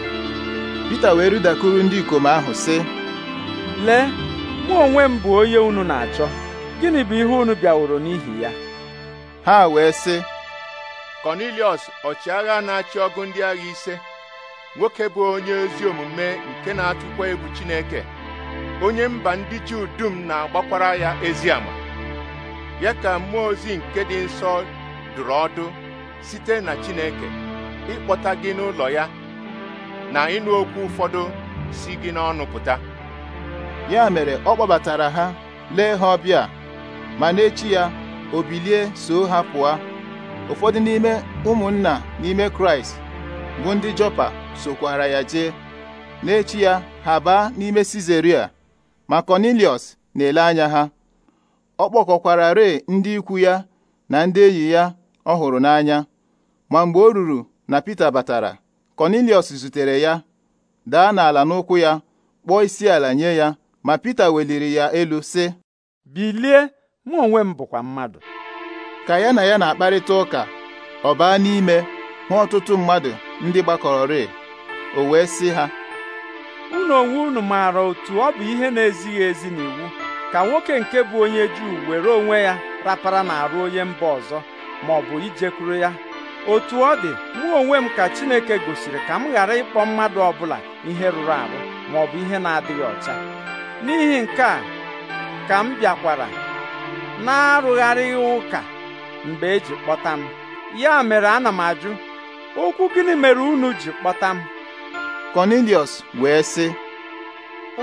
Pita wee rịdakuru ndị ikom ahụ sị lee mụ onwe m bụ onye unu na-achọ gịnị bụ ihe unu bịaworo n'ihi ya ha wee sị Kọniliọs ọchịagha na-achị ọgụ ndị agha ise nwoke bụ onye ezi omume nke na-atụkwa egwu Chineke onye mba ndị Juu dum na-agbakwara ya ezi ama ya ka mmụọ ozi nke dị nsọ dụrụ ọdụ site na Chineke ịkpọta gị n'ụlọ ya na ịnụ okwu ụfọdụ si gị n'ọnụ pụta ya mere ọ kpọbatara ha lee ha ọbịa ma n'echi ya o bilie so ha pụọ ụfọdụ n'ime ụmụnna n'ime kraịst bụ ndị jọpa sokwara ya jee n'echi ya ha baa n'ime sizeria ma kọniliọs na-ele anya ha ọ kpọkọkwara ree ndị ikwu ya na ndị enyi ya ọ hụrụ n'anya ma mgbe o ruru na pita batara kọniliọs zutere ya daa n'ala n'ụkwụ ya kpọọ isi ala nye ya ma pita weliri ya elu sị bilie mụ onwe m bụkwa mmadụ ka ya na ya na-akparịta ụka ọ baa n'ime hụ ọtụtụ mmadụ ndị gbakọrọrị o wee sị ha unu onwe unu maara otu ọ bụ ihe na-ezighị ezi n'iwu ka nwoke nke bụ onye Juu were onwe ya rapara na-arụ onye mba ọzọ ma ọ bụ ijekwuru ya otu ọ dị mụ onwe m ka Chineke gosiri ka m ghara ịkpọ mmadụ ọbụla ihe rụrụ arụ ma ọ bụ ihe na-adịghị ọcha n'ihi nke a ka m bịakwara na-arụgharịghị ụka mgbe eji kpọta m ya mere ana m ajụ okwu gịnị mere unu ji kpọta m Kọniliọs wee sị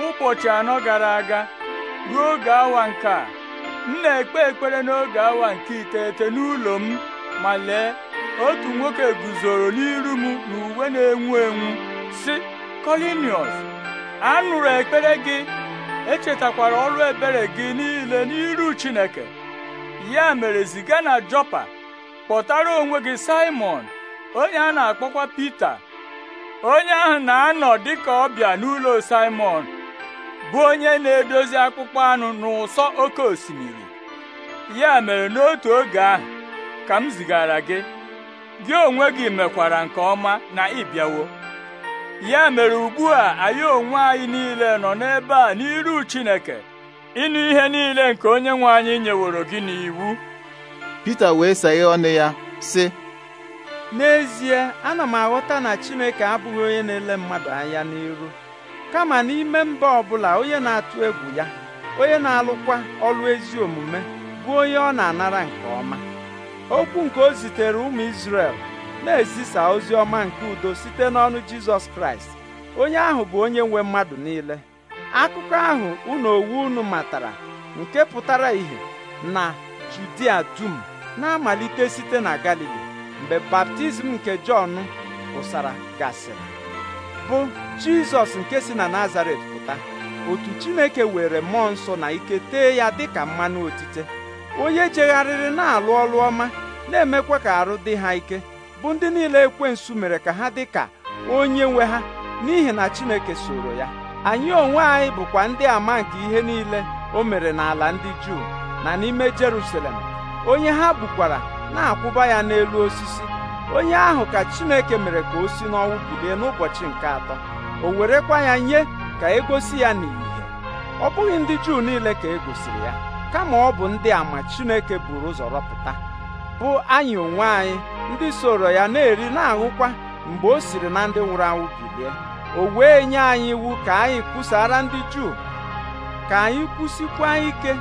ụbọchị anọ gara aga ruo oge awa nke a m na-ekpe ekpere n'oge awa nke iteghete n'ụlọ m ma lee otu nwoke guzoro n'iru m n'uwe na-enwu enwu sị a anụrụ ekpere gị echetakwara ọrụ ebere gị niile n'iru Chineke ya mere ziga na jọpa kpọtara onwe gị Simon onye a na-akpọkwa Pita onye ahụ na-anọ dịka ọbịa n'ụlọ Simon bụ onye na-edozi akpụkpọ anụ n'ụsọ oke osimiri ya mere n'otu oge ahụ ka m zigara gị gị onwe gị mekwara nke ọma na ịbịawo ya mere ugbu a anyị onwe anyị niile nọ n'ebe a n'iru Chineke ịnụ ihe niile nke onye nwe anyị nyeworo gị n'iwu Pita wee saghe ọnụ ya sị n'ezie ana m aghọta na Chineke abụghị onye na-ele mmadụ anya n'iru kama n'ime mba ọbụla onye na-atụ egwu ya onye na-alụkwa ọrụ ezi omume bụ onye ọ na-anara nke ọma okwu nke o zitere ụmụ Izrel na-ezisa ozi ọma nke udo site n'ọnụ Jizọs Kraịst onye ahụ bụ onye nwe mmadụ niile akụkọ ahụ unu owu unu matara nke pụtara ìhè na Judia dum na-amalite site na Galili mgbe baptizim nke Jọn pụsara gasịrị bụ Jizọs nke si na Nazaret pụta otu Chineke were mmụọ nsọ na ike tee ya dịka mmanụ otite onye jegharịrị na-alụ ọlụ ọma na-emekwa ka arụ dị ha ike bụ ndị niile ekwensu mere ka ha dị ka onye nwe ha n'ihi na Chineke soro ya anyị onwe anyị bụkwa ndị ama nke ihe niile o mere n'ala ndị Juu na n'ime Jerusalem onye ha bukwara na-akwụba ya n'elu osisi onye ahụ ka Chineke mere ka o si n'ọnwụ bilie n'ụbọchị nke atọ o werekwa ya nye ka egosi ya n'ìhè ọ bụghị ndị Juu niile ka e gosiri ya kama ọ bụ ndị ama Chineke buru ụzọ rọpụta bụ anyị onwe anyị ndị soro ya na-eri na ahụkwa mgbe o siri na ndị nwụrụ anwụ bilie o wee nye anyị iwu ka anyị kwusara ndị Juu ka anyị kwụsịkwa ike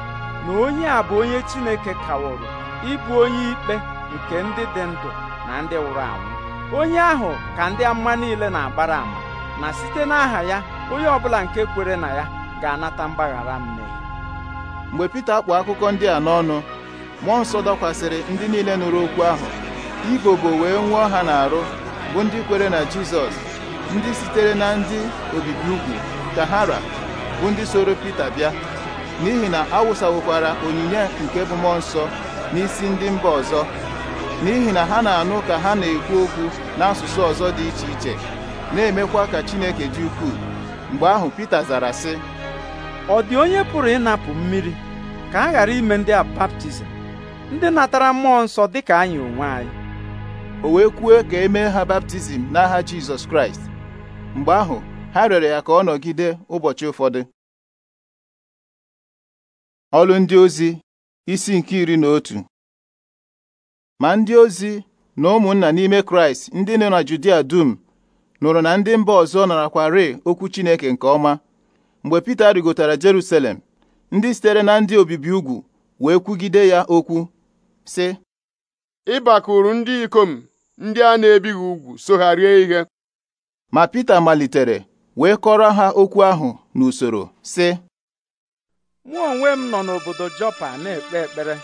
na onye a bụ onye Chineke kawụrụ ịbụ onye ikpe nke ndị dị ndụ na ndị nwụrụ anwụ onye ahụ ka ndị amụma niile na-agbara ama na site n'aha ya onye ọbụla nke kwere na ya ga-anata mgbaghara mmehie mgbe Pita kpụ akụkọ ndị a n'ọnụ mmụọ nsọ dọkwasịrị ndị niile nụrụ okwu ahụ ibobo wee nwụọ ha n'arụ bụ ndị kwere na Jizọs ndị sitere na ndị obibi ugwu tahara bụ ndị soro Pita bịa n'ihi na awụsawokwara onyinye nke bụ mmụọ nsọ n'isi ndị mba ọzọ n'ihi na ha na-anụ ka ha na-ekwu okwu n'asụsụ ọzọ dị iche iche na-emekwa ka Chineke dị ukwuu mgbe ahụ Pita zara sị ọ dị onye pụrụ ịnapụ mmiri ka a ghara ime ndị a baptizim ndị natara mmụọ nsọ dị ka anyị onwe anyị o wee kwuo ka e mee ha baptizim n'aha Jizọs Kraịst mgbe ahụ ha rịọrọ ya ka ọ nọgide ụbọchị ụfọdụ ọlụ ndị ozi isi nke iri na otu ma ndị ozi na ụmụnna n'ime kraịst ndị nọ na judia dum nụrụ na ndị mba ọzọ narakwarị okwu chineke nke ọma mgbe pita rịgotara jerusalem ndị sitere na ndị obibi ugwu wee kwugide ya okwu sị ịbakụrụ ndị ikom ndị a na-ebighị ugwu so ha rie ihe ma Pita malitere wee kọrọ ha okwu ahụ n'usoro sị mụ onwe m nọ n'obodo Jọpa na-ekpe ekpere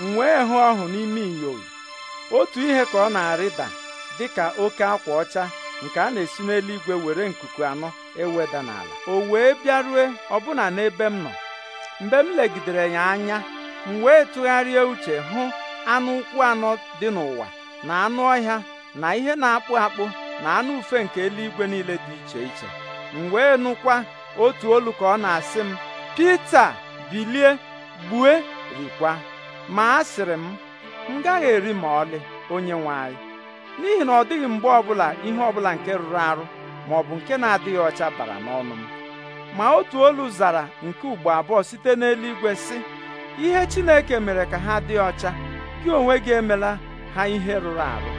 m wee hụ ọhụ n'ime inyo otu ihe ka ọ na-arịda dịka oke akwa ọcha nke a na-esi n'eluigwe were nkuku anọ eweda n'ala o wee bịaruo ọbụna n'ebe m nọ mgbe m legidere ya anya m wee tụgharịa uche hụ anụ ụkwụ anọ dị n'ụwa na anụ ọhịa na ihe na-akpụ akpụ na anụ ufe nke eluigwe niile dị iche iche m wee nụkwa otu olu ka ọ na-asị m Pita bilie gbue rikwa ma sịrị m m gaghị eri ma ọlị onye nwe anyị n'ihi na ọ dịghị mgbe ọbụla ihe ọbụla nke rụrụ arụ ma ọ bụ nke na-adịghị ọcha bara n'ọnụ m ma otu olu zara nke ugbo abụọ site n'eluigwe sị ihe Chineke mere ka ha dị ọcha gị onwe gị emela ha ihe rụrụ arụ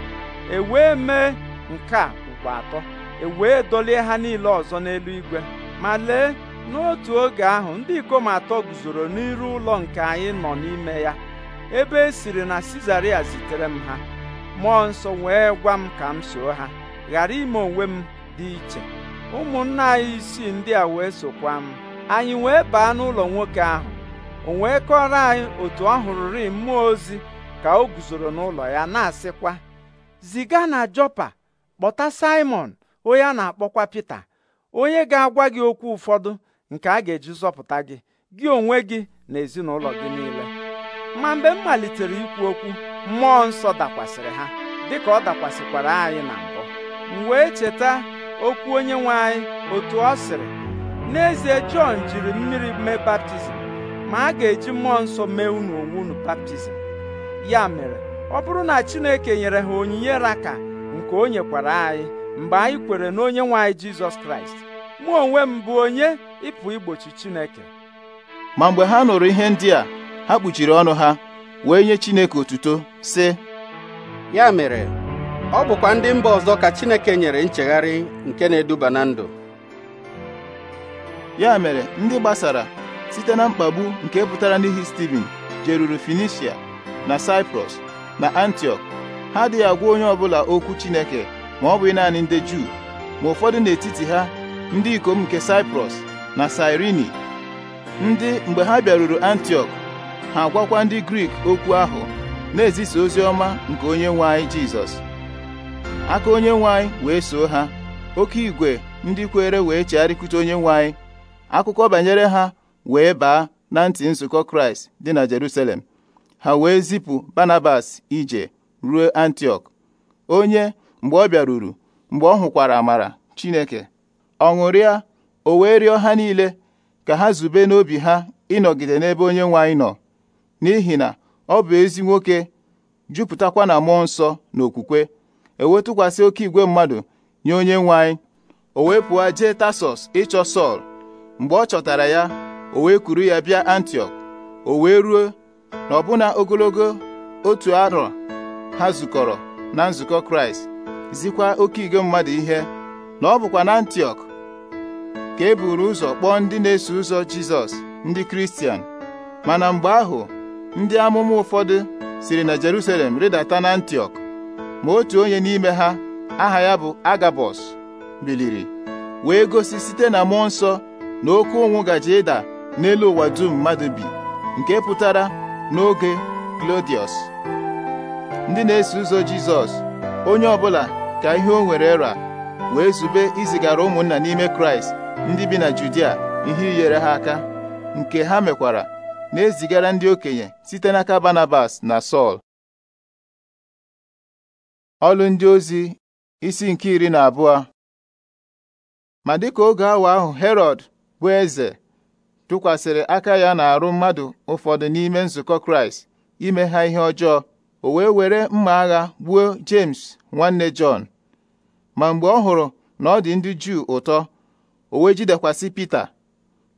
e wee mee nke a bụkwa atọ e wee dolie ha niile ọzọ n'elu igwe ma lee n'otu oge ahụ ndị ikom atọ guzoro n'iru ụlọ nke anyị nọ n'ime ya ebe e siri na Sizaria zitere m ha mmụọ nsọ wee gwa m ka m soo ha ghara ime onwe m dị iche ụmụnna anyị isii ndị a wee sokwa m anyị wee baa n'ụlọ nwoke ahụ o wee kọrọ anyị otu ọ hụrụrị mmụọ ozi ka o guzoro n'ụlọ ya na-asịkwa ziga na Jọpa kpọta Saimọn onye a na-akpọkwa Pita onye ga-agwa gị okwu ụfọdụ nke a ga-eji zọpụta gị gị onwe gị na ezinụlọ gị niile ma mgbe m malitere ikwu okwu mmụọ nsọ dakwasịrị ha dịka ọ dakwasịkwara anyị na mbụ m wee cheta okwu onye nwe anyị otu ọ sịrị n'ezie Jọn jiri mmiri mee baptizim ma a ga-eji mmụọ nsọ mee unu onwe unu baptizim ya mere ọ bụrụ na Chineke nyere ha onyinye raka nke o nyekwara anyị mgbe anyị kwere na onye nwe anyị jizọs kraịst mụ onwe m bụ onye ịpụ igbochi chineke ma mgbe ha nụrụ ihe ndị a ha kpuchiri ọnụ ha wee nye chineke otuto sị ya mere ọ bụkwa ndị mba ọzọ ka chineke nyere nchegharị nke na-eduba na ndụ ya mere ndị gbasara site na mkpagbu nke pụtara n'ihi Steven jeruru Finisia na Cyprus na Antiọk ha adịghị agwa onye ọbụla okwu Chineke ma ọ bụghị naanị ndị Juu ma ụfọdụ n'etiti ha ndị ikom nke Saịprọs na sirini ndị mgbe ha bịaruru antiok ha agwakwa ndị Grik okwu ahụ na-ezisa ozi ọma nke onye nwe anyị Jizọs aka onye nwe anyị wee soo ha oke igwe ndị kwere wee chegharịkute onye nwe anyị akụkọ banyere ha wee baa na ntị nzukọ Kraịst dị na Jerusalem ha wee zipụ Banabas ije ruo antiok onye mgbe ọ bịaruru mgbe ọ hụkwara amara chineke ọṅụrịa ṅụrịa o wee rịọ ha niile ka ha zube n'obi ha ịnọgide n'ebe onye nwe anyị nọ n'ihi na ọ bụ ezi nwoke jupụtakwa na mmụọ nsọ na okwukwe ewetụkwasị oke igwe mmadụ nye onye nwe anyị o wee pụọ jee tasọs ịchọ sọl mgbe ọ chọtara ya o wee kuru ya bịa antiok o wee ruo na ọbụna ogologo otu arọ ha zukọrọ na nzukọ kraịst zikwa oke igwe mmadụ ihe na ọ bụkwa na antiok ka e buru ụzọ kpọọ ndị na-eso ụzọ jizọs ndị kristian mana mgbe ahụ ndị amụma ụfọdụ siri na jerusalem rịdata na antiọk ma otu onye n'ime ha aha ya bụ agabọs biliri wee gosi site na mmụọ nsọ na oke ụnwụ gaje ịda n'elu ụwa dum mmadụ bi nke pụtara n'oge klodius ndị na-eso ụzọ Jizọs onye ọbụla ka ihe o nwere ra wee zube izigara ụmụnna n'ime Kraịst ndị bi na Judia ihe inyere ha aka nke ha mekwara na-ezigara ndị okenye site n'aka Barnabas na Sọl ọlụ ndị ozi isi nke iri na abụọ ma dịka oge awa ahụ Herọd bụ eze tụkwasịrị aka ya na-arụ mmadụ ụfọdụ n'ime nzukọ Kraịst ime ha ihe ọjọọ o wee were mma agha gbuo James nwanne Jọn ma mgbe ọ hụrụ na ọ dị ndị Juu ụtọ o wee jidekwasị Pita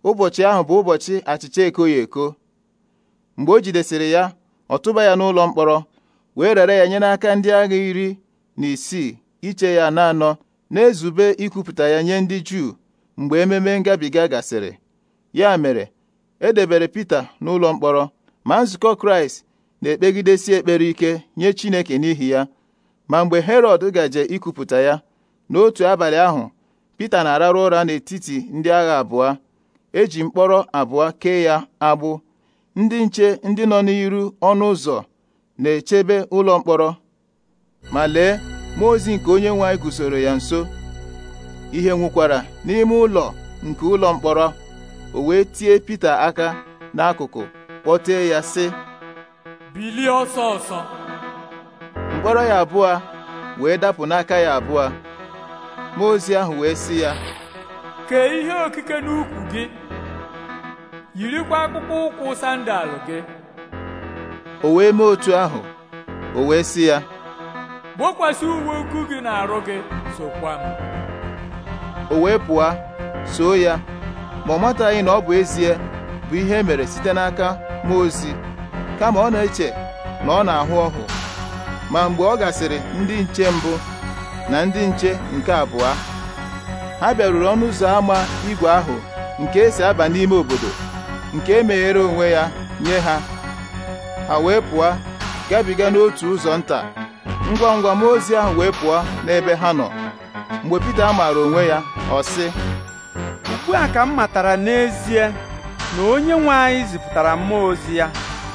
ụbọchị ahụ bụ ụbọchị achịcha ekoghị eko mgbe o jidesịrị ya ọ tụba ya n'ụlọ mkpọrọ wee rere ya nye n'aka ndị agha iri na isii iche ya na-anọ na-ezube ikwupụta ya nye ndị Juu mgbe ememe ngabiga gasịrị ya mere edebere Pita n'ụlọ mkpọrọ ma nzukọ Kraịst na-ekpegidesi ekpere ike nye Chineke n'ihi ya ma mgbe Herọd gaje ikupụta ya n'otu abalị ahụ Pita na-ararụ ụra n'etiti ndị agha abụọ eji mkpọrọ abụọ kee ya agbụ ndị nche ndị nọ n'iru ọnụ ụzọ na-echebe ụlọ mkpọrọ ma lee mmụọ ozi nke onye nwe anyị guzoro ya nso ihe nwukwara n'ime ụlọ nke ụlọ mkpọrọ o wee tie Pita aka n'akụkụ kpọtee ya sị bilie ọsọ ọsọ mkpọrọ ya abụọ wee dapụ n'aka ya abụọ mmụọ ozi ahụ wee sị ya kee ihe okike n'ukwu gị yirikwa akpụkpọ ụkwụ sandalụ gị o wee mee otu ahụ o wee si ya gbokwasị uwe ukwu gị na-arụ gị sokwa m o wee pụọ soo ya ma ọ mataghị na ọ bụ ezie bụ ihe e mere site n'aka mmụọ ozi kama ọ na-eche na ọ na-ahụ ọhụ ma mgbe ọ gasịrị ndị nche mbụ na ndị nche nke abụọ ha bịaruru ọnụ ụzọ ámá igwe ahụ nke esi aba n'ime obodo nke emeghere onwe ya nye ha ha wee pụọ gabiga n'otu ụzọ nta ngwa ngwa m ozi ahụ wee pụọ n'ebe ha nọ mgbe Pita mara onwe ya ọ sị ugbu a ka m matara n'ezie na onye nwe anyị zipụtara mmụọ ozi ya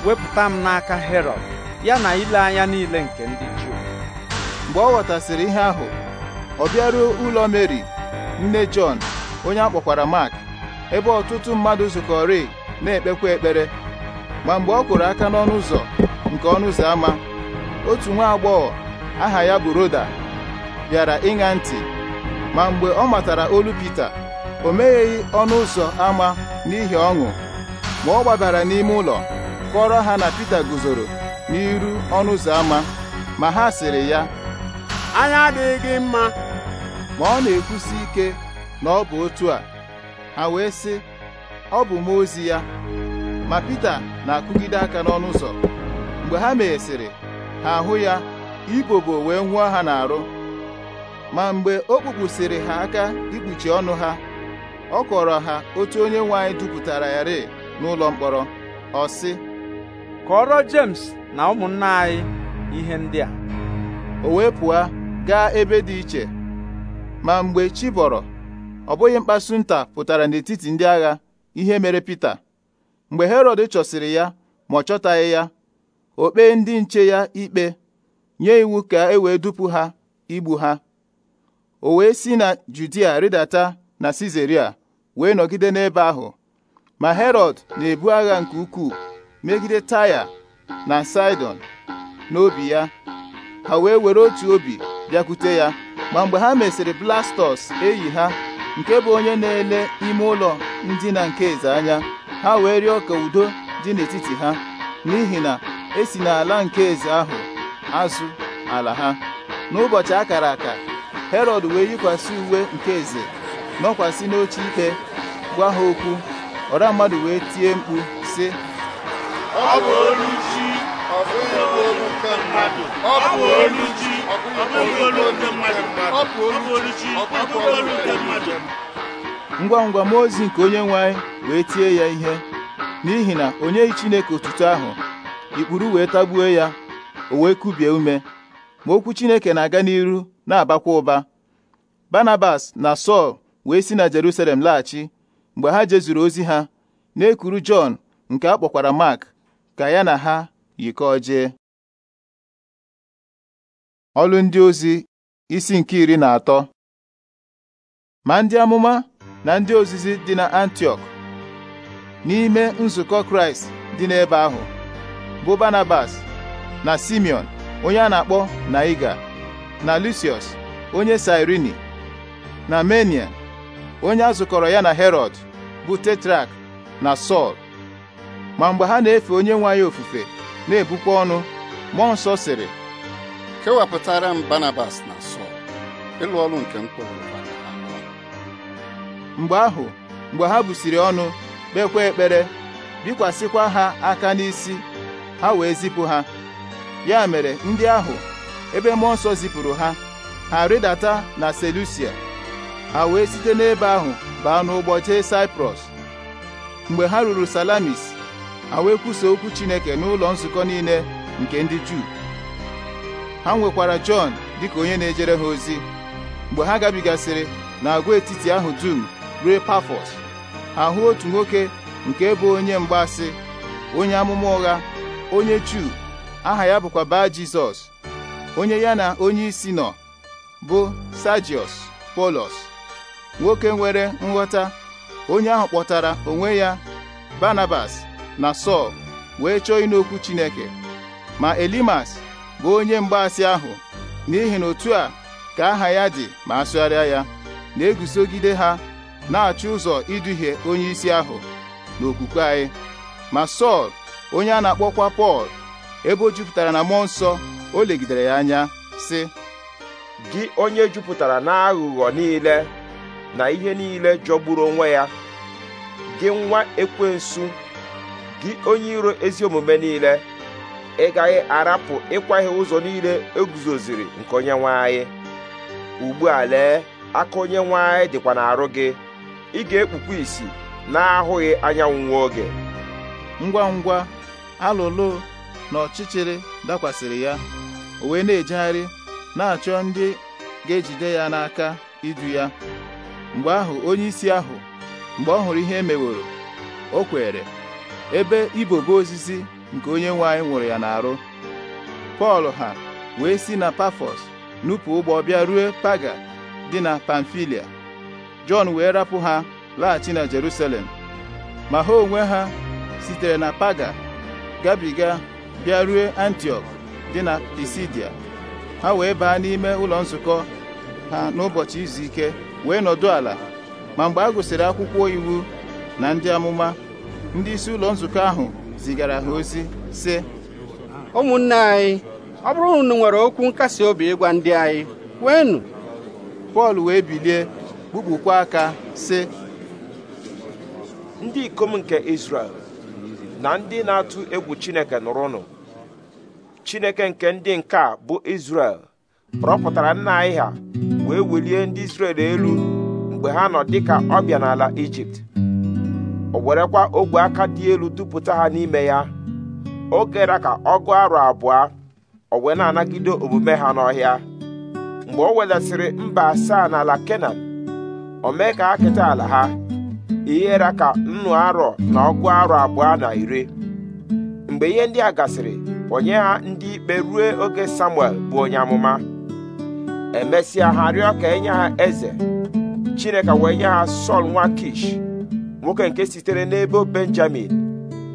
wepụta m n'aka herod ya na ile anya niile nke ndị Juu mgbe ọ ghọtasịrị ihe ahụ ọ bịaruo ụlọ Meri nne Jọn onye akpọkwara Mak ebe ọtụtụ mmadụ zukọrị na-ekpekwa ekpere ma mgbe ọ kwụrụ aka n'ọnụ ụzọ nke ọnụ ụzọ ámá otu nwa agbọghọ aha ya bụ Roda bịara ịṅa ntị ma mgbe ọ matara olu Pita o megheghị ọnụ ụzọ ámá n'ihi ọṅụ ma ọ gbabara n'ime ụlọ kọrọ ha na Pita guzoro n'iru ọnụ ụzọ ámá ma ha sịrị ya anya adịghị gị mma ma ọ na-ekwusi ike na ọ bụ otu a ha wee sị ọ bụ m ozi ya ma Pita na-akụgide aka n'ọnụ ụzọ mgbe ha meghesịrị ha ahụ ya ibobo wee nwụọ ha n'arụ ma mgbe o kpupụsịrị ha aka ikpuchi ọnụ ha ọ kọrọ ha otu onye nwe anyị dupụtara ya rịị n'ụlọ mkpọrọ Kọọrọ James na ụmụnna anyị ihe ndị a o wee pụọ gaa ebe dị iche ma mgbe chi bọrọ ọ bụghị mkpasu nta pụtara n'etiti ndị agha ihe mere Pita mgbe herod chọsịrị ya ma ọ chọtaghị ya o kpee ndị nche ya ikpe nye iwu ka e wee dupu ha igbu ha o wee si na Judia rịdata na sizeria wee nọgide n'ebe ahụ ma Herọd na-ebu agha nke ukwuu megide Taya na Sidon n'obi ya ha wee were otu obi bịakwute ya ma mgbe ha mesịrị Blastọs eyi ha nke bụ onye na-ele ime ụlọ ndịna nke eze anya ha wee rịọ ka udo dị n'etiti ha n'ihi na esi n'ala nke eze ahụ azụ ala ha n'ụbọchị akara aka Herọd wee yikwasị uwe nke eze nọkwasị n'oche ike gwa ha okwu ọra mmadụ wee tie mkpu sị ọ bụ olu chi ọ bụghị olu nke mmadụ bụ olu chi ngwa ngwa mmụọ ozi nke onye nwe anyị wee tie ya ihe n'ihi na onye Chineke otuto ahụ ikpuru wee tagbuo ya o wee kubie ume ma okwu Chineke na-aga n'iru na-abakwa ụba Barnabas na Sọl wee si na Jerusalem laghachi mgbe ha jezuru ozi ha na-ekuru Jọn nke a kpọkwara Mark ka ya na ha yikọọ jee ọlụ ndị ozi isi nke iri na atọ ma ndị amụma na ndị ozizi dị na antiok n'ime nzukọ Kraịst dị n'ebe ahụ bụ Barnabas na Simeon onye a na-akpọ Naiga na Lucius onye Sirini na Menia onye a zụkọrọ ya na Herod bụ Tetrak na Sọl ma mgbe ha na-efe onye nwe anyị ofufe na-ebukwa ọnụ mmụọ nsọ sịrị kewapụtara m Banabas na Sọl ịlụ ọrụ nke m mgbe ahụ mgbe ha busiri ọnụ kpekwa ekpere bikwasịkwa ha aka n'isi ha wee zipụ ha ya mere ndị ahụ ebe mmụọ nsọ zipụrụ ha ha rịdata na Selusia ha wee site n'ebe ahụ baa n'ụgbọ jee Saịprọs mgbe ha ruru Salamis ha wee kwusa okwu Chineke n'ụlọ nzukọ niile nke ndị Juu ha nwekwara Jọn dịka onye na-ejere ha ozi mgbe ha gabigasịrị n'agwaetiti ahụ dum ruo Pafọs ha hụ otu nwoke nke bụ onye mgbaasị onye amụma ụgha onye Juu aha ya bụkwa baa Jizọs onye ya na onye isi nọ bụ Sajiọs Polos nwoke nwere nghọta onye ahụ kpọtara onwe ya Banabas na Sọl wee chọọ ịnụ Chineke ma Elimas bụ onye mgbaasị ahụ n'ihi na otu a ka aha ya dị ma asụgharịa ya na-eguzogide ha na-achọ ụzọ iduhie onye isi ahụ n'okwukwe anyị ma Sọl onye a na-akpọkwa Pọl ebe o jupụtara na mmụọ nsọ o legidere ya anya sị gị onye jupụtara n'aghụghọ niile na ihe niile jọgburu onwe ya gị nwa ekwensu gị onye iro ezi omume niile ị gaghị arapụ ịkwaghe ụzọ niile eguzoziri nke onye nwanyị anyị ugbu a lee aka onye nwe anyị dịkwa n'arụ gị ị ga-ekpukwa isi na-ahụghị anyanwụ nwa oge ngwa ngwa alụlụ na ọchịchịrị dakwasịrị ya o wee na-ejegharị na-achọ ndị ga-ejide ya n'aka idu ya mgbe ahụ onye isi ahụ mgbe ọ hụrụ ihe e meworo o kwere ebe ibobo osisi nke onye nwe anyị nwụrụ ya n'arụ pọl ha wee si na pafọs nupụ ụgbọ bịa rue paga dị na pamfilia jọn wee rapụ ha laghachi na jerusalem ma ha onwe ha sitere na paga gabiga bịa rue dị na pisidia ha wee baa n'ime ụlọ nzukọ ha n'ụbọchị izu ike wee nọdụ ala ma mgbe a gụsịrị akwụkwọ iwu na ndị amụma ndị isi ụlọ nzukọ ahụ zigara ha ozi sị ụmụnne anyị ọ bụrụ unu nwere okwu nkasi obi ịgwa ndị anyị kwenu Pọl wee bilie kpukpukwa aka sị ndị ikom nke Izrel na ndị na-atụ egwu Chineke nụrụnụ Chineke nke ndị nke a bụ Izrel rọpụtara nna anyị ha wee welie ndị Izrel elu mgbe ha nọ dịka ọbịa n'ala Ijipt o werekwa ogwe aka dị elu dupụta ha n'ime ya Oge kere ka ọ gụọ arọ abụọ o wee na-anagide omume ha n'ọhịa mgbe o wedasịrị mba asaa n'ala kenan o mee ka akịta keta ala ha ihere ka nnu arọ na ọgụ arọ abụọ na iri mgbe ihe ndị a gasịrị onye ha ndị ikpe rue oge samuel bụ onye amụma emesịa ha rịọ ka enye ha eze chineke wee nye ha sọl nwa kish nwoke nke sitere n'ebo benjamin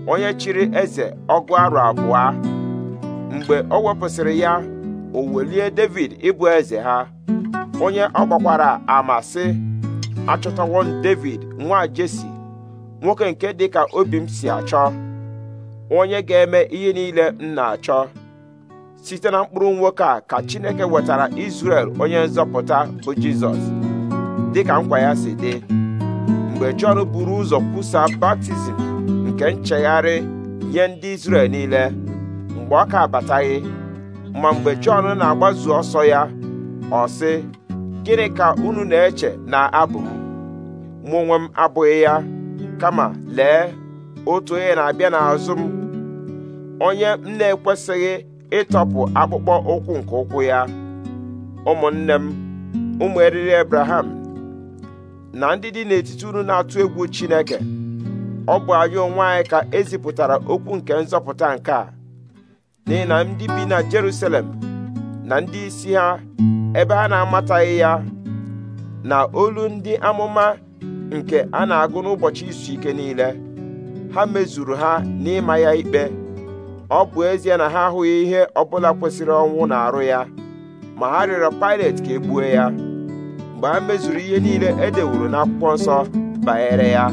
onye chịrị eze ọgụ arụ abụọ mgbe ọ wepụsịrị ya o welie david ịbụ eze ha onye ọgbakwara gbakwara ama sị achọtawo m david nwa jesi nwoke nke dịka obi m si achọ onye ga-eme ihe niile m na-achọ site na mkpụrụ nwoke a ka chineke wetara israel onye nzọpụta bụ jizọs dịka nkwa ya si dị mgbe Jọn buru ụzọ kwusaa baptizim nke nchegharị nye ndị Izrel niile mgbe ọ ka abataghị ma mgbe Jọn na-agbazu ọsọ ya ọ sị gịnị ka unu na-eche na abụ m mụ onwe m abụghị ya kama lee otu onye na-abịa n'azụ m onye m na-ekwesịghị ịtọpụ akpụkpọ ụkwụ nke ụkwụ ya ụmụnne m ụmụ eriri Abraham na ndị dị n'etiti unu na-atụ egwu Chineke ọ bụ anyị onwe anyị ka ezipụtara okwu nke nzọpụta nke a n'ihi na ndị bi na Jerusalem na ndị isi ha ebe ha na-amataghị ya na olu ndị amụma nke a na-agụ n'ụbọchị izu ike niile ha mezuru ha n'ịma ya ikpe ọ bụ ezie na ha ahụghị ihe ọbụla kwesịrị ọnwụ na arụ ya ma ha rịọrọ Pilet ka e ya mgbe a mezuru ihe niile e dewuru n'akwụkwọ nsọ banyere ya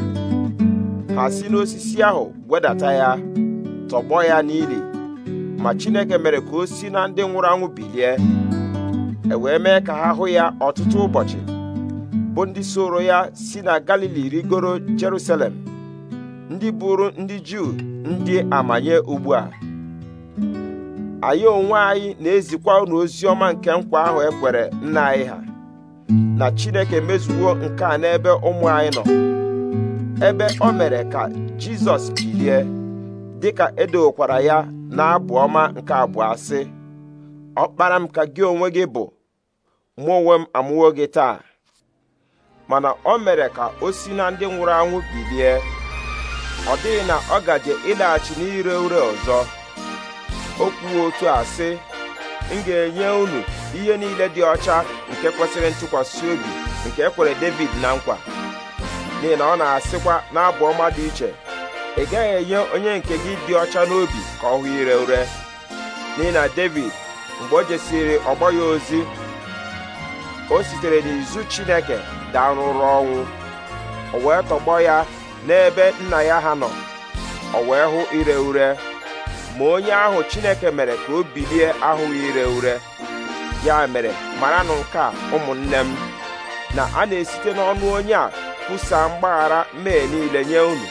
ha si n'osisi ahụ wedata ya tọgbọ ya n'ili ma Chineke mere ka o si na ndị nwụrụ anwụ bilie e wee mee ka ha hụ ya ọtụtụ ụbọchị bụ ndị soro ya si na Galili rigoro Jerusalem ndị bụrụ ndị Juu ndị amanye ugbu a anyị onwe anyị na-ezikwa unu ozi ọma nke nkwa ahụ ekwere nna anyị ha na chineke mezuwo nke a n'ebe ụmụ anyị nọ ebe o mere ka jizọs bilie dịka edowokwara ya n'abụ ọma nke abụọ sị okpara m ka gị onwe gị bụ mụ onwe m amụwo gị taa mana o mere ka o si na ndị nwụrụ anwụ bilie ọ dịghị na ọ gaje ịlaghachi n'ire ure ọzọ o otu a sị m ga-enye unu ihe niile dị ọcha nke kwesịrị ntụkwasị obi nke ekwere David na nkwa n'ihi na ọ na-asịkwa n'abụ ọma dị iche ị gaghị enye onye nke gị dị ọcha n'obi ka ọ hụ ire ure n'ihi na David mgbe o jesiri ọgbọ ya ozi o sitere n'izu Chineke daa ọnwụ o wee tọgbọ ya n'ebe nna ya ha nọ o wee hụ ire ure ma onye ahụ chineke mere ka o bilie ahụghị ire ure ya mere maranụ nke a ụmụnne m na a na-esite n'ọnụ onye a kwusaa mgbaghara Mee niile nye unu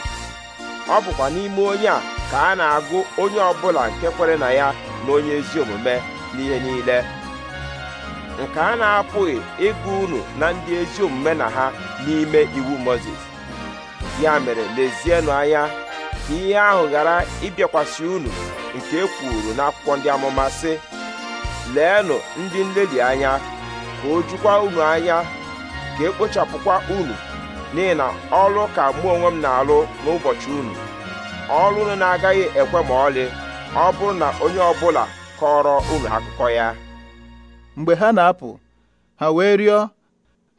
ọ bụkwa n'ime onye a ka a na-agụ onye ọbụla nke kwere na ya na onye ezi omume n'ihe niile nke a na-apụghị ịgụ unu na ndị ezi omume na ha n'ime iwu mozis ya mere lezienụ anya ihe ahụ ghara ịbịakwasị unu nke e kwuru n'akwụkwọ ndị amụma sị leenụ ndị nlelị anya ka o jukwa unu anya ka ekpochapụkwa unu n'ihi na ọlụ ka mụ onwe m na-alụ n'ụbọchị unu ọlụ unu na-agaghị ekwe ma ọlị ọ bụrụ na onye ọbụla kọrọ unu akụkọ ya mgbe ha na-apụ ha wee rịọ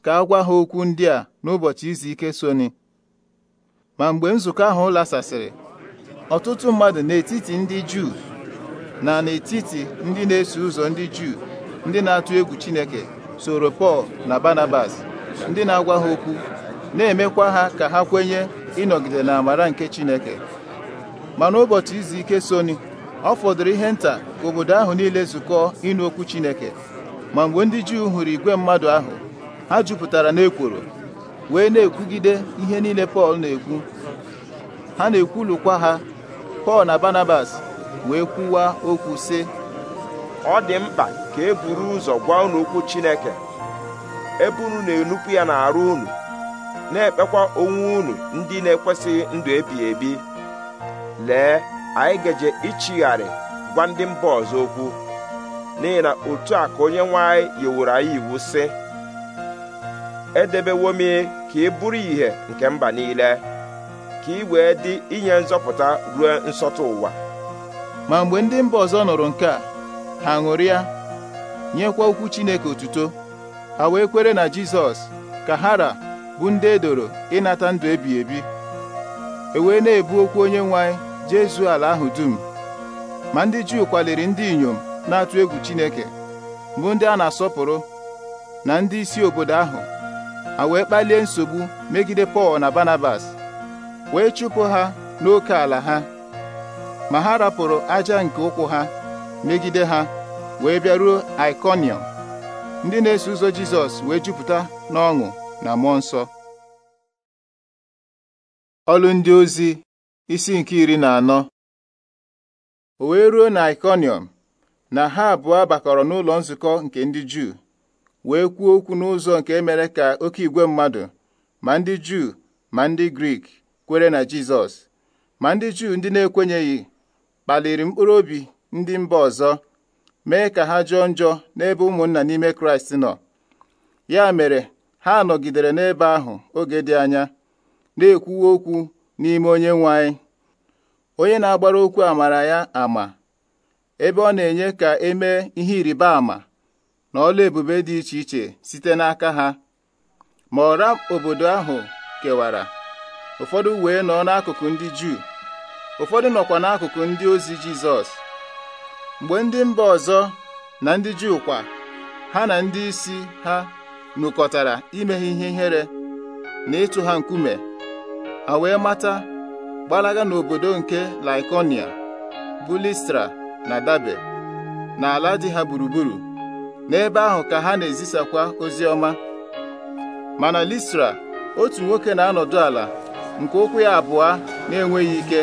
ka a gwa ha okwu ndị a n'ụbọchị izu ike soni ma mgbe nzukọ ahụ lasasịrị ọtụtụ mmadụ n'etiti ndị Juu na n'etiti ndị na-eso ụzọ ndị Juu ndị na-atụ egwu Chineke soro Pọl na Barnabas ndị na-agwa ha okwu na-emekwa ha ka ha kwenye ịnọgide na amara nke Chineke ma n'ụbọchị izu ike soni ọ fọdụrụ ihe nta ka obodo ahụ niile zukọọ ịnụ okwu Chineke ma mgbe ndị Juu hụrụ igwe mmadụ ahụ ha jupụtara n'ekworo wee na-ekwugide ihe niile Pọl na-ekwu ha na-ekwulukwa ha Pọl na Barnabas wee kwuwa okwu sị ọ dị mkpa ka e buru ụzọ gwa unu okwu Chineke ebe unu na-enupụ ya n'arụ unu na-ekpekwa onwe unu ndị na-ekwesịghị ndụ ebighị ebi lee anyị gaje ichigharị gwa ndị mba ọzọ okwu n'ihi na otu a ka onye nwe anyị yiwuru anyị iwu sị edebewo m ka ị bụrụ ìhè nke mba niile ka ị wee dị inye nzọpụta ruo nsọtụ ụwa ma mgbe ndị mba ọzọ nụrụ nke a ha ṅụrịa nyekwa okwu Chineke otuto ha wee kwere na Jizọs ka hara bụ ndị edoro ịnata ndụ ebi ebi e wee na-ebu okwu onye nwe anyị jezuo ala ahụ dum ma ndị Juu kwaliri ndị inyom na-atụ egwu Chineke bụ ndị a na-asọpụrụ na ndị isi obodo ahụ A wee kpalie nsogbu megide Pọl na Barnabas wee chụpụ ha n'oke ala ha ma ha rapụrụ aja nke ụkwụ ha megide ha wee bịaruo Iconium ndị na-eso ụzọ Jizọs wee jupụta n'ọṅụ na mmụọ nsọ ọlụ ndị ozi isi nke iri na anọ o wee ruo na Iconium na ha abụọ bakọrọ n'ụlọ nzukọ nke ndị Juu wee kwuo okwu n'ụzọ nke e mere ka oke igwe mmadụ ma ndị Juu ma ndị Grik kwere na Jizọs ma ndị Juu ndị na-ekwenyeghị kpaliri mkpụrụ obi ndị mba ọzọ mee ka ha jọọ njọ n'ebe ụmụnna n'ime Kraịst nọ ya mere ha nọgidere n'ebe ahụ oge dị anya na-ekwuwe okwu n'ime onye nwe anyị onye na-agbara okwu amara ya ama ebe ọ na-enye ka emee ihe ịrịba ama na ọla ebube dị iche iche site n'aka ha ma ọra obodo ahụ kewara ụfọdụ wee nọ n'akụkụ ndị Juu ụfọdụ nọkwa n'akụkụ ndị ozi Jizọs mgbe ndị mba ọzọ na ndị Juu kwa ha na ndị isi ha nụkọtara ime ihe ihere na ịtụ ha nkume ha wee mata gbalaga n'obodo nke Laikonia bulistra na Dabe ala dị ha gburugburu n'ebe ahụ ka ha na-ezisakwa ozi ọma mana Listra otu nwoke na-anọdụ ala nke ụkwụ ya abụọ na-enweghị ike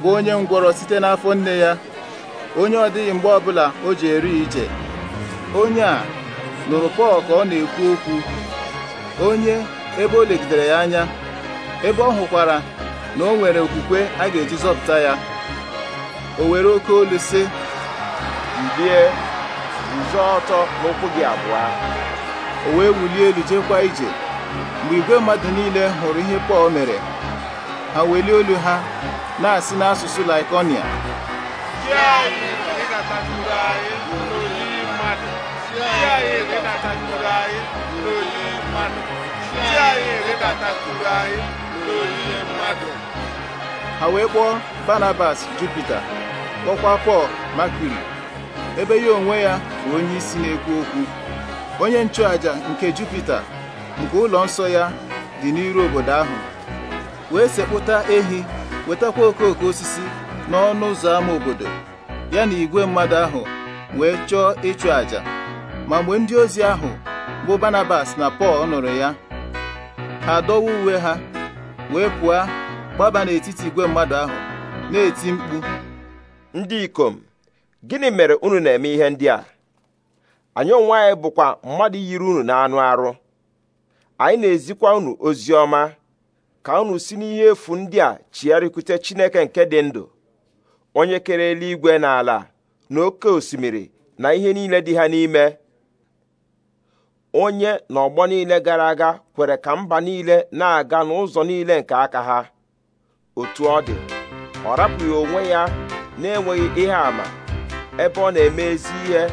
bụ onye ngwọrọ site n'afọ nne ya onye ọ dịghị mgbe ọbụla o ji eri ije onye a nụrụ Pọl ka ọ na-ekwu okwu onye ebe o legidere ya anya ebe ọ hụkwara na o nwere okwukwe a ga-eji zọpụta ya o were oke olu sị mbie ọzọ ọtọ n'ụkwụ gị abụọ o wee wulie elu jekwa ije mgbe igwe mmadụ niile hụrụ ihe pọl mere ha welie olu ha na-asị n'asụsụ laikonia ha wee kpọọ banabas jupita kpọkwa pọl makuri ebe ya onwe ya bụ onye isi na-ekwu okwu onye nchụaja nke Jupita nke ụlọ nsọ ya dị n'iru obodo ahụ wee sekpụta ehi wetakwa okooko osisi n'ọnụ ụzọ ámá obodo ya na igwe mmadụ ahụ wee chọọ ịchụ àjà ma mgbe ndị ozi ahụ bụ Barnabas na Pọl nụrụ ya ha dọwa uwe ha wee pụọ gbaba n'etiti igwe mmadụ ahụ na-eti mkpu ndị ikom gịnị mere unu na-eme ihe ndị a anyị onwe anyị bụkwa mmadụ yiri unu na anụ arụ anyị na-ezikwa unu ozi ọma ka unu si n'ihe efu ndị a chigharịkwute chineke nke dị ndụ onye kere eluigwe na ala na oke osimiri na ihe niile dị ha n'ime onye na ọgbọ niile gara aga kwere ka mba niile na-aga n'ụzọ niile nke aka ha otu ọ dị ọ rapụghị onwe ya na-enweghị ihe àmà ebe ọ na-eme ezi ihe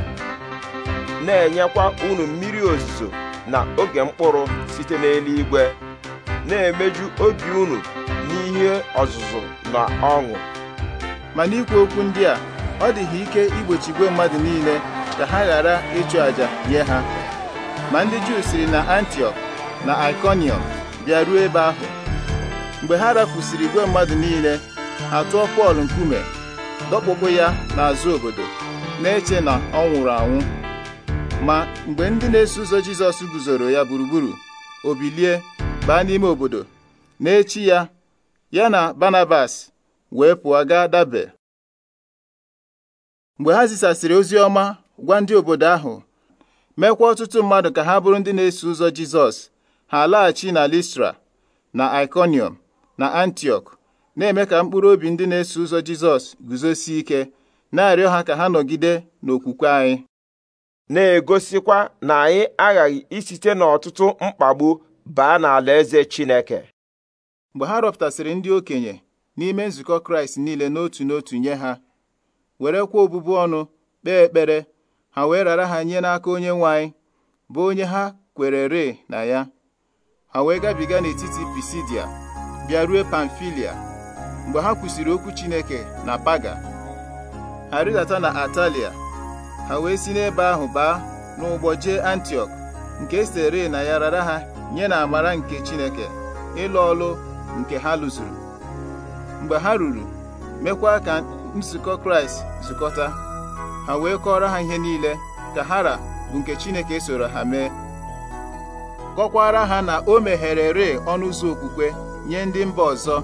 na-enyekwa unu mmiri ozuzo na oge mkpụrụ site n'eluigwe na-emeju obi unu n'ihe ọzụzụ na ọṅụ ma n'ikwu okwu ndị a ọ dịghị ike igbochi igwe mmadụ niile ka ha ghara ịchụ àjà nye ha ma ndị Juu siri na Antioch na Iconium bịa ruo ebe ahụ mgbe ha rafusiri igwe mmadụ niile ha tụọ Pọl nkume dọkpụpụ ya n'azụ obodo na-eche na ọ nwụrụ anwụ ma mgbe ndị na-eso ụzọ Jizọs guzoro ya gburugburu obilie, bilie baa n'ime obodo na-echi ya ya na Barnabas wee pụọ gaa dabe mgbe ha zisasịrị ozi ọma gwa ndị obodo ahụ mekwa ọtụtụ mmadụ ka ha bụrụ ndị na-eso ụzọ Jizọs ha laghachi na Listra na Iconium, na antiok na-eme ka mkpụrụ obi ndị na-eso ụzọ Jizọs guzosie ike na-arịọ ha ka ha nọgide n'okwukwe anyị na-egosikwa na anyị aghaghị isite n'ọtụtụ mkpagbu baa n'alaeze Chineke mgbe ha rọpụtasịrị ndị okenye n'ime nzukọ Kraịst niile n'otu n'otu nye ha werekwa obụbụ ọnụ kpee ekpere ha wee rara ha nye n'aka onye nwe anyị bụ onye ha kwere re na ya ha wee gabiga n'etiti Pisidia bịa rue Pamfilia mgbe ha kwụsịrị okwu Chineke na Paga ha rịdata na Atalia ha wee si n'ebe ahụ baa n'ụgbọ jee Antiọk nke esere na ya rara ha nye na amara nke Chineke ịlụ ọlụ nke ha lụzuru mgbe ha ruru mekwa ka nzukọ Kraịst zukọta ha wee kọọrọ ha ihe niile ka hara bụ nke Chineke soro ha mee kọkwara ha na o megherere ọnụ ụzọ okwukwe nye ndị mba ọzọ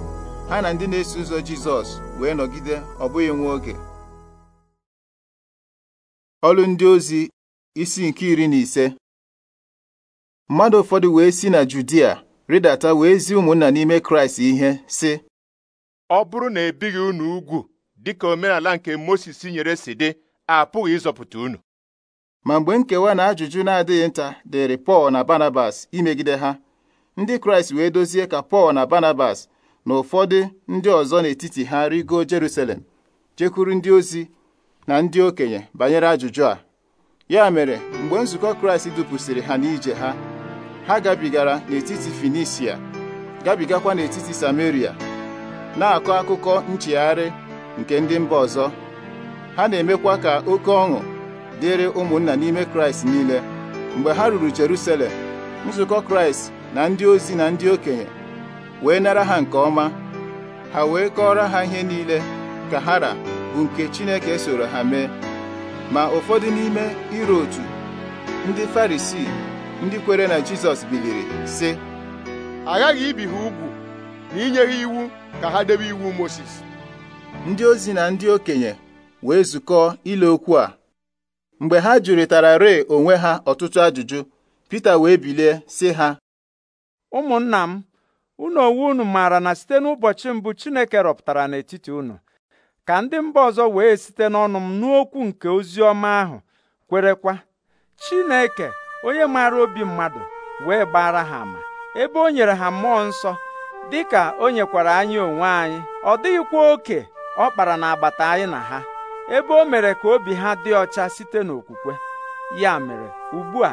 ha na ndị na-eso ụzọ Jizọs wee nọgide ọ bụghị nwa oge ọlụ ndị ozi isi nke iri na ise mmadụ ụfọdụ wee si na Judia rịdata wee zi ụmụnna n'ime Kraịst ihe sị ọ bụrụ na ebighị unu ugwu dịka omenala nke Mosis nyere si dị apụghị ịzọpụta unu ma mgbe nkewa na ajụjụ na-adịghị nta dịrị Pọl na Barnabas imegide ha ndị Kraịst wee dozie ka Pọl na Barnabas na ụfọdụ ndị ọzọ n'etiti ha rigo jeruselem jekwuru ndị ozi na ndị okenye banyere ajụjụ a ya mere mgbe nzukọ Kraịst dupụsịrị ha n'ije ha ha gabigara n'etiti Finisia gabigakwa n'etiti Samaria na-akọ akụkọ nchegharị nke ndị mba ọzọ ha na-emekwa ka oke ọṅụ dịrị ụmụnna n'ime Kraịst niile mgbe ha ruru jeruselem nzukọ Kraịst na ndị ozi na ndị okenye wee nara ha nke ọma ha wee kọọrọ ha ihe niile ka hara bụ nke Chineke soro ha mee ma ụfọdụ n'ime iro otu ndị Farisii ndị kwere na Jizọs biliri sị aghaghị ibi ha ugwu na inye ha iwu ka ha debe iwu Mosis ndị ozi na ndị okenye wee zukọọ ile okwu a mgbe ha jụrịtara ree onwe ha ọtụtụ ajụjụ Pita wee bilie sị ha ụmụnna m unu onwe unu maara na site n'ụbọchị mbụ Chineke rọpụtara n'etiti unu ka ndị mba ọzọ wee site n'ọnụ m n'okwu nke ozi ọma ahụ kwerekwa Chineke onye maara obi mmadụ wee gbara ha ama ebe o nyere ha mmụọ nsọ dị ka o nyekwara anyị onwe anyị ọ dịghịkwa oke ọ kpara n'agbata anyị na ha ebe o mere ka obi ha dị ọcha site n'okwukwe ya mere ugbu a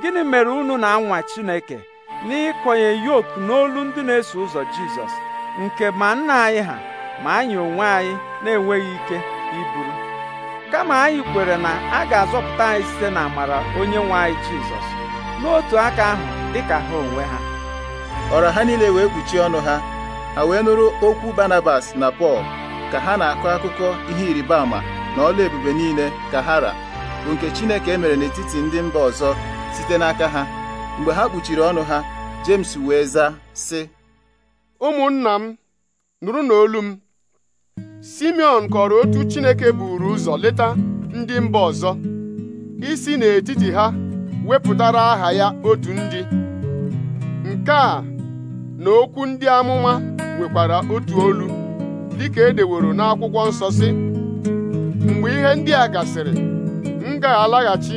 gịnị mere unu na-anwa Chineke n'ịkọnye yoku n'olu ndị na-eso ụzọ Jizọs nke ma nna anyị ha ma anyị onwe anyị na-enweghị ike iburu kama anyị kwere na a ga-azọpụta anyị site na amara onye nwe anyị Jizọs n'otu aka ahụ dị ka ha onwe ha ọra ha niile wee kpuchie ọnụ ha ha wee nụrụ okwu Barnabas na Pọl ka ha na-akọ akụkọ ihe ịrịba ama na ọla ebube niile ka ha ra bụ nke Chineke emere n'etiti ndị mba ọzọ site n'aka ha mgbe ha kpuchiri ọnụ ha James wee zaa sị ụmụnna m nụrụ n'olu m Simeon kọrọ otu Chineke buru ụzọ leta ndị mba ọzọ isi n'etiti ha wepụtara aha ya otu ndị nke a na okwu ndị amụma nwekwara otu olu dịka edeworo n'akwụkwọ nsọ si mgbe ihe ndị a gasịrị m ga-alaghachi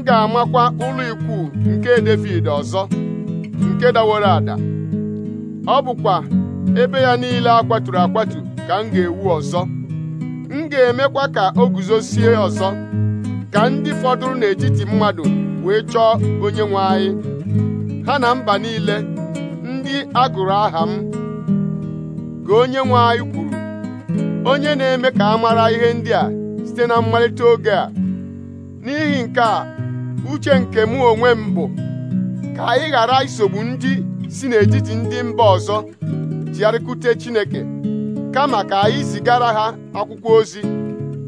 m ga-amakwa ụlọ ikwu nke david ọzọ nke daworo ada ọ bụkwa ebe ya niile a kwaturu akwatu ka m ga-ewu ọzọ m ga-emekwa ka o guzosie ọzọ ka ndị fọdụrụ n'etiti mmadụ wee chọọ onye nwe anyị ha na mba niile ndị a gụrụ aha m ka onye nwe anyị kwuru onye na-eme ka a mara ihe ndị a site na mmalite oge a n'ihi nke a uche nke mụ onwe m bụ ka anyị ghara isogbu ndị si n'etiti ndị mba ọzọ chigharịkute Chineke kama ka anyị zigara ha akwụkwọ ozi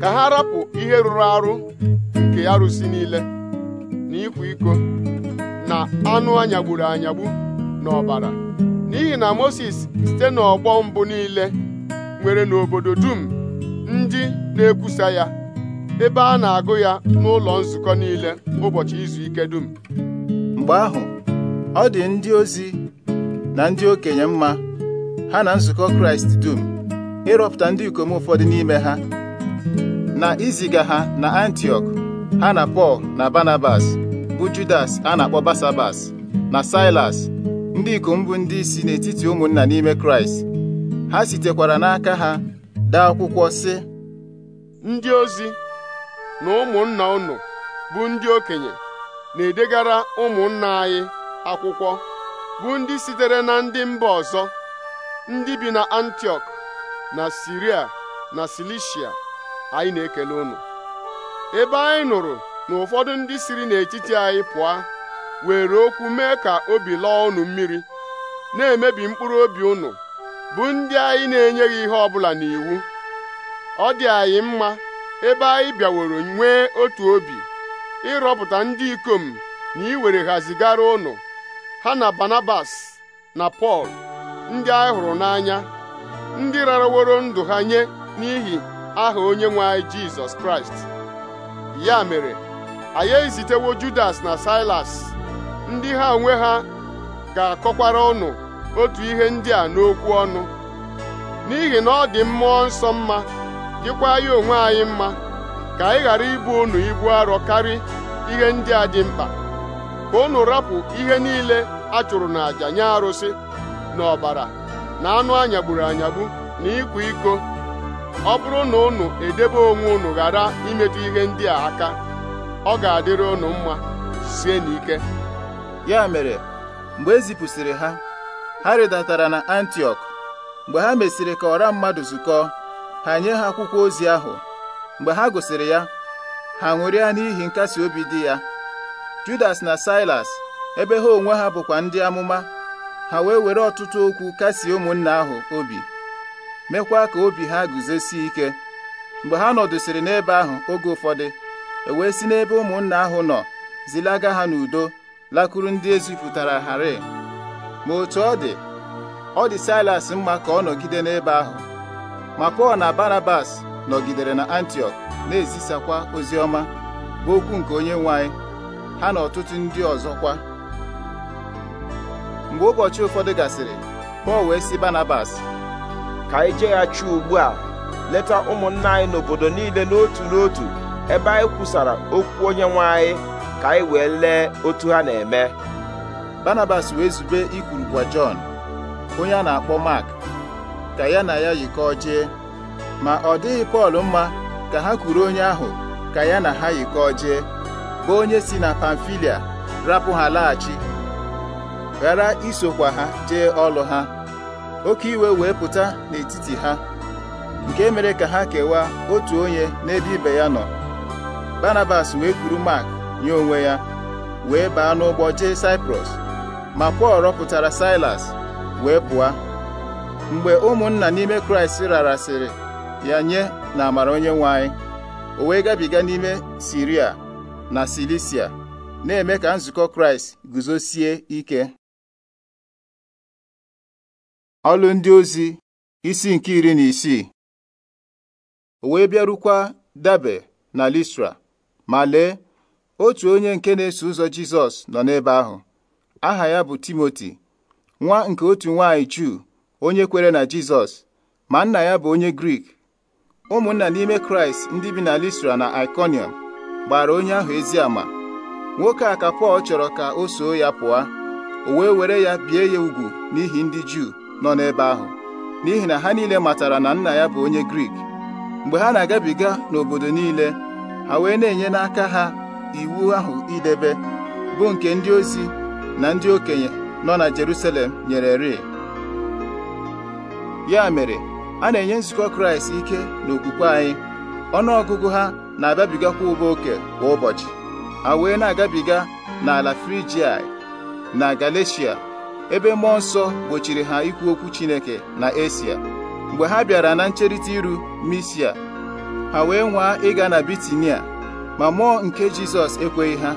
ka ha rapụ ihe rụrụ arụ nke arụsị niile na ịkwa iko na anụ anyagburu anyagbu n'ọbara n'ihi na Moses site n'ọgbọ mbụ niile nwere n'obodo dum ndị na-ekwusa ya ebe a na-agụ ya n'ụlọ nzukọ niile ụbọchị izu ike dum mgbe ahụ ọ dị ndị ozi na ndị okenye mma ha na nzukọ Kraịst dum ịrọpụta ndị ikom ụfọdụ n'ime ha na iziga ha na antiok ha na Pọl na Barnabas bụ Judas a na-akpọ Basabas na Silas ndị ikom bụ ndị isi n'etiti ụmụnna n'ime Kraịst ha sitekwara n'aka ha dee akwụkwọ sị ndị ozi na ụmụnna unu bụ ndị okenye na-edegara ụmụnna anyị akwụkwọ bụ ndị sitere na ndị mba ọzọ ndị bi na antiok na Siria na Silisia anyị na-ekele unu ebe anyị nụrụ na ụfọdụ ndị siri n'etiti anyị pụọ were okwu mee ka obi lọọ unu mmiri na-emebi mkpụrụ obi unu bụ ndị anyị na-enyeghị ihe ọbụla n'iwu ọ dị anyị mma ebe anyị bịaworo nwee otu obi ịrọpụta ndị ikom na iwere ha zigara ụnụ ha na banabas na Pọl ndị anyị hụrụ n'anya ndị raraworo ndụ ha nye n'ihi aha onye nwe anyị Jizọs Kraịst ya mere anyị ezitewo Judas na Silas ndị ha onwe ha ga-akọkwara ụnụ otu ihe ndị a n'okwu ọnụ n'ihi na ọ dị mmụọ nsọ mma dịkwa ya onwe anyị mma ka anyị ghara ibu unu ibu arọ karị ihe ndị a dị mkpa ka unu rapụ ihe niile a chụrụ n'àjà nye arụsị na ọbara na anụ anyagburu anyagbu na ịkwa iko ọ bụrụ na unu edebe onwe unu ghara imetụ ihe ndị a aka ọ ga-adịrị unu mma sie n'ike ya mere mgbe e zipụsịrị ha ha rịdatara na antiok mgbe ha mesịrị ka ọra mmadụ zukọọ ha nye ha akwụkwọ ozi ahụ mgbe ha gụsịrị ya ha ṅụrịa n'ihi nkasi obi dị ya Judas na Silas ebe ha onwe ha bụkwa ndị amụma ha wee were ọtụtụ okwu kasie ụmụnna ahụ obi mekwa ka obi ha guzosie ike mgbe ha nọdụsịrị n'ebe ahụ oge ụfọdụ e wee si n'ebe ụmụnna ahụ nọ zilaga ha n'udo lakụrụ ndị ezipụtara ghara ma otu ọ dị ọ dị Silas mma ka ọ nọgide n'ebe ahụ ma Pọl na Barabas nọgidere na antiok na-ezisakwa ozi ọma bụ okwu nke onye nwe anyị ha na ọtụtụ ndị ọzọkwa mgbe ụbọchị ụfọdụ gasịrị Pọl wee sị Barnabas ka anyị jeghachi ugbu a leta ụmụnna anyị n'obodo niile n'otu n'otu ebe anyị kwusara okwu onye nwe anyị ka anyị wee lee otu ha na-eme Barnabas wee zube ikwurukwa Jọn onye a na-akpọ Mark ka ya na ya yikọọ jee ma ọ dịghị Pọl mma ka ha kwuru onye ahụ ka ya na ha yikọọ jee bụ onye si na Pamfilia rapụ ha laghachi ghara isokwa ha jee ọlụ ha oke iwe wee pụta n'etiti ha nke mere ka ha kewaa otu onye n'ebe ibe ya nọ banabas wee kwuru Mark nye onwe ya wee baa n'ụgbọ jee Cyprus ma Pọl rọpụtara Silas wee pụọ mgbe ụmụnna n'ime kraịst rarasịrị ya nye na amara onye nwe anyị o wee gabiga n'ime siria na silisia na-eme ka nzukọ kraịst guzosie ike ọlụ ndị ozi isi nke iri na isii o wee bịarukwa dabe na listra ma lee otu onye nke na-eso ụzọ jizọs nọ n'ebe ahụ aha ya bụ timoti nwa nke otu nwaanyị juu onye kwere na Jizọs ma nna ya bụ onye Grik ụmụnna n'ime Kraịst ndị bi na Listra na Ikonium gbara onye ahụ ezi ama nwoke a ka Pọl chọrọ ka o soo ya pụọ o wee were ya bie ya ugwu n'ihi ndị Juu nọ n'ebe ahụ n'ihi na ha niile matara na nna ya bụ onye Grik mgbe ha na-agabiga n'obodo niile ha wee na-enye n'aka ha iwu ahụ idebe bụ nke ndị ozi na ndị okenye nọ na Jerusalem nyere rie ya mere a na-enye nzukọ kraịst ike na okwukwe anyị ọgụgụ ha na-abịabigakwa ụba oke kwa ụbọchị ha wee na-agabiga n'ala frijiai na galeshia ebe mmụọ nsọ gbochiri ha ikwu okwu chineke na esia mgbe ha bịara na ncherịta iru misia ha wee nwaa ịga na bitinia ma mmụọ nke jizọs ekweghị ha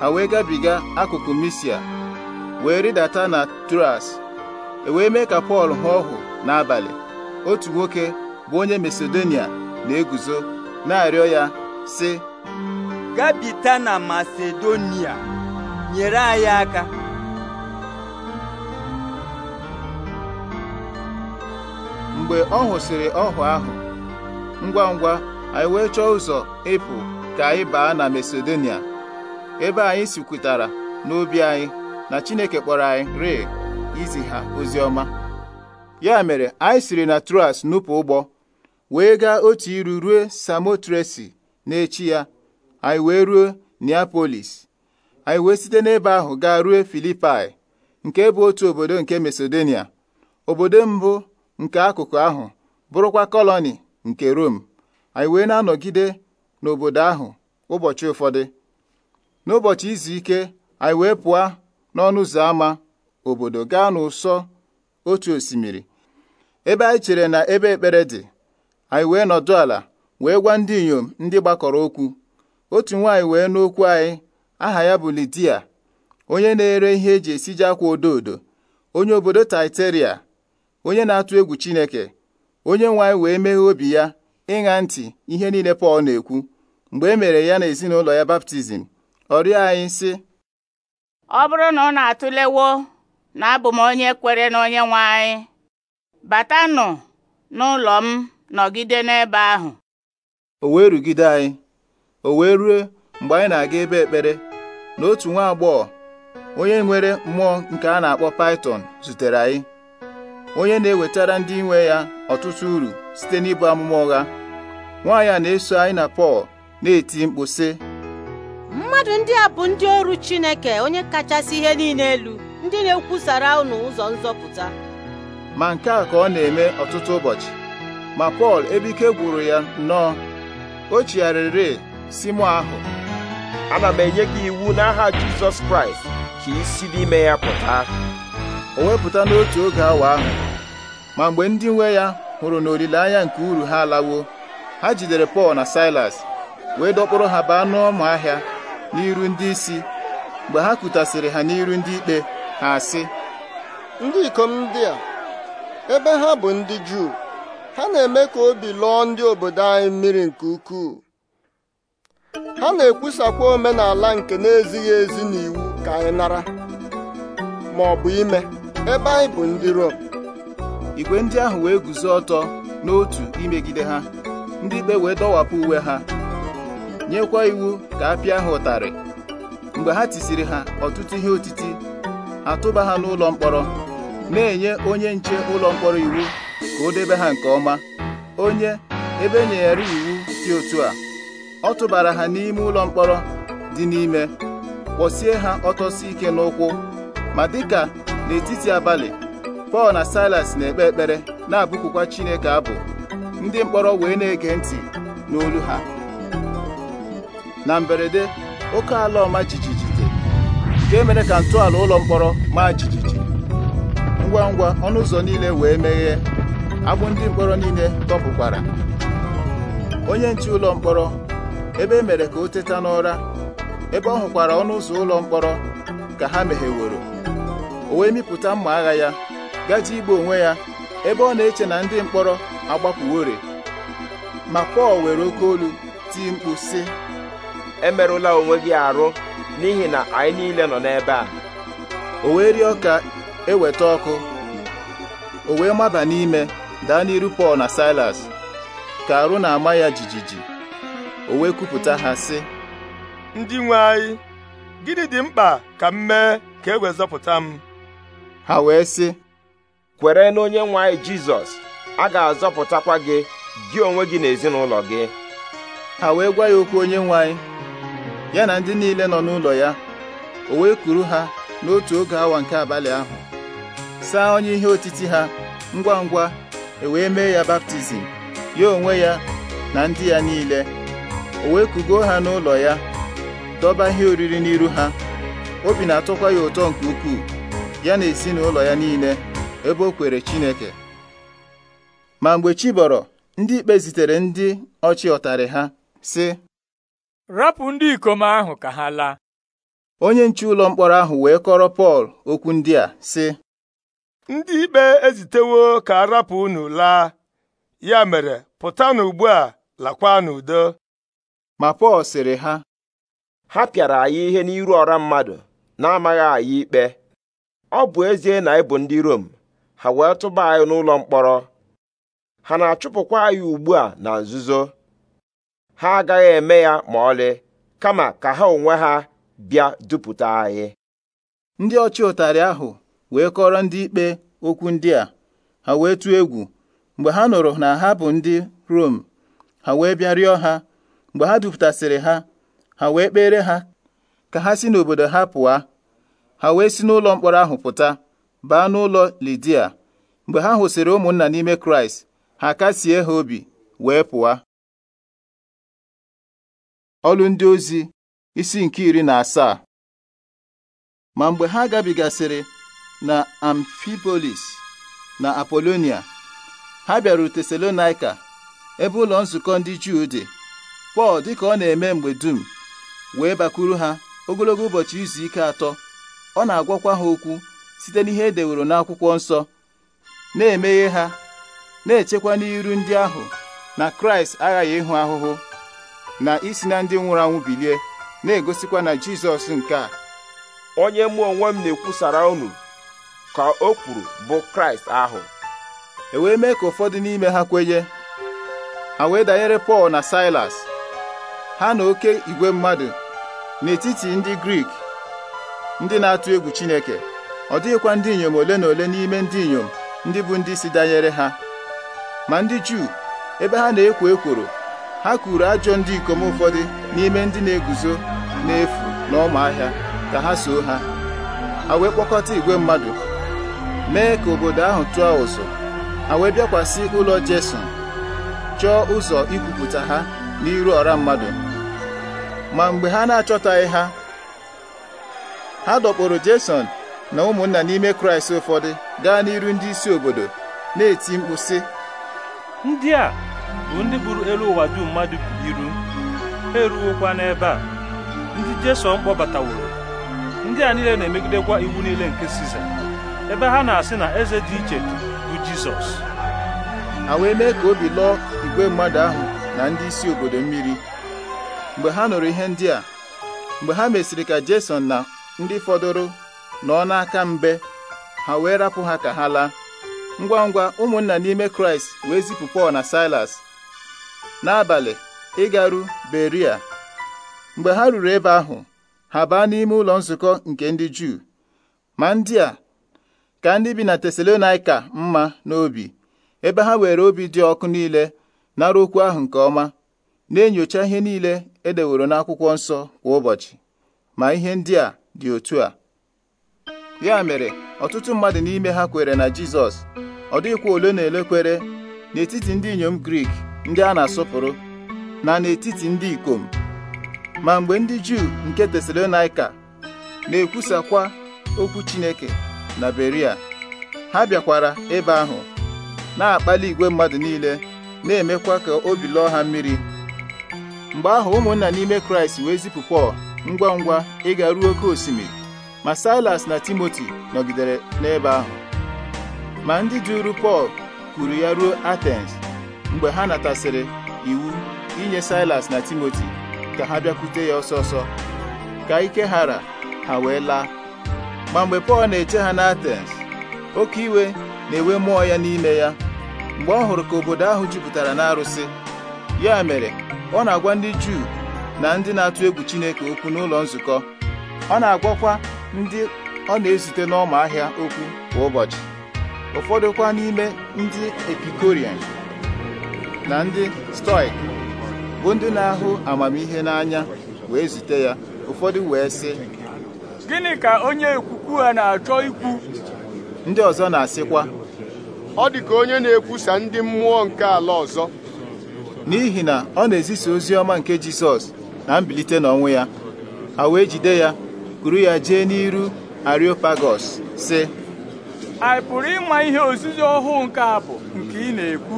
ha wee gabiga akụkụ misia wee rịdata na tras e wee mee ka pọl hụ ọhụ n'abalị otu nwoke bụ onye Masedonia na-eguzo na-arịọ ya sị gabita na Masedonia nyere anyị aka mgbe ọ hụsịrị ọhụ ahụ ngwa ngwa anyị wee chọọ ụzọ ịpụ ka anyị baa na Masedonia ebe anyị sikwutara n'obi anyị na Chineke kpọrọ anyị rịị izi ha ozi ọma ya mere anyị siri na truas nupụ ụgbọ wee gaa otu iru ruo Samotresi na echi ya anyị wee ruo Neapolis anyị wee site n'ebe ahụ gaa ruo Filipai nke bụ otu obodo nke Masedonia obodo mbụ nke akụkụ ahụ bụrụkwa kọlọni nke Rom anyị wee na-anọgide n'obodo ahụ ụbọchị ụfọdụ n'ụbọchị izu ike anyị wee pụọ n'ọnụ ụzọ ámá obodo gaa n'ụsọ otu osimiri ebe anyị chere na ebe ekpere dị anyị wee nọdụ ala wee gwa ndị inyom ndị gbakọrọ okwu otu nwaanyị wee n'okwu anyị aha ya bụ Lidia onye na-ere ihe eji esiji akwa odo odo onye obodo Taiteria onye na-atụ egwu Chineke onye nwe anyị wee meghee obi ya ịṅa ntị ihe niile Pọl na-ekwu mgbe e mere ya na ezinụlọ ya baptizim ọ anyị sị ọ bụrụ na ọ na-atụlewo na abụ m onye kwere na onye nwe anyị batanụ n'ụlọ m nọgide n'ebe ahụ o wee rugide anyị o wee rue mgbe anyị na-aga ebe ekpere na otu nwa agbọghọ onye nwere mmụọ nke a na-akpọ Python zutere anyị onye na-ewetara ndị nwe ya ọtụtụ uru site n'ịbụ amụma ụgha nwaanyị a na-eso anyị na Pọl na-eti mkpu mmadụ ndị a bụ ndị ọrụ Chineke onye kachasị ihe niile elu ndị na-ekwusara unu ụzọ nzọpụta ma nke a ka ọ na-eme ọtụtụ ụbọchị ma Pọl ebe ike gwụrụ ya nnọọ o chigharịrị si mụ ahụ ana m enye gị iwu n'aha Jizọs Kraịst ka isi n'ime ya pụta o wepụta n'otu oge awa ahụ ma mgbe ndị nwe ya hụrụ na olileanya nke uru ha alawo ha jidere Pọl na Silas wee dọkpụrụ ha baa n'ọma ahịa n'iru ndị isi mgbe ha kutasịrị ha n'iru ndị ikpe ha asị ndị ikom ndị a ebe ha bụ ndị Juu ha na-eme ka obi lụọ ndị obodo anyị mmiri nke ukwuu ha na-ekwusakwa omenala nke na-ezighị ezi n'iwu ka anyị nara ma ọ bụ ime ebe anyị bụ ndị Rom igwe ndị ahụ wee guzo ọtọ n'otu imegide ha ndị ikpe wee dọwapụ uwe ha nyekwa iwu ka a pịa ha ụtarị mgbe ha tisiri ha ọtụtụ ihe otiti ha tụba ha n'ụlọ mkpọrọ na-enye onye nche ụlọ mkpọrọ iwu ka o debe ha nke ọma onye ebe e nyere iwu dị otu a ọ tụbara ha n'ime ụlọ mkpọrọ dị n'ime kpọsie ha ọtọsi ike n'ụkwụ ma dịka n'etiti abalị Pọl na Silas na-ekpe ekpere na-abụkukwa Chineke abụ ndị mkpọrọ wee na-ege ntị n'olu ha na mberede oke ala ọma jijiji nke mere ka ntọala ụlọ mkpọrọ maa jijiji ngwa ngwa ọnụ ụzọ niile wee meghee agbụ ndị mkpọrọ niile tọpụkwara onye nche ụlọ mkpọrọ ebe e mere ka o teta n'ụra ebe ọ hụkwara ọnụ ụzọ ụlọ mkpọrọ ka ha megheworo o wee mịpụta mma agha ya gaji igbu onwe ya ebe ọ na-eche na ndị mkpọrọ agbapụwore ma Pọl were oke olu tii mkpu sị emerụla onwe gị arụ n'ihi na anyị niile nọ n'ebe a o wee rịọ ka eweta ọkụ o wee maba n'ime daa n'iru Pọl na Silas ka arụ na-ama ya jijiji o wee kwupụta ha sị ndị nwe anyị gịnị dị mkpa ka m mee ka e wezọpụta m ha wee sị kwere na onye nwe anyị Jizọs a ga-azọpụtakwa gị gị onwe gị na ezinụlọ gị ha wee gwa ya okwu onye nwe anyị ya na ndị niile nọ n'ụlọ ya o wee kuru ha n'otu oge awa nke abalị ahụ saa onye ihe otiti ha ngwa ngwa e wee mee ya baptizim ya onwe ya na ndị ya niile o wee kugo ha n'ụlọ ya dọba ihe oriri n'iru ha obi na-atọkwa ya ụtọ nke ukwuu ya na ezinụlọ ya niile ebe o kwere Chineke ma mgbe chi ndị ikpe zitere ndị ọchị ọtarị ha sị rapụ ndị ikom ahụ ka ha laa onye nche ụlọ mkpọrọ ahụ wee kọrọ Pọl okwu ndị a sị ndị ikpe ezitewo ka a rapụ unu laa ya mere pụtanụ ugbu a lakwa n'udo ma Pọl sịrị ha ha pịara anyị ihe n'iru ọra mmadụ na-amaghị anyị ikpe ọ bụ ezie na ịbụ ndị Rom ha wee tụba anyị n'ụlọ mkpọrọ ha na-achụpụkwa anyị ugbu a na nzuzo ha agaghị eme ya ma ọlị kama ka ha onwe ha bịa dupụta anyị ndị ọchị ụtarị ahụ wee kọrọ ndị ikpe okwu ndị a ha wee tụọ egwu mgbe ha nụrụ na ha bụ ndị Rom ha wee bịa rịọ ha mgbe ha dupụtasịrị ha ha wee kpere ha ka ha si n'obodo ha pụọ ha wee si n'ụlọ mkpọrọ ahụ pụta baa n'ụlọ Lidia mgbe ha hụsịrị ụmụnna n'ime Kraịst ha kasie ha obi wee pụọ ọlụ ndị ozi isi nke iri na asaa ma mgbe ha gabigasịrị na amfipolis na apolonia ha bịara tesalonaika ebe ụlọ nzukọ ndị juu dị pọl dịka ọ na-eme mgbe dum wee bakwuru ha ogologo ụbọchị izu ike atọ ọ na-agwakwa ha okwu site n'ihe edeworo n'akwụkwọ nsọ na-emeghe ha na-echekwa n'iru ndị ahụ na kraịst aghaghị ịhụ ahụhụ na isi na ndị nwụrụ anwụ bilie na-egosikwa na jizọs nke a onye mmụọ onwe m na-ekwusara unu ka o kwuru bụ kraịst ahụ e wee mee ka ụfọdụ n'ime ha kwenye A wee danyere pọl na silas ha na oke igwe mmadụ n'etiti ndị grik ndị na-atụ egwu chineke ọ dịghịkwa ndị inyom ole na ole n'ime ndị inyom ndị bụ ndị isi danyere ha ma ndị juu ebe ha na-ekwo ekworo ha kuru ajọ ndị ikom ụfọdụ n'ime ndị na-eguzo n'efu na ahịa ka ha soo ha ha wee kpọkọta igwe mmadụ mee ka obodo ahụ tụọ ụzọ a wee bịakwasị ụlọ Jeson chọọ ụzọ ikwupụta ha n'iru ọra mmadụ ma mgbe ha na-achọtaghị ha ha dọkpụrụ Jeson na ụmụnna n'ime Kraịst ụfọdụ gaa n'iru ndị isi obodo na-eti mkpu sị ndị a bụ ndị buru elu ụwa dum mmadụ bụ iru ha eruwokwa n'ebe a ndị Jeson kpọbataworo ndị a niile na-emegidekwa iwu niile nke Siza ebe ha na-asị na eze dị iche bụ Jizọs ha wee mee ka obi lụọ igwe mmadụ ahụ na ndị isi obodo mmiri mgbe ha nụrụ ihe ndị a mgbe ha mesịrị ka Jason na ndị fọdụrụ nọ n'aka mbe ha wee rapụ ha ka ha laa ngwa ngwa ụmụnna n'ime Kraịst wee zipụ Pọl na Silas n'abalị ịgaru Beria mgbe ha ruru ebe ahụ ha baa n'ime ụlọ nzukọ nke ndị Juu ma ndị a ka ndị bi na Tesalonaika mma n'obi ebe ha were obi dị ọkụ niile nara okwu ahụ nke ọma na-enyocha ihe niile edeworo n'akwụkwọ nsọ kwa ụbọchị ma ihe ndị a dị otu a ya mere ọtụtụ mmadụ n'ime ha kwere na Jizọs ọ dịghịkwa ole na ele n'etiti ndị inyom Grik ndị a na-asọpụrụ na n'etiti ndị ikom ma mgbe ndị Juu nke Tesalonaika na-ekwusakwa okwu Chineke na Beria ha bịakwara ebe ahụ na-akpali igwe mmadụ niile na-emekwa ka obi lọọ ha mmiri mgbe ahụ ụmụnna n'ime Kraịst wee zipụ Pọl ngwa ngwa ịga ruo oke osimiri ma Silas na Timoti nọgidere n'ebe ahụ ma ndị jụrụ Pọl kuru ya ruo Athens mgbe ha natasịrị iwu inye Silas na Timoti ka ha bịakwute ya ọsọ ọsọ ka ike hara ha wee laa ma mgbe Pọl na-eche ha n'Atens oke iwe na-ewe mmụọ ya n'ime ya mgbe ọ hụrụ ka obodo ahụ jupụtara n'arụsị ya mere ọ na-agwa ndị Juu na ndị na-atụ egwu Chineke okwu n'ụlọ nzukọ ọ na-agwakwa ndị ọ na-ezute n'ọma ahịa okwu kwa ụbọchị ụfọdụkwa n'ime ndị epikorian na ndị stoik bụ ndị na-ahụ amamihe n'anya wee zute ya ụfọdụ wee sị gịnị ka onye ekwukwu ha na-achọ ikwu ndị ọzọ na-asịkwa ọ dị ka onye na-ekwusa ndị mmụọ nke ala ọzọ n'ihi na ọ na-ezisa ozi ọma nke Jizọs na mbilite n'ọnwụ ya a wee jide ya kuru ya jee n'iru Areopagos sị anyị pụrụ ịma ihe ozizi ọhụụ nke a nke ị na-ekwu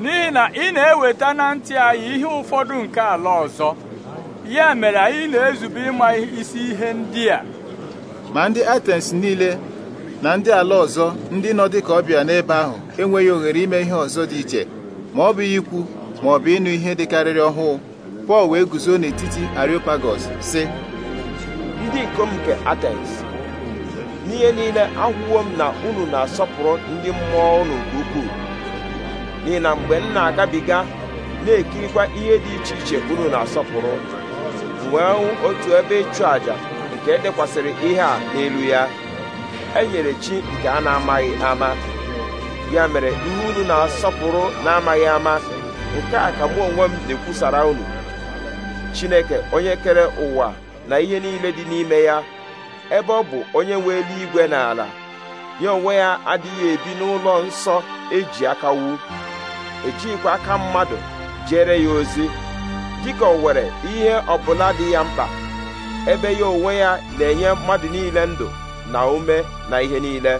n'ihi na ị na-eweta na ntị anyị ihe ụfọdụ nke ala ọzọ ya mere anyị na-ezube ịma isi ihe ndị a ma ndị Atens niile na ndị ala ọzọ ndị nọ dịka ọbịa n'ebe ahụ enweghị ohere ime ihe ọzọ dị iche ma ọ bụ ikwu ma ọ bụ ịnụ ihe dịkarịrị ọhụụ Pọl wee guzo n'etiti Areopagos sị ndị ikom nke Atens n'ihe niile ahụwo m na unu na-asọpụrụ ndị mmụọ unu ukwu n'ihi na mgbe m na-agabiga na-ekirikwa ihe dị iche iche unu na-asọpụrụ wee hụ otu ebe ịchụ àjà nke edekwasịrị ihe a n'elu ya e nyere chi nke a na-amaghị ama ya mere ihe unu na-asọpụrụ na-amaghị ama nke a ka mụ onwe m na-ekwusara unu Chineke onye kere ụwa na ihe niile dị n'ime ya ebe ọ bụ onye nwe igwe na ala ya onwe ya adịghị ebi n'ụlọ nsọ eji aka wu ejighịkwa aka mmadụ jere ya ozi dịka o nwere ihe ọbụla dị ya mkpa ebe ya onwe ya na-enye mmadụ niile ndụ na ume na ihe niile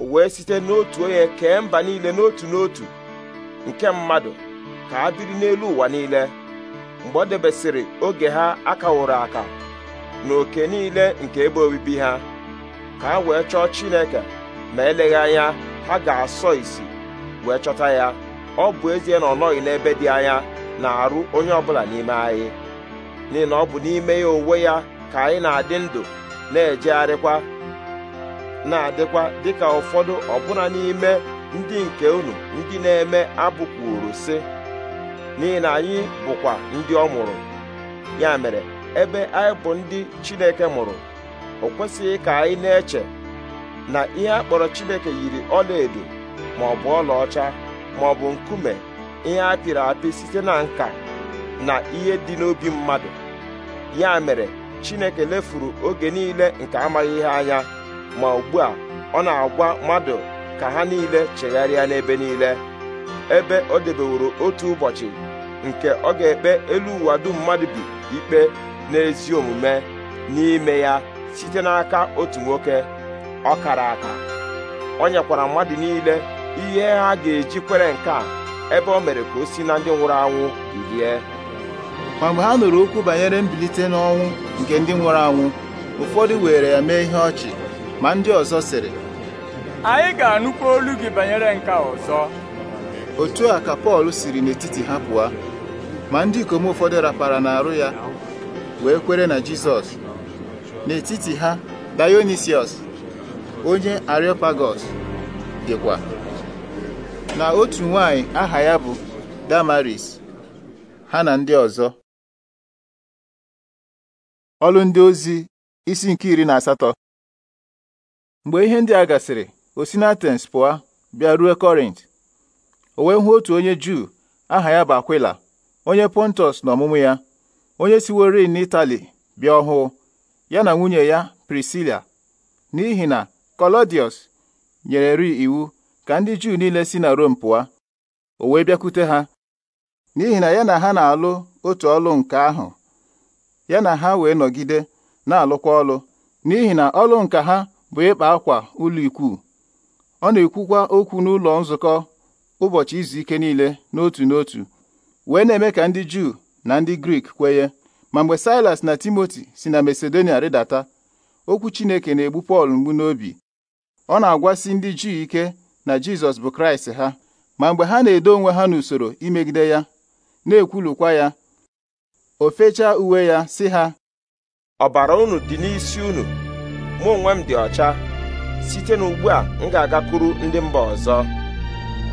o wee site n'otu onye kee mba niile n'otu n'otu nke mmadụ ka ha biri n'elu ụwa niile mgbe ọ debesịrị oge ha akawụrụ aka na oke niile nke ebe obibi ha ka ha wee chọọ Chineke ma eleghị anya ha ga-asọ isi wee chọta ya ọ bụ ezie na ọ nọghị n'ebe dị anya na-arụ onye ọbụla n'ime anyị n'ihi na ọ bụ n'ime ya onwe ya ka anyị na-adị ndụ na-ejegharịkwa na-adịkwa dịka ụfọdụ ọbụna n'ime ndị nke unu ndị na-eme abụkwuru si. n'ihi na anyị bụkwa ndị ọ mụrụ ya mere ebe anyị bụ ndị Chineke mụrụ o kwesịghị ka anyị na-eche na ihe a kpọrọ Chineke yiri ọlaedo ma ọ bụ ọlaọcha ma ọ bụ nkume ihe apịrị apị site na nka na ihe dị n'obi mmadụ ya mere chineke lefuru oge niile nke amaghị ihe anya ma ugbu a ọ na-agwa mmadụ ka ha niile chegharịa n'ebe niile ebe o debeworo otu ụbọchị nke ọ ga-ekpe elu ụwa dum mmadụ bi ikpe n'ezi omume n'ime ya site n'aka otu nwoke ọ kara aka ọ nyekwara mmadụ niile ihe ha ga-eji kwere nke a ebe o mere ka o si na ndị nwụrụ anwụ bilie ma mgbe ha nụrụ okwu banyere mbilite n'ọnwụ nke ndị nwụrụ anwụ ụfọdụ were ya mee ihe ọchị ma ndị ọzọ sịrị anyị ga-anụkwa olu gị banyere nke ọzọ otu a ka Pọl siri n'etiti ha pụọ ma ndị ikom ụfọdụ rapara n'arụ ya wee kwere na Jizọs n'etiti ha Dionisiọs onye ariopagos dịkwa na otu nwanyị aha ya bụ Damaris ha na ndị ọzọ ọlụ ndị ozi isi nke iri na asatọ mgbe ihe ndị a gasịrị Osinatens pụa, bịa ruo Kọrint o wee hụ otu onye Juu aha ya bụ Akwila onye Pontus na ọmụmụ ya onye na n'Itali bịa ọhụụ ya na nwunye ya Prisila n'ihi na kolodius nyere ri iwu ka ndị Juu niile si na Rom pụọ o wee bịakwute ha n'ihi na ya na ha na-alụ otu ọlụ nke ahụ ya na ha wee nọgide na-alụkwa ọlụ n'ihi na ọlụ nka ha bụ ịkpa akwa ụlọ ikwu ọ na-ekwukwa okwu n'ụlọ nzukọ ụbọchị izu ike niile n'otu n'otu wee na-eme ka ndị Juu na ndị Grik kwenye ma mgbe Silas na Timoti si na Masedonia rịdata okwu Chineke na-egbu Pọl mgbu n'obi ọ na-agwasi ndị Juu ike na Jizọs bụ Kraịst ha ma mgbe ha na-edo onwe ha n'usoro imegide ya na-ekwulukwa ya o fechaa uwe ya si ha ọbara unu dị n'isi unu mụ onwe m dị ọcha site n'ugbu a m ga-agakwuru ndị mba ọzọ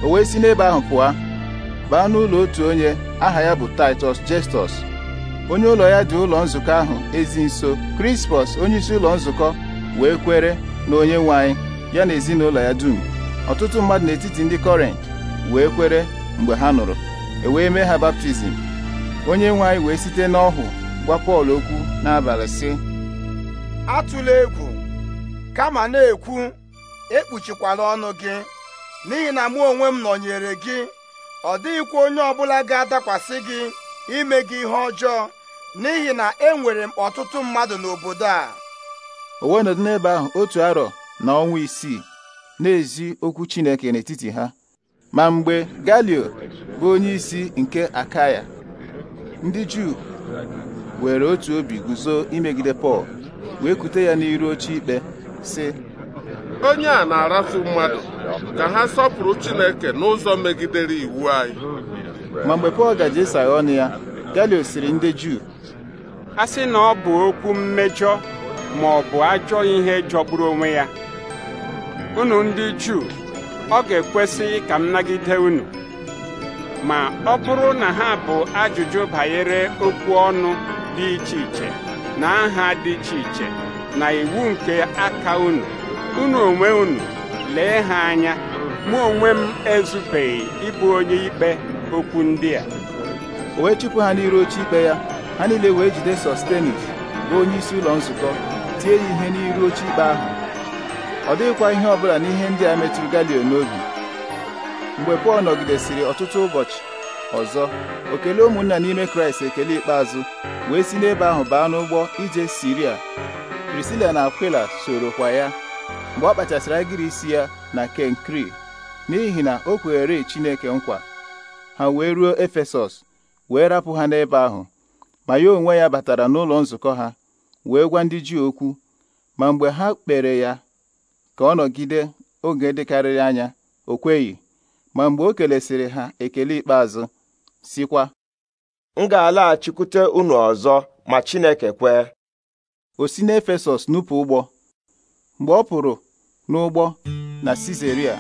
o wee si n'ebe ahụ pụọ baa n'ụlọ otu onye aha ya bụ Taịtọs Justus onye ụlọ ya dị ụlọ nzukọ ahụ ezi nso onye isi ụlọ nzukọ wee kwere na onye nwe anyị ya na ezinụlọ ya dum ọtụtụ mmadụ n'etiti ndị kọrent wee kwere mgbe ha nụrụ e wee mee ha baptizim onye nwe anyị wee site n'ọhụ gwa Pọl okwu n'abalị sị atụla egwu kama na-ekwu ekpuchikwala ọnụ gị n'ihi na mụ onwe m nọnyere gị ọ dịghịkwa onye ọbụla ga-adakwasị gị ime gị ihe ọjọọ n'ihi na enwere m ọtụtụ mmadụ n'obodo a o wee nọdụ n'ebe ahụ otu arọ na ọnwa isii na-ezi okwu Chineke n'etiti ha ma mgbe Galio bụ onye isi nke Akaya ndị Juu were otu obi guzo imegide Pọl wee kute ya n'iru oche ikpe si onye a na-arafu mmadụ ka ha sọpụrụ Chineke n'ụzọ megidere iwu anyị ma mgbe Pọl gaji ọnụ ya Galio siri ndị Juu a sị na ọ bụ okwu mmejọ ma ọ bụ ajọ ihe jọgburu onwe ya unu ndị Juu ọ ga-ekwesịghị ka m nagide unu ma ọ bụrụ na ha bụ ajụjụ banyere okwu ọnụ dị iche iche na aha dị iche iche na iwu nke aka unu unu onwe unu lee ha anya mụ onwe m ezubeghị ịbụ onye ikpe okwu ndị a o wee chụpụ ha n'iru oche ikpe ya ha niile wee jide Sostenis bụ onye isi ụlọ nzukọ tie ya ihe n'iru oche ikpe ahụ ọ dịghịkwa ihe ọbụla n'ihe ndị a metụrụ Galio n'obi mgbe Pọl nọgidesịrị ọtụtụ ụbọchị ọzọ o ụmụnna n'ime Kraịst ekele ikpeazụ wee si n'ebe ahụ baa n'ụgbọ ije Siria Prisila na Akwila sorokwa ya mgbe ọ kpachasịrị agịrị isi ya na Kenkri n'ihi na o kwere Chineke nkwa ha wee ruo Efesọs wee rapụ ha n'ebe ahụ ma ya onwe ya batara n'ụlọ nzukọ ha wee gwa ndị ji okwu ma mgbe ha kpere ya ka ọ nọgide oge dịkarịrị anya o ma mgbe o kelesiri ha ekele ikpeazụ sikwa m ga-alaghachikwute unu ọzọ ma Chineke kwee o si n'Efesọs nupụ ụgbọ mgbe ọ pụrụ n'ụgbọ na Sizeria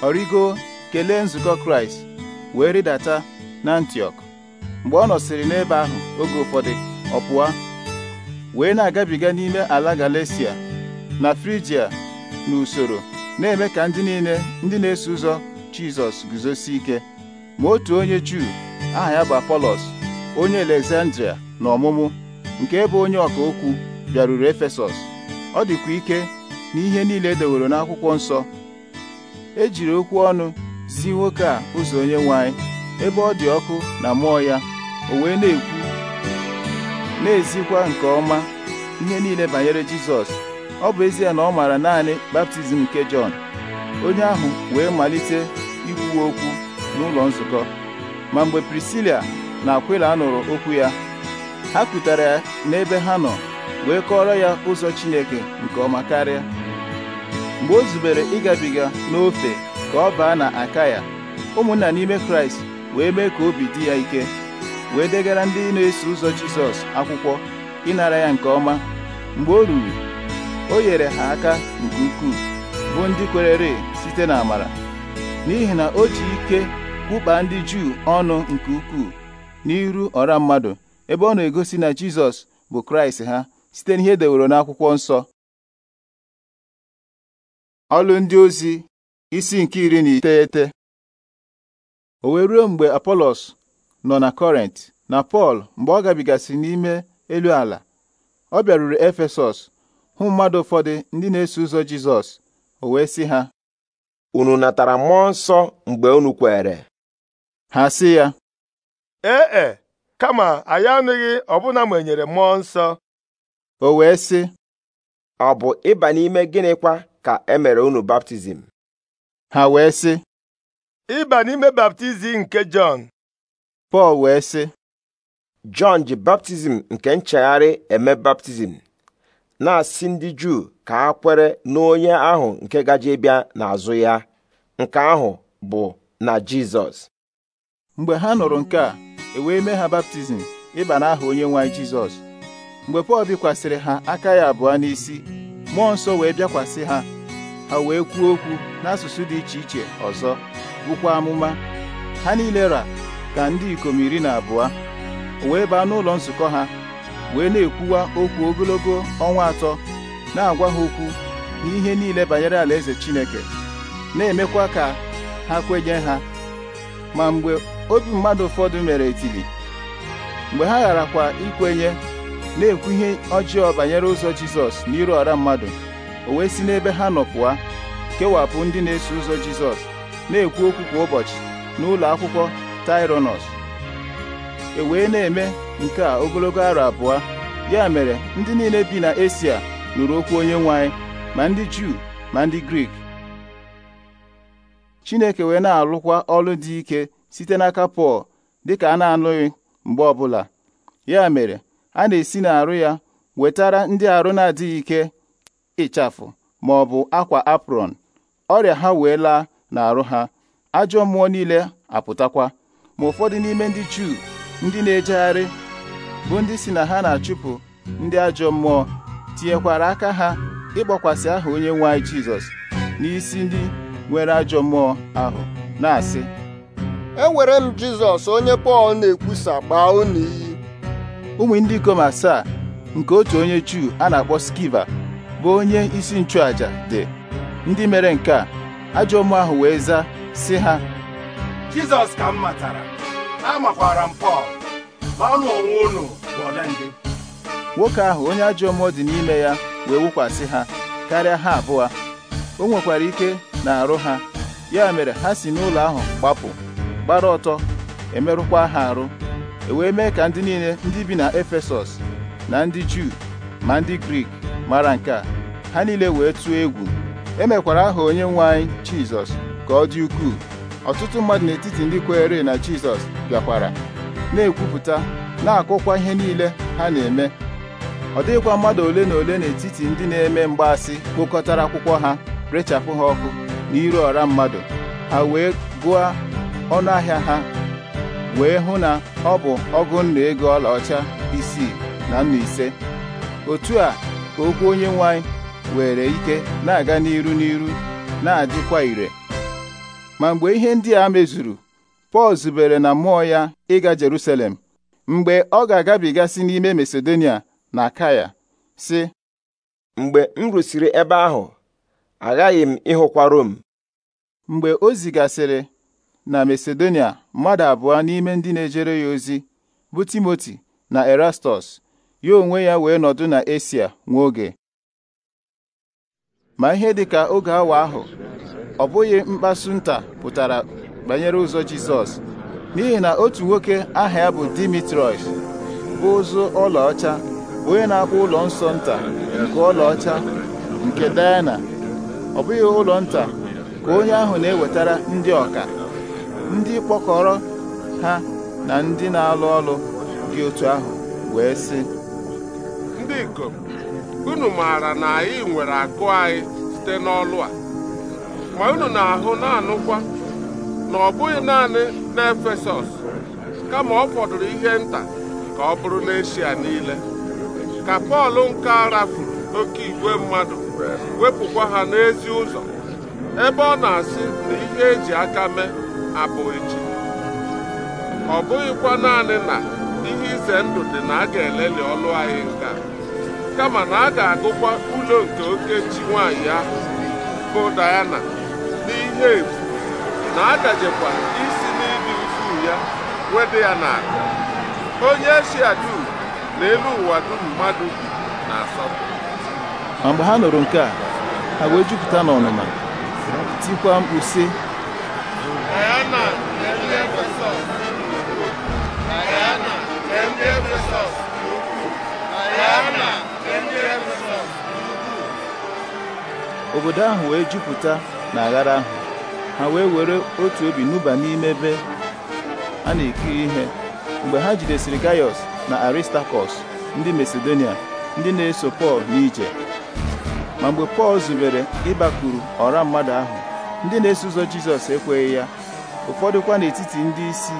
ọ rigo kelee nzukọ Kraịst wee rịdata n'Antiọk mgbe ọ nọsịrị n'ebe ahụ oge ụfọdụ ọ pụọ wee na-agabiga n'ime ala Galesia na Frigia n'usoro na-eme ka ndị niile ndị na-eso ụzọ Jizọs guzosi ike ma otu onye Juu aha ya bụ apolos onye Alexandria na ọmụmụ nke ebe onye ọka okwu bịaruru Efesọs ọ dịkwa ike na ihe niile edeworo n'akwụkwọ nsọ e jiri okwu ọnụ si nwoke a ụzọ onye nwanyị ebe ọ dị ọkụ na mmụọ ya o wee na-ekwu na-ezikwa nke ọma ihe niile banyere Jizọs ọ bụ ezie na ọ maara naanị baptizim nke Jọn onye ahụ wee malite ikwu okwu n'ụlọ nzukọ ma mgbe Prisila na Akwila nụrụ okwu ya ha kụtara ya n'ebe ha nọ wee kọọrọ ya ụzọ Chineke nke ọma karịa mgbe o zubere ịgabiga n'ofe ka ọ baa na aka Akaya ụmụnna n'ime Kraịst wee mee ka obi dị ya ike wee degara ndị na-eso ụzọ Jizọs akwụkwọ ịnara ya nke ọma mgbe o ruru o nyere ha aka nke ukwuu bụ ndị kwerere site n'amara n'ihi na o ji ike kwụkpa ndị Juu ọnụ nke ukwuu n'iru ọra mmadụ ebe ọ na-egosi na Jizọs bụ Kraịst ha site n'ihe deworo n'akwụkwọ nsọ ọlụ ndị ozi isi nke iri na iteghete o wee ruo mgbe Apolos nọ na Kọrent na Pọl mgbe ọ gabigasị n'ime elu ala ọ bịaruru Efesọs hụ mmadụ ụfọdụ ndị na-eso ụzọ Jizọs o wee sị ha unu natara mmụọ nsọ mgbe unu kwere ha sị ya ee e kama anyị anụghị ọbụna ma enyere mmụọ nsọ o wee sị ọ bụ ịba n'ime gịnịkwa ka e mere unu baptizim ha wee sị ịba n'ime baptizim nke Jọn Pọl wee sị Jọn ji baptizim nke nchegharị eme baptizim na-asị ndị Juu ka ha kwere n'onye ahụ nke gaje bịa n'azụ ya nke ahụ bụ na Jizọs mgbe ha nụrụ nke a e wee mee ha baptizim ịba aha onye nwe anyị Jizọs mgbe Pọl bikwasịrị ha aka ya abụọ n'isi mmụọ nsọ wee bịakwasị ha ha wee kwuo okwu n'asụsụ dị iche iche ọzọ bụkwa amụma ha niile ra ka ndị ikom iri na abụọ wee baa n'ụlọ nzukọ ha wee na-ekwuwa okwu ogologo ọnwa atọ na-agwa ha okwu n'ihe niile banyere alaeze Chineke na-emekwa ka ha kwenye ha ma mgbe obi mmadụ ụfọdụ mere etili mgbe ha gharakwa ikwenye na-ekwu ihe ọjọọ banyere ụzọ Jizọs n'iru ọra mmadụ o wee si n'ebe ha nọ kewapụ ndị na-eso ụzọ Jizọs na-ekwu okwu kwa ụbọchị n'ụlọ akwụkwọ Taịronọs e wee na-eme nke a ogologo arọ abụọ ya mere ndị niile bi na Esia nụrụ okwu onye nwe ma ndị Juu ma ndị Grik Chineke wee na-alụkwa ọrụ dị ike site n'aka Pọl dịka a na-anụghị mgbe ọbụla ya mere a na-esi n'arụ ya wetara ndị arụ na-adịghị ike ịchafụ ma ọ bụ akwa apron ọrịa ha wee laa n'arụ ha ajọ mmụọ niile apụtakwa ma ụfọdụ n'ime ndị Juu ndị na-ejegharị bụ ndị si na ha na-achụpụ ndị ajọ mmụọ tinyekwara aka ha ịgbakwasị aha onye nwe anyị Jizọs n'isi ndị nwere ajọ mmụọ ahụ na-asị ewere m Jizọs onye Pọl na-ekwusa gbaa unu iyi ụmụ ndị ikom asaa nke otu onye Juu a na-akpọ Skiva bụ onye isi nchụàjà dị ndị mere nke a ajọ mmụọ ahụ wee zaa si ha Jizọs ka m matara amakwara m Pọl ma ọnụ onwe unu bụ ọdịndị nwoke ahụ onye ajọ mmụọ dị n'ime ya wee wụkwasị ha karịa ha abụọ o nwekwara ike na-arụ ha ya mere ha si n'ụlọ ahụ gbapụ gbara ọtọ emerụkwa ha arụ e wee mee ka ndị niile ndị bi na Efesọs na ndị Juu ma ndị Grik mara nke a ha niile wee tụọ egwu emekwara aha onye nwe anyị Jizọs ka ọ dị ukwuu ọtụtụ mmadụ n'etiti ndị kweere na Jizọs bịakwara na-ekwupụta na-akụkwa ihe niile ha na-eme ọ dịghịkwa mmadụ ole na ole n'etiti ndị na-eme mgbaasị kpokọtara akwụkwọ ha rechapụ ha ọkụ na iru ọra mmadụ ha wee gụọ ọnụ ahịa ha wee hụ na ọ bụ ọgụ nna ego ọlaọcha isii na nna ise otu a ka okwu onye nwe anyị were ike na-aga n'iru n'iru na-adịkwa ire ma mgbe ihe ndị a mezuru pọl zubere na mmụọ ya ịga jerusalem mgbe ọ ga-agabigasị n'ime masedonia na kaya sị mgbe m rụsiri ebe ahụ aghaghị m ịhụkwa rom mgbe o zigasịrị na masedonia mmadụ abụọ n'ime ndị na-ejere ya ozi bụ timoti na erastus ya onwe ya wee nọdụ na esia nwa oge ma ihe dịka oge awa ahụ ọ bụghị mkpasu nta pụtara banyere ụzọ Jizọs n'ihi na otu nwoke aha ya bụ Dimitrios bụ ụzụ ọlaọcha onye na-akpọ ụlọ nsọ nta nke ọlaọcha nke Diana ọ bụghị ụlọ nta ka onye ahụ na-ewetara ndị ọka ndị kpọkọrọ ha na ndị na-alụ ọlụ dị otu ahụ wee sị ndị ikom unu maara na anyị nwere akụ anyị site n'ọlụ a ma unu na-ahụ na-anụkwa na ọ bụghị naanị n'efesọs kama ọ fọdụrụ ihe nta ka ọ bụrụ n'eshia niile ka pọl nke rafuru oke igwe mmadụ wepụkwa ha n'ezi ụzọ ebe ọ na-asị na ihe eji aka mee abụghị chi ọ bụghịkwa naanị na ihe ize ndụ dị na a ga-eleli ọlụ anyị nka kama na a ga-agụkwa ụlọ nke oke chi nwaanyị ahụ bụ Diana n'ihe efu na agajekwa isi n'ịdị ukwuu ya wedị ya na onye si dum na elu ụwa dum mmadụ bi na asọpụ. ma mgbe ha nụrụ nke a ha wee jupụta n'ọnụma tikwa mkpu sị obodo ahụ wee jupụta na aghara ahụ ha wee were otu obi nụba n'ime ebe a na-ekiri ihe mgbe ha jidesiri gaius na aristakọs ndị masedonia ndị na-eso pọl n'ije ma mgbe pọl zubere ịbakwuru ọra mmadụ ahụ ndị na-eso ụzọ jizọs ekweghị ya ụfọdụ kwa n'etiti ndị isi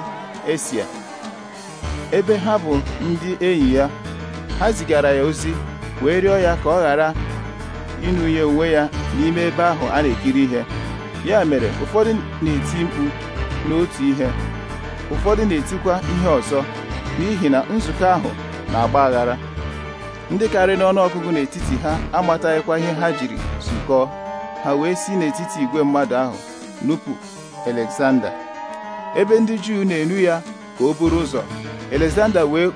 esia ebe ha bụ ndị enyi ya ha zigara ya ozi wee rịọ ya ka ọ ghara ịnụnye onwe ya n'ime ebe ahụ a na-ekiri ihe ya mere ụfọdụ na-eti mkpu n'otu ihe ụfọdụ na-etikwa ihe ọzọ n'ihi na nzukọ ahụ na-agba aghara ndị karịrị n'ọnụọgụgụ n'etiti ha amataghịkwa ihe ha jiri zukọọ ha wee si n'etiti igwe mmadụ ahụ nupụ Alexander ebe ndị Juu na-enu ya ka o buru ụzọ Alexander wee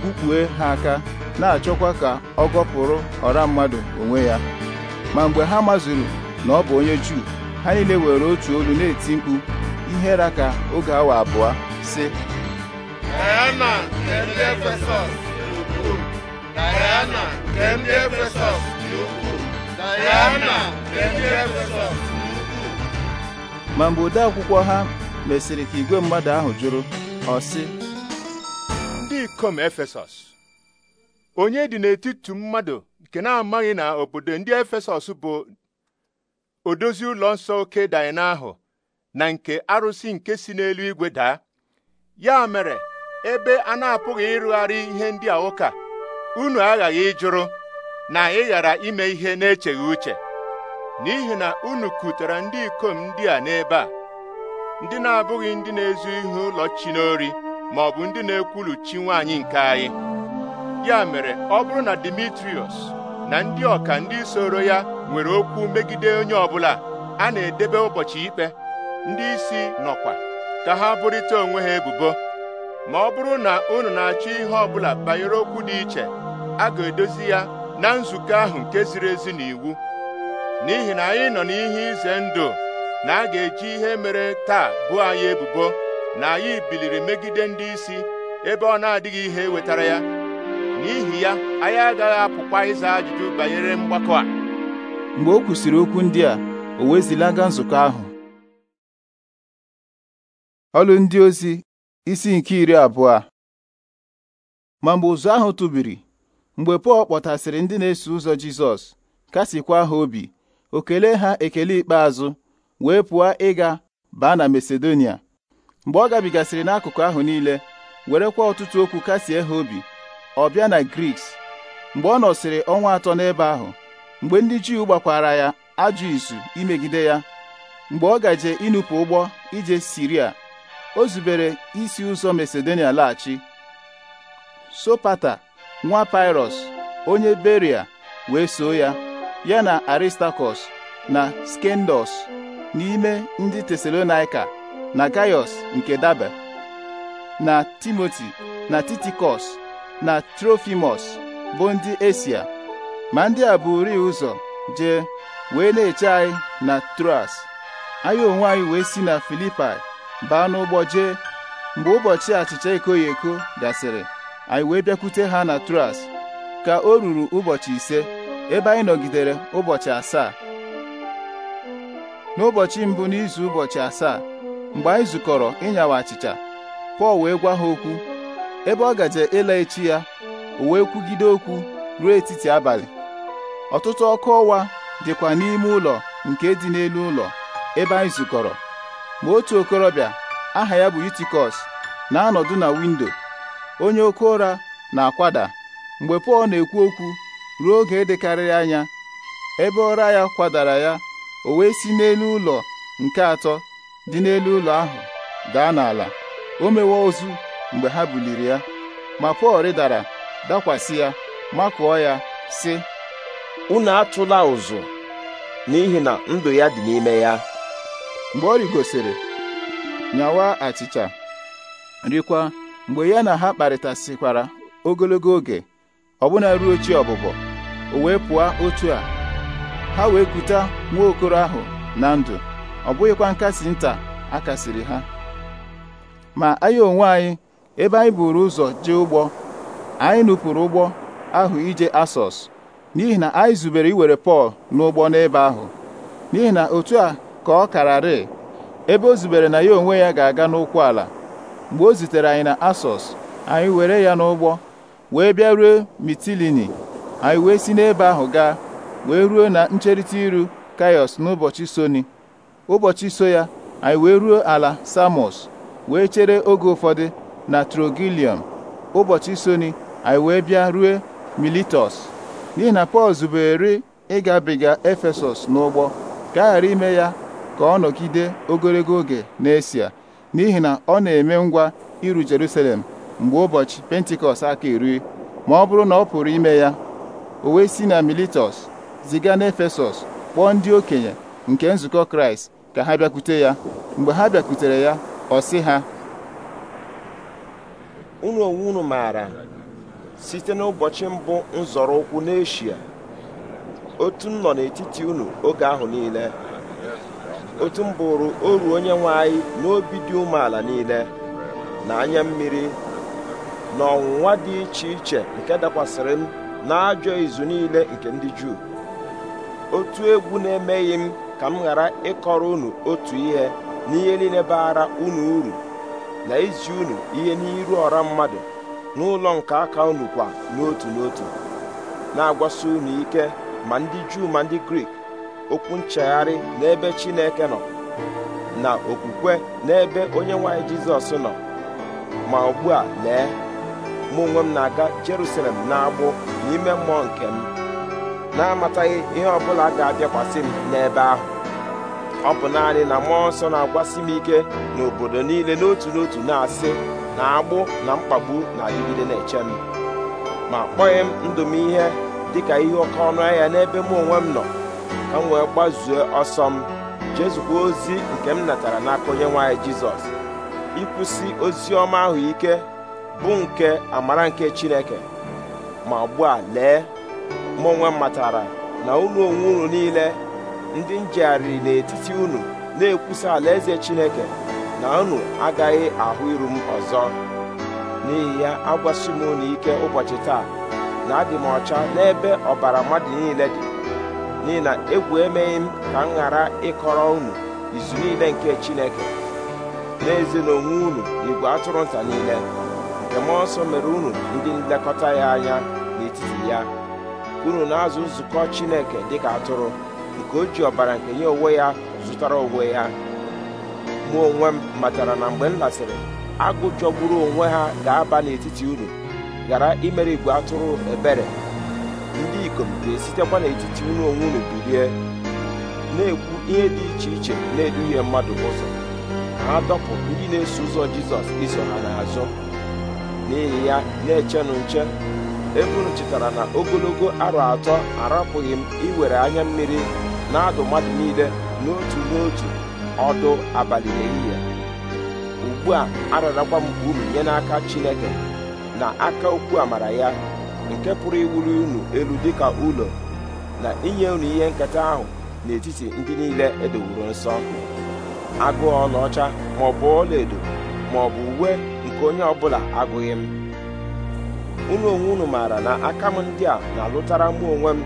kpukpue ha aka na-achọkwa ka ọ gọpụrụ ọra mmadụ onwe ya ma mgbe ha mazuru na ọ bụ onye Juu ha niile were otu olu na-eti mkpu ihe ra ka oge awa abụọ sị Diana Efesọs dị ukwuu ma mgbe ode akwụkwọ ha mesịrị ka igwe mmadụ ahụ jụrụ ọ sị ndị ikom Efesọs onye dị n'etiti mmadụ nke na-amaghị na obodo ndị Efesọs bụ odozi ụlọ nsọ oke Daịna ahụ na nke arụsị nke si n'eluigwe daa ya mere ebe a na-apụghị ịrụgharị ihe ndị a ụka unu aghaghị ịjụrụ na ị ghara ime ihe na-echeghị uche n'ihi na unu kutere ndị ikom ndị a n'ebe a ndị na-abụghị ndị na-ezu ihe ụlọ chi n'ori ma ọ bụ ndị na-ekwulu chi nwaanyị nke anyị ya mere ọ bụrụ na Dimitrios na ndị ọka ndị soro ya nwere okwu megide onye ọbụla a na-edebe ụbọchị ikpe ndị isi nọkwa ka ha bụrịta onwe ha ebubo ma ọ bụrụ na unu na-achọ ihe ọbụla banyere okwu dị iche a ga-edozi ya na nzukọ ahụ nke ziri ezi na iwu n'ihi na anyị nọ n'ihe ize ndụ na a ga-eji ihe mere taa bụ anyị ebubo na anyị biliri megide ndị isi ebe ọ na-adịghị ihe wetara ya n'ihi ya anyị agaghị apụkwa ịza ajụjụ banyere mgbakọ a mgbe o kwusiri okwu ndị a o wee nzukọ ahụ ọlụ ndị ozi isi nke iri abụọ ma mgbe ụzụ ahụ tụbiri mgbe Pọl kpọtasịrị ndị na-eso ụzọ Jizọs kasịkwa ha obi o kelee ha ekele ikpeazụ wee pụọ ịga baa na Masedonia mgbe ọ gabigasịrị n'akụkụ ahụ niile werekwa ọtụtụ okwu kasie ha obi ọ bịa na Griks mgbe ọ nọsịrị ọnwa atọ n'ebe ahụ mgbe ndị Juu gbakwara ya ajụ izu imegide ya mgbe ọ gaje ịnụpụ ụgbọ ije Siria o zubere isi ụzọ Masedonia laghachi Sopata nwa Pirọs onye Beria wee so ya ya na Aristakọs na skendos n'ime ndị Tesalonaika na Gaius nke Dabe na Timoti na Titikos na Trofimus bụ ndị Esia ma ndị a bụ buri ụzọ jee wee na-eche anyị na Troas anyị onwe anyị wee si na Filipai baa n'ụgbọ jee mgbe ụbọchị achịcha ekoghi eko gasịrị anyị wee bịakwute ha na Troas ka o ruru ụbọchị ise ebe anyị nọgidere ụbọchị asaa n'ụbọchị mbụ n'izu ụbọchị asaa mgbe anyị zukọrọ ịnyawa achịcha Pọl wee gwa ha okwu ebe ọ gaje ịla echi ya o wee kwugide okwu ruo etiti abalị ọtụtụ ọkụ ọwa dịkwa n'ime ụlọ nke dị n'elu ụlọ ebe anyị zukọrọ ma otu okorobịa aha ya bụ Yutikọs na-anọdụ na windo onye oke ụra na-akwada mgbe Pọl na-ekwu okwu ruo oge dịkarịrị anya ebe ụra ya kwadara ya o wee si n'elu ụlọ nke atọ dị n'elu ụlọ ahụ daa n'ala o mewe ozu mgbe ha buliri ya ma Pọl rịdara dakwasị ya makụọ ya sị unu atụla ụzụ n'ihi na ndụ ya dị n'ime ya mgbe ọ rigosiri nyawa achịcha rikwa mgbe ya na ha kparịtasịkwara ogologo oge ọbụna ruo chi ọbụbọ o wee pụọ otu a ha wee kuta nwa okoro ahụ na ndụ ọ bụghịkwa nkasi nta a kasiri ha ma anyị onwe anyị ebe anyị buru ụzọ jee ụgbọ anyị nupụrụ ụgbọ ahụ ije asọs n'ihi na anyị zubere iwere Pọl n'ụgbọ n'ebe ahụ n'ihi na otu a ka ọ kararị ebe o zubere na ya onwe ya ga-aga n'ụkwụ ala mgbe o zitere anyị na Asọs anyị were ya n'ụgbọ wee bịa ruo Mitilini anyị wee si n'ebe ahụ gaa wee ruo na ncherịta iru Kaiọs n'ụbọchị soni ụbọchị so ya anyị wee ruo ala Samos wee chere oge ụfọdụ na Trogilium ụbọchị soni anyị wee bịa ruo Militos n'ihi na Pọl zubere ịgabiga Efesọs n'ụgbọ ka a ghara ime ya ka ọ nọgide ogologo oge n'Esia n'ihi na ọ na-eme ngwa iru Jerusalem mgbe ụbọchị Pentikọst aka iri ma ọ bụrụ na ọ pụrụ ime ya o wee si na Miletus ziga n'Efesọs kpọọ ndị okenye nke nzukọ Kraịst ka ha bịakwute ya mgbe ha bịakwutere ya ọ sị ha site n'ụbọchị mbụ nzọrọ ụkwụ n'eshia otu m nọ n'etiti unu oge ahụ niile otu m bụrụ oru onye nwe anyị n'obi dị umeala niile na anya mmiri na ọnwụnwa dị iche iche nke dakwasịrị m n'ajọ izu niile nke ndị Juu otu egwu na-emeghị m ka m ghara ịkọrọ unu otu ihe n'ihe niile baara unu uru na izi unu ihe n'iru ọra mmadụ n'ụlọ nke aka unu kwa n'otu n'otu na-agwasi unu ike ma ndị Juu ma ndị Grik okwu nchegharị n'ebe Chineke nọ na okwukwe n'ebe onye nwanyị Jizọs nọ ma ugbu a lee mụ onwe m na-aga Jerusalem na-agbụ n'ime mmụọ nke m na-amataghị ihe ọbụla ga-abịakwasị m n'ebe ahụ ọ bụ naanị na mmụọ nsọ na-agwasị m ike n'obodo niile n'otu n'otu na-asị na agbụ na mkpagbu na-adịgide na-eche m ma kpọghị m ndụ m ihe dịka ihe oke ọnụ ahịa n'ebe mụ onwe m nọ ka m wee gbazuo ọsọ m jezukwa ozi nke m natara n'aka onye nwaanyị jizọs ịkwụsị ozi ọma ahụ ike bụ nke amara nke chineke ma ugbu a lee mụ onwe m matara na ụlọ onwe unu niile ndị njegharịrị n'etiti unu na-ekwusa alaeze chineke na unu agaghị ahụ iru m ọzọ n'ihi ya agwasi m unu ike ụbọchị taa na adị m ọcha n'ebe ọbara mmadụ niile dị n'ihi na egwu emeghị m ka m ghara ịkọrọ unu izu niile nke Chineke n'ezie na onwe unu igwe atụrụ nta niile nke mmụọ nsọ mere unu ndị nlekọta ya anya n'etiti ya unu na-azụ nzukọ Chineke dịka atụrụ nke o ji ọbara nke ya onwe ya zụtara onwe ya mụ onwe m matara na mgbe m lasịrị agụ jọgburu onwe ha ga-aba n'etiti unu ghara imere igwe atụrụ ebere ndị ikom ga-esitekwa n'etiti unu onwe unu bilie na-ekwu ihe dị iche iche na-eduhie mmadụ ụzọ ha dọpụ ndị na-eso ụzọ jizọs iso ha n'azụ n'ihi ya na-echenụ nche ebunu chetara na ogologo arọ atọ arapụghị m iwere anya mmiri na-adụ mmadụ niile n'otu n'otu ọdụ abalị n'ehihie ugbu a ararakwa m uru nye n'aka Chineke na aka okwu amara ya nke pụrụ iwuru unu elu dịka ụlọ na inye unu ihe nketa ahụ n'etiti ndị niile edowuru nsọ Agụ ọlaọcha ma ọ bụ ọlaedo ma ọ bụ uwe nke onye ọbụla agụghị m unu onwe unu maara na aka m ndị a na-alụtara mụ onwe m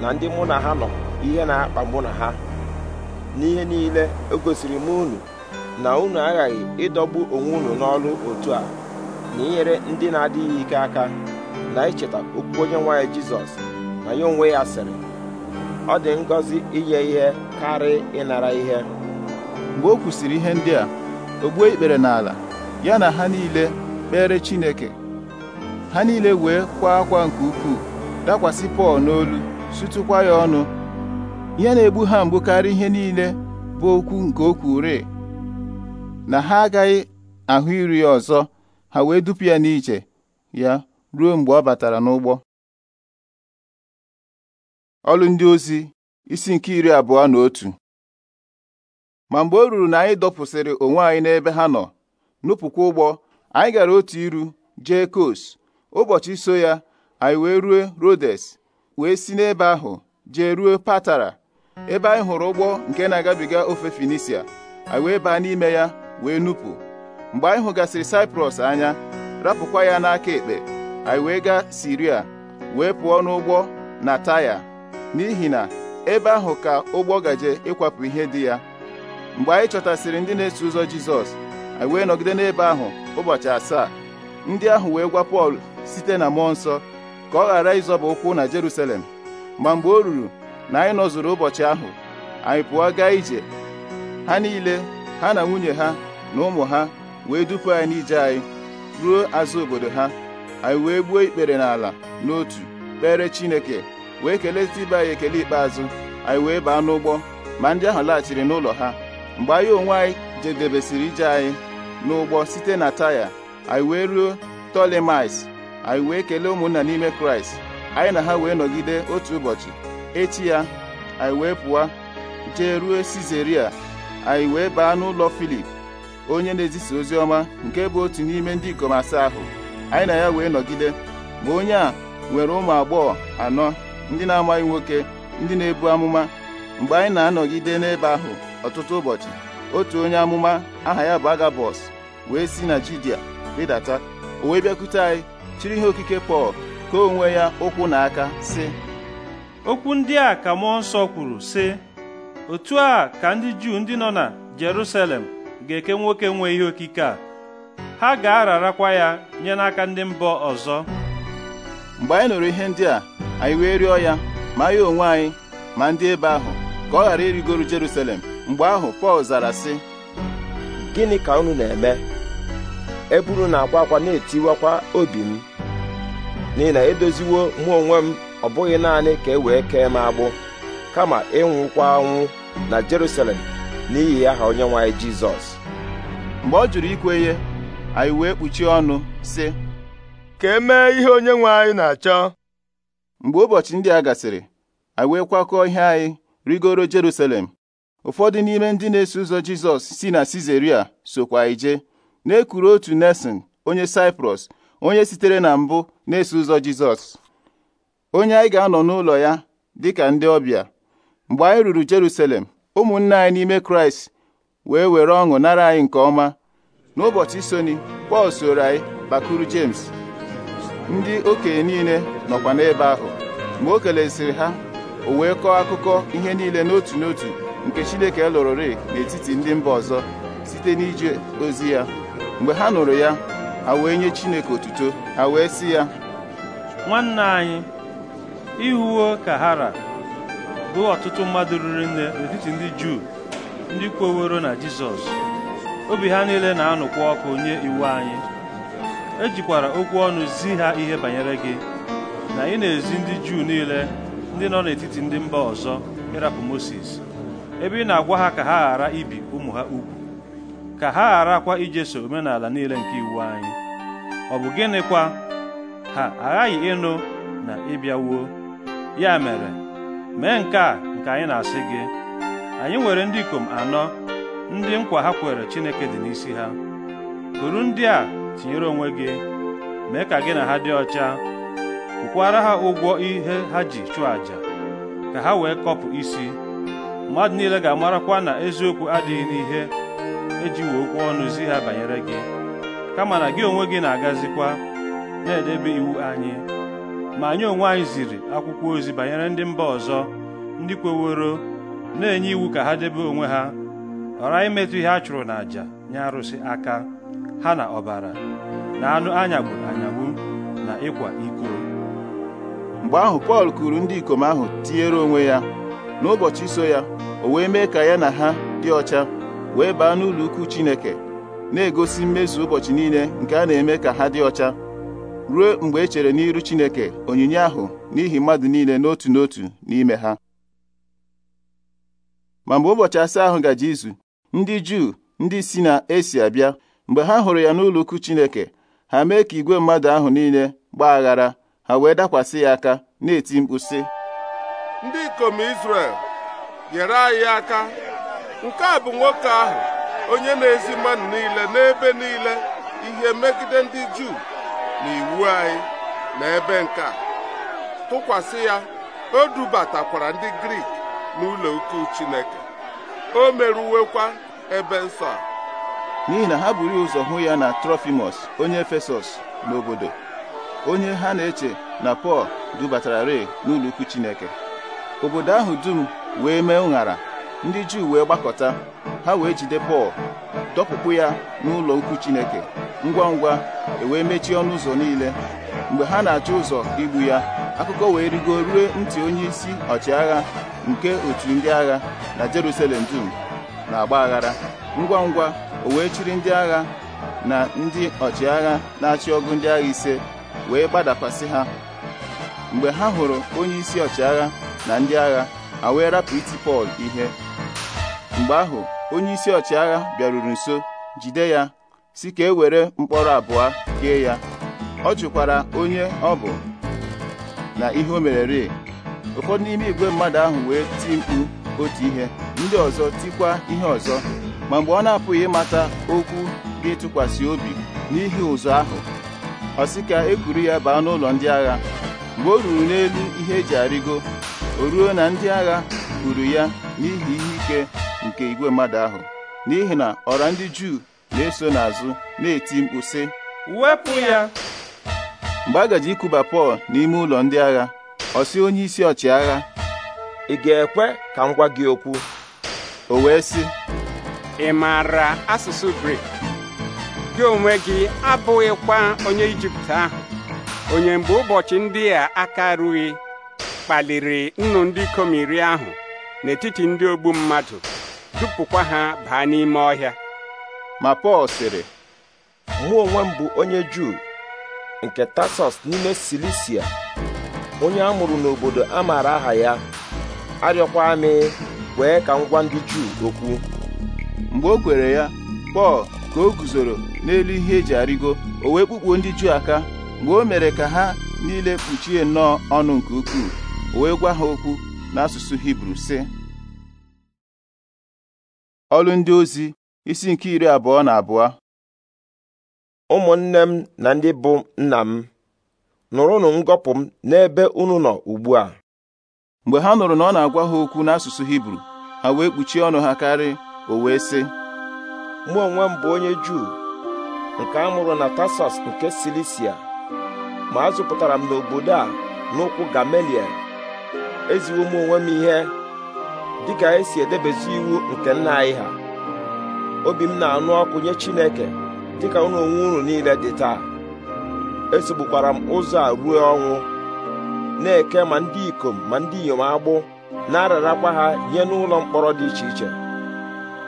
na ndị mụ na ha nọ ihe na-akpa mụ na ha n'ihe niile o e gosiri m unu na unu aghaghị ịdọgbu onwe unu n'ọrụ otu a na inyere ndị na-adịghị ike aka na icheta okwu onye nwanyị jizọs na ya onwe ya sịrị ọ dị ngọzi inye ihe karịa ịnara ihe mgbe o kwusịrị ihe ndị a o gbuo ikpere n'ala ya na ha niile kpere chineke ha niile wee kwa akwa nke ukwuu dakwasị pọl n'olu sụtụkwa ya ọnụ ihe na-egbu ha mgbu karịa ihe niile bụ okwu nke okwu kwure na ha agaghị ahụ iri ya ọzọ ha wee dupu ya n'iche ya ruo mgbe ọ batara n'ụgbọ ọlụ ndị ozi isi nke iri abụọ na otu ma mgbe o ruru na anyị dọpụsịrị onwe anyị n'ebe ha nọ nupụkwa ụgbọ anyị gara otu iru jee kos ụbọchị so ya anyị wee rue rodes wee si n'ebe ahụ jee ruo patara ebe anyị hụrụ ụgbọ nke na-agabiga ofe Finisia anyị wee baa n'ime ya wee nupụ mgbe anyị hụgasịrị Saịprọs anya rapụkwa ya n'aka ekpe anyị wee gaa Siria wee pụọ n'ụgbọ na Taya n'ihi na ebe ahụ ka ụgbọ gaje ịkwapụ ihe dị ya mgbe anyị chọtasịrị ndị na-eso ụzọ Jizọs anyị wee nọgide n'ebe ahụ ụbọchị asaa ndị ahụ wee gwa Pọl site na mmụọ nsọ ka ọ ghara ịzọba ụkwụ na Jeruselem, ma mgbe o ruru na anyị nọzuru ụbọchị ahụ anyị pụọ gaa ije ha niile ha na nwunye ha na ụmụ ha wee dupu anyị n'ije anyị ruo azụ obodo ha anyị wee gbuo ikpere n'ala n'otu kpere Chineke wee kelee ibe anyị ekele ikpeazụ anyị wee baa n'ụgbọ ma ndị ahụ laghachiri n'ụlọ ha mgbe anyị onwe anyị jedebesịrị ije anyị n'ụgbọ site na taya anyị wee ruo tolemais anyị wee kelee ụmụnna n'ime kraịst anyị na ha wee nọgide otu ụbọchị echi ya anyị wee pụọ jee ruo Sizeria anyị wee baa n'ụlọ Filip onye na-ezisa ozi ọma nke bụ otu n'ime ndị ikom asaa ahụ anyị na ya wee nọgide ma onye a nwere ụmụ agbọghọ anọ ndị na-amaghị nwoke ndị na-ebu amụma mgbe anyị na-anọgide n'ebe ahụ ọtụtụ ụbọchị otu onye amụma aha ya bụ Agabọs wee si na Judia rịdata o wee bịakwute anyị chiri ihe okike Pọl ka onwe ya ụkwụ na aka sị okwu ndị a ka Mụọ nsọ kwuru sị otu a ka ndị juu ndị nọ na Jerusalem ga-eke nwoke nwe ihe okike a ha ga-ararakwa ya nye n'aka ndị mbọ ọzọ mgbe anyị nụrụ ihe ndị a anyị wee rịọ ya ma ya onwe anyị ma ndị ebe ahụ ka ọ ghara irigoro Jerusalem mgbe ahụ Pọl zara sị gịnị ka unu na-eme eburu na-akwa akwa na-etiwakwa obi m n'ihi na edoziwo mụ onwe m ọ bụghị naanị ka e wee kee m agbụ kama ịnwụkwa anwụ na Jerusalem n'ihi aha onyenwe anyị Jizọs mgbe ọ jụrụ ikwe ihe anyị wee kpuchie ọnụ sị ka e mee ihe onyenwe anyị na-achọ mgbe ụbọchị ndị a gasịrị anyị wee kwakọọ ihe anyị rigoro Jerusalem ụfọdụ n'ime ndị na-eso ụzọ Jizọs si na Sizaria sokwa ije, jee na-ekuru otu Nesin onye Saịprọs onye sitere na mbụ na-eso ụzọ Jizọs onye anyị ga-anọ n'ụlọ ya dịka ndị ọbịa mgbe anyị ruru Jerusalem ụmụnne anyị n'ime Kraịst wee were ọṅụ nara anyị nke ọma n'ụbọchị soni Pọl soro anyị bakuru James ndị okenye niile nọkwa n'ebe ahụ Mgbe o keleziri ha o wee kọọ akụkọ ihe niile n'otu n'otu nke Chineke lụrụrị n'etiti ndị mba ọzọ site n'ije ozi ya mgbe ha nụrụ ya ha wee nye Chineke otuto ha wee sị ya nwanne anyị ihuwo kahara bụ ọtụtụ mmadụ ruru nne n'etiti ndị juu ndị kwoworo na jizọs obi ha niile na-anụkwa ọkụ nye iwu anyị ejikwara okwu ọnụ zi ha ihe banyere gị na ị na-ezi ndị juu niile ndị nọ n'etiti ndị mba ọzọ ịrapụ Mosis ebe ị na-agwa ha ka ha ghara ibi ụmụ ha ugwu ka ha gharakwa ijeso omenala niile nke iwu anyị ọ bụ gịnịkwa ha aghaghị ịnụ na ịbịawuo ya mere mee nke a nke anyị na-asị gị anyị nwere ndị ikom anọ ndị nkwa ha kwere Chineke dị n'isi ha kuru ndị a tinyere onwe gị mee ka gị na ha dị ọcha kwukwara ha ụgwọ ihe ha ji chụọ àjà ka ha wee kọpụ isi mmadụ niile ga-amarakwa na eziokwu adịghị n'ihe ejiwe okwu ọnụ zi ha banyere gị kama na gị onwe gị na-agazikwa na-edebe iwu anyị ma anyị onwe anyị ziri akwụkwọ ozi banyere ndị mba ọzọ ndị kweworo na-enye iwu ka ha debe onwe ha ghara imetụ ihe a chụrụ n'àjà nye arụsị aka ha na ọbara na anụ anyagburu anyagbu na ịkwa iko mgbe ahụ Pọl kuru ndị ikom ahụ tinyere onwe ya n'ụbọchị so ya o wee mee ka ya na ha dị ọcha wee baa n'ụlọ ukwu Chineke na-egosi mmezu ụbọchị niile nke a na-eme ka ha dị ọcha ruo mgbe e chere n'iru Chineke onyinye ahụ n'ihi mmadụ niile n'otu n'otu n'ime ha ma mgbe ụbọchị asaa ahụ gaje izu ndị Juu ndị si na esi abịa mgbe ha hụrụ ya n'ụlọ ukwu Chineke ha mee ka igwe mmadụ ahụ niile gbaa aghara ha wee dakwasị ya aka na-eti mkpu sị ndị ikom Izrel nyere anyị aka nke a bụ nwoke ahụ onye na-ezi mmadụ niile n'ebe niile ihe megide ndị Juu na anyị na ebe nke a tụkwasị ya o dubatakwara ndị grik n'ụlọ ukwu chineke o merụwekwa ebe nsọ a n'ihi na ha buru ụzọ hụ ya na Trofimus, onye efesọs n'obodo onye ha na-eche na pọl dubatara rei n'ụlọ ukwu chineke obodo ahụ dum wee mee ụṅara ndị juu wee gbakọta ha wee jide pọl dọpụpụ ya n'ụlọ ukwu Chineke ngwa ngwa ewee mechie ọnụ ụzọ niile mgbe ha na-achọ ụzọ igbu ya akụkọ wee rigo rue ntị onye isi ọchịagha nke otu ndị agha na Jerusalem dum na-agba aghara ngwa ngwa o wee chiri ndị agha na ndị ọchịagha na-achị ọgụ ndị agha ise wee gbadakwasị ha mgbe ha hụrụ onye isi ọchịagha na ndị agha ha wee rapụ Pọl ihe mgbe ahụ onye isi ọchịagha bịaruru nso jide ya si ka e were mkpọrọ abụọ kee ya ọ jụkwara onye ọ bụ na ihe o mere mereri ụfọdụ n'ime igwe mmadụ ahụ wee ti mkpu otu ihe ndị ọzọ tikwa ihe ọzọ ma mgbe ọ na-apụghị ịmata okwu dị ịtụkwasị obi n'ihi ụzọ ahụ ọ sị ka e ya baa n'ụlọ ndị agha mgbe o ruru n'elu ihe eji arịgo o ruo na ndị agha kwuru ya n'ihi ihe ike nke igwe mmadụ ahụ n'ihi na ọra ndị Juu na-eso n'azụ na-eti mkpu sị wepụ ya mgbe a gaji ikuba Pọl n'ime ụlọ ndị agha ọsi onyeisi onye isi ọchịagha ị ga-ekwe ka m gwa gị okwu o wee sị ị maara asụsụ Grik gị onwe gị abụghịkwa onye Ijipt ahụ onye mgbe ụbọchị ndị a aka rughị kpaliri nnu ndị ikom iri ahụ n'etiti ndị ogbu mmadụ dupụkwa ha baa n'ime ọhịa ma Pọl sịrị mụ onwe m bụ onye Juu nke Tasọs n'ime Silisia onye a mụrụ n'obodo a maara aha ya arịọkwa m kwee ka m gwa ndị Juu okwu mgbe o kwere ya Pọl ka o guzoro n'elu ihe eji arịgo o wee kpukpuo ndị Juu aka mgbe o mere ka ha niile kpuchie nnọọ ọnụ nke ukwuu o wee gwa ha okwu n'asụsụ Hibru sị ọlụ ndị ozi isi nke iri abụọ na abụọ ụmụnne m na ndị bụ nna m nụrụnụ ngọpụ m n'ebe unu nọ ugbu a mgbe ha nụrụ na ọ na-agwa ha okwu n'asụsụ hibru ha wee kpuchie ọnụ ha karị o wee sị mụ onwe m bụ onye juu nke a mụrụ na tasọs nke silisia ma azụpụtara m n'obodo a n'ụkwụ gamaliel eziwo m onwe m ihe dịka anyị e si edebezi iwu nke nna anyị ha obi m na-anụ ọkụ nye Chineke dịka unu onwe unu niile dị taa esogbukwara m ụzọ a ruo ọnwụ na-eke ma ndị ikom ma ndị inyom agbụ na-ararakwa ha nye n'ụlọ mkpọrọ dị iche iche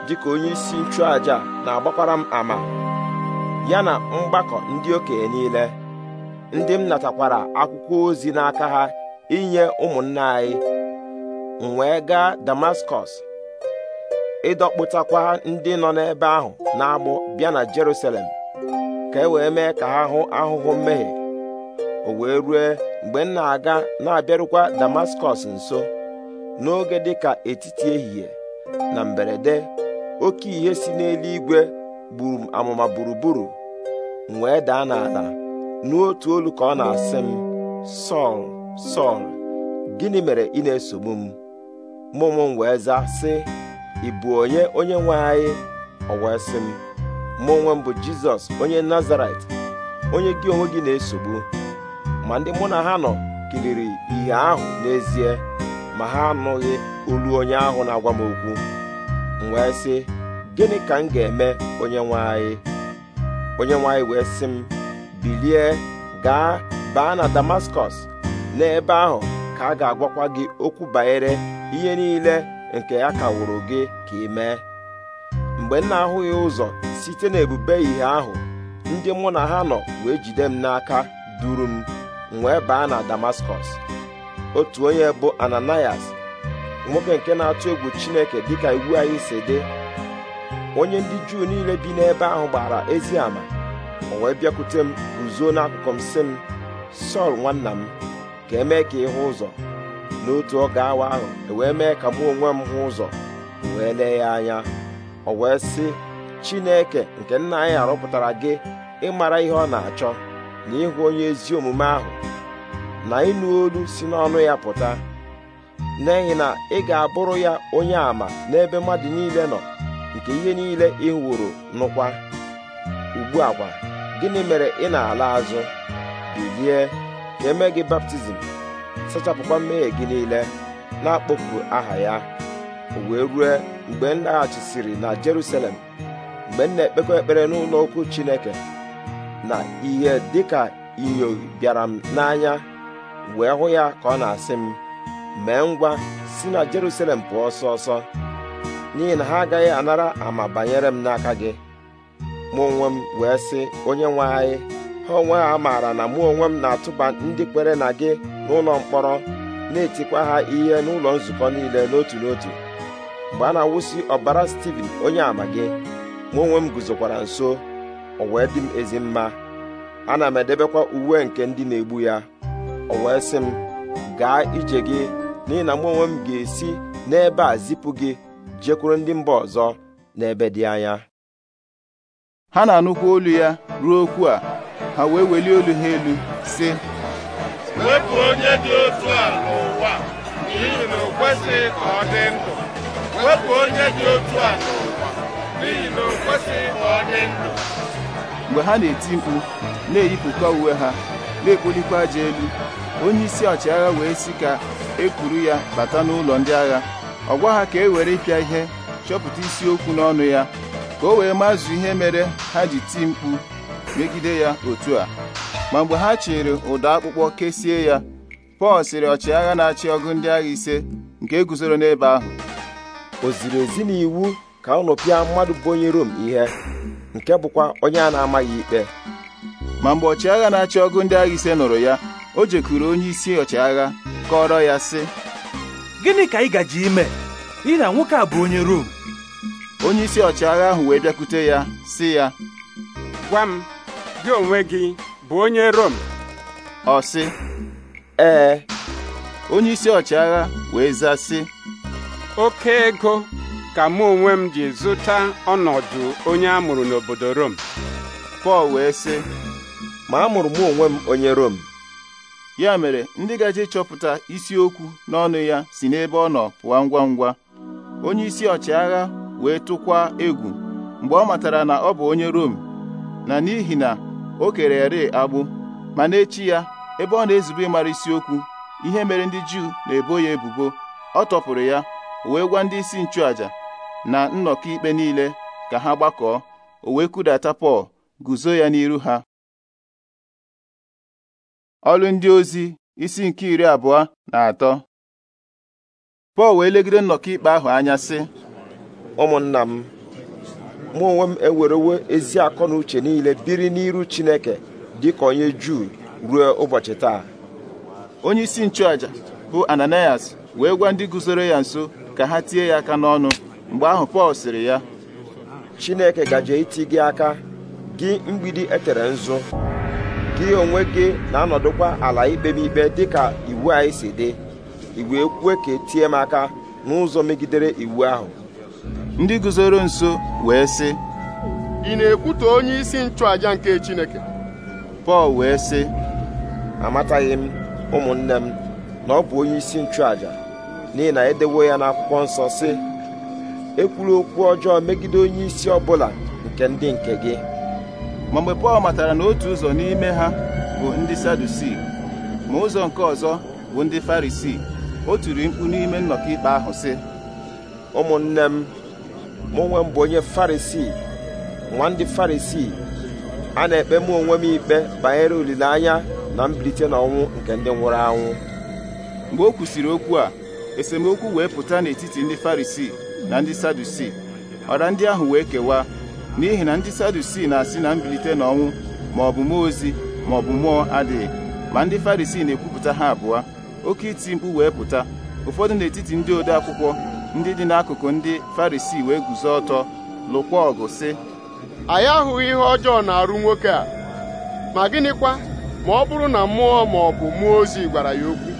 dịka onye isi nchụaja na-agbakwara m ama ya na mgbakọ ndị okenye niile ndị m natakwara akwụkwọ ozi n'aka ha inye ụmụnna anyị m wee gaa damaskọs ịdọkpụtakwa ndị nọ n'ebe ahụ na-agbụ bịa na jerusalem ka e wee mee ka ha hụ ahụhụ mmehie o wee rue mgbe m na-aga na-abịarụkwa damaskọs nso n'oge dịka etiti ehihie na mberede oke ihe si n'eluigwe gburu amama amụma gburugburu m wee daa n'ala n'otu olu ka ọ na-asị m sọl sọl gịnị mere ị na-esogbu m mụ m wee zaa sị ị bụ onye onye nwe anyị ọ wee sị m mụ m bụ jizọs onye nazaret onye gị onwe gị na-esogbu ma ndị mụ na ha nọ kiriri ihe ahụ n'ezie ma ha anụghị olu onye ahụ na-agwa m okwu m wee sị gịnị ka m ga-eme onye nwe anyị onye nwe anyị wee sị m bilie gaa baa na damaskọs n'ebe ahụ ka a ga-agwakwa gị okwu banyere ihe niile nke ya kawụrụ gị ka ị mee mgbe m na-ahụghị ụzọ site n'ebube ihe ahụ ndị mụ na ha nọ wee jide m n'aka duru m wee baa na Damaskọs otu onye bụ Ananias nwoke nke na-atụ egwu Chineke dịka iwu anyị si dị onye ndị Juu niile bi n'ebe ahụ gbara ezi ama o wee bịakwute m guzo n'akụkụ m sị m Sọl nwanna m ka emee ka ịhụ ụzọ n'otu oge awa ahụ ewee mee ka mụ onwe m hụ ụzọ wee lee ya anya o wee sị Chineke nke nna anyị arụpụtara gị ịmara ihe ọ na-achọ na ịhụ onye ezi omume ahụ na ịnụ olu si n'ọnụ ya pụta n'ihi na ị ga-abụrụ ya onye àmà n'ebe mmadụ niile nọ nke ihe niile ị hụrụ nụkwa ugbu a kwa gịnị mere ị na-ala azụ bilie ka eme gị baptizim sachapụkwa mmehie gị niile na-akpọpụ aha ya wee rue mgbe m laghachisiri na Jerusalem mgbe m na-ekpekọ ekpere n'ụlọ okwu Chineke na ihe dịka inyo bịara m n'anya wee hụ ya ka ọ na-asị m mee ngwa si na Jerusalem pụọ ọsọ ọsọ n'ihi na ha agaghị anara ama banyere m n'aka gị mụ onwe m wee sị onye nwe anyị ha onwe ha maara na mụ onwe m na-atụba ndị kwere na gị n'ụlọ mkpọrọ na-etikwa ha ihe n'ụlọ nzukọ niile n'otu n'otu mgbe a na-awụsị ọbara Steven onye ama gị mụ onwe m guzokwara nso o wee dị m ezi mma ana m edebekwa uwe nke ndị na-egbu ya o wee sị m gaa ije gị n'ihi na mụ onwe m ga-esi n'ebe a zipụ gị jekwuru ndị mba ọzọ n'ebe dị anya ha na-anụkwa olu ya ruo okwu a ha wee welie olu ha elu sị wepụ onye dị otu a n'ụwa n'ihi na o kwesịghị ka ọ dị ndụ wepụ onye dị otu a n'ụwa n'ihi na o kwesịghị ka ọ dị ndụ mgbe ha na-eti mkpu na-eyipụkwa uwe ha na-ekpolikwa aja elu onye isi ọchịagha wee sị ka e kwuru ya bata n'ụlọ ndị agha ọ gwa ha ka e were ịpịa ihe chọpụta isiokwu n'ọnụ ya ka o wee mazụ ihe mere ha ji ti mkpu megide ya otu a ma mgbe ha chịrị ụdọ akpụkpọ kesie ya Pọl sịrị ọchịagha na-achị ọgụ ndị agha ise nke e guzoro n'ebe ahụ o ziri ezi n'iwu ka unu pịa mmadụ bụ onye Rom ihe nke bụkwa onye a na-amaghị ikpe ma mgbe ọchịagha na-achị ọgụ ndị agha ise nụrụ ya o jekuru onye isi ọchịagha kọrọ ya sị gịnị ka ị gaji ime ị na nwoke a bụ onye Rom onye isi ọchịagha ahụ wee bịakwute ya si ya gwa m gị onwe gị bụ onye Rom ọ sị ee onye isi ọchịagha wee za, sị oke ego ka mụ onwe m ji zụta ọnọdụ onye amụrụ n'obodo Rom Pọl wee sị ma mụrụ m onwe m onye Rom ya mere ndị ga gaje chọpụta isiokwu n'ọnụ ya si n'ebe ọ nọ pụọ ngwa ngwa onye isi ọchịagha wee tụkwa egwu mgbe ọ matara na ọ bụ onye Rom na n'ihi na o kere ere agbụ ma n'echi ya ebe ọ na-ezube ịmara isiokwu ihe mere ndị Juu na-ebo ya ebubo ọ tọpụrụ ya wee gwa ndị isi nchụaja na nnọkọ ikpe niile ka ha gbakọọ o wee kudata Pọl guzo ya n'iru ha ọlụ ndị ozi isi nke iri abụọ na atọ Pọl wee legide nnọkọ ikpe ahụ anya sị ụmụnna m mụ onwe m ewerewo ezi akọ na uche niile biri n'iru Chineke dị ka onye Juu ruo ụbọchị taa onye isi nchụaja bụ Ananias wee gwa ndị guzoro ya nso ka ha tie ya aka n'ọnụ mgbe ahụ Pọl sịrị ya Chineke gaje iti gị aka gị mgbidi etere nzu gị onwe gị na-anọdụkwa ala ikpe m ikpe dịka iwu anyị si dị i wee kwue ka etie m aka n'ụzọ megidere iwu ahụ ndị guzoro nso wee sị ị na-ekwutọ onye isi nchụaja nke Chineke Pọl wee sị amataghị m ụmụnne m na ọ bụ onye isi nchụaja n'ihi na edewo ya n'akwụkwọ nsọ sị ekwuru okwu ọjọọ megide onye isi ọbụla nke ndị nke gị ma mgbe Pọl matara na otu ụzọ n'ime ha bụ ndị Sadusii ma ụzọ nke ọzọ bụ ndị Farisii o tiri mkpu n'ime nnọkọ ikpe ahụ sị ụmụnne m mụ onwe m bụ onye farisii nwa ndị farisii a na-ekpe mụ onwe m ikpe banyere olileanya na mbilite n'ọnwụ nke ndị nwụrụ anwụ mgbe o kwusịrị okwu a esemokwu wee pụta n'etiti ndị farisii na ndị sadusii ọra ndị ahụ wee kewaa n'ihi na ndị sadusii na-asị na mbilite n'ọnwụ ma ọ bụ mmụọ ozi ma ọ bụ mmụọ adịghị ma ndị farisii na-ekwupụta ha abụọ oke iti mkpu wee pụta ụfọdụ n'etiti ndị ode akwụkwọ ndị dị n'akụkụ ndị Farisi wee guzo ọtọ lụkwa ọgụ si anyị ahụghị ihe ọjọọ na-arụ nwoke a ma gịnịkwa ma ọ bụrụ na mmụọ ma ọ bụ mmụọ ozi gwara ya okwu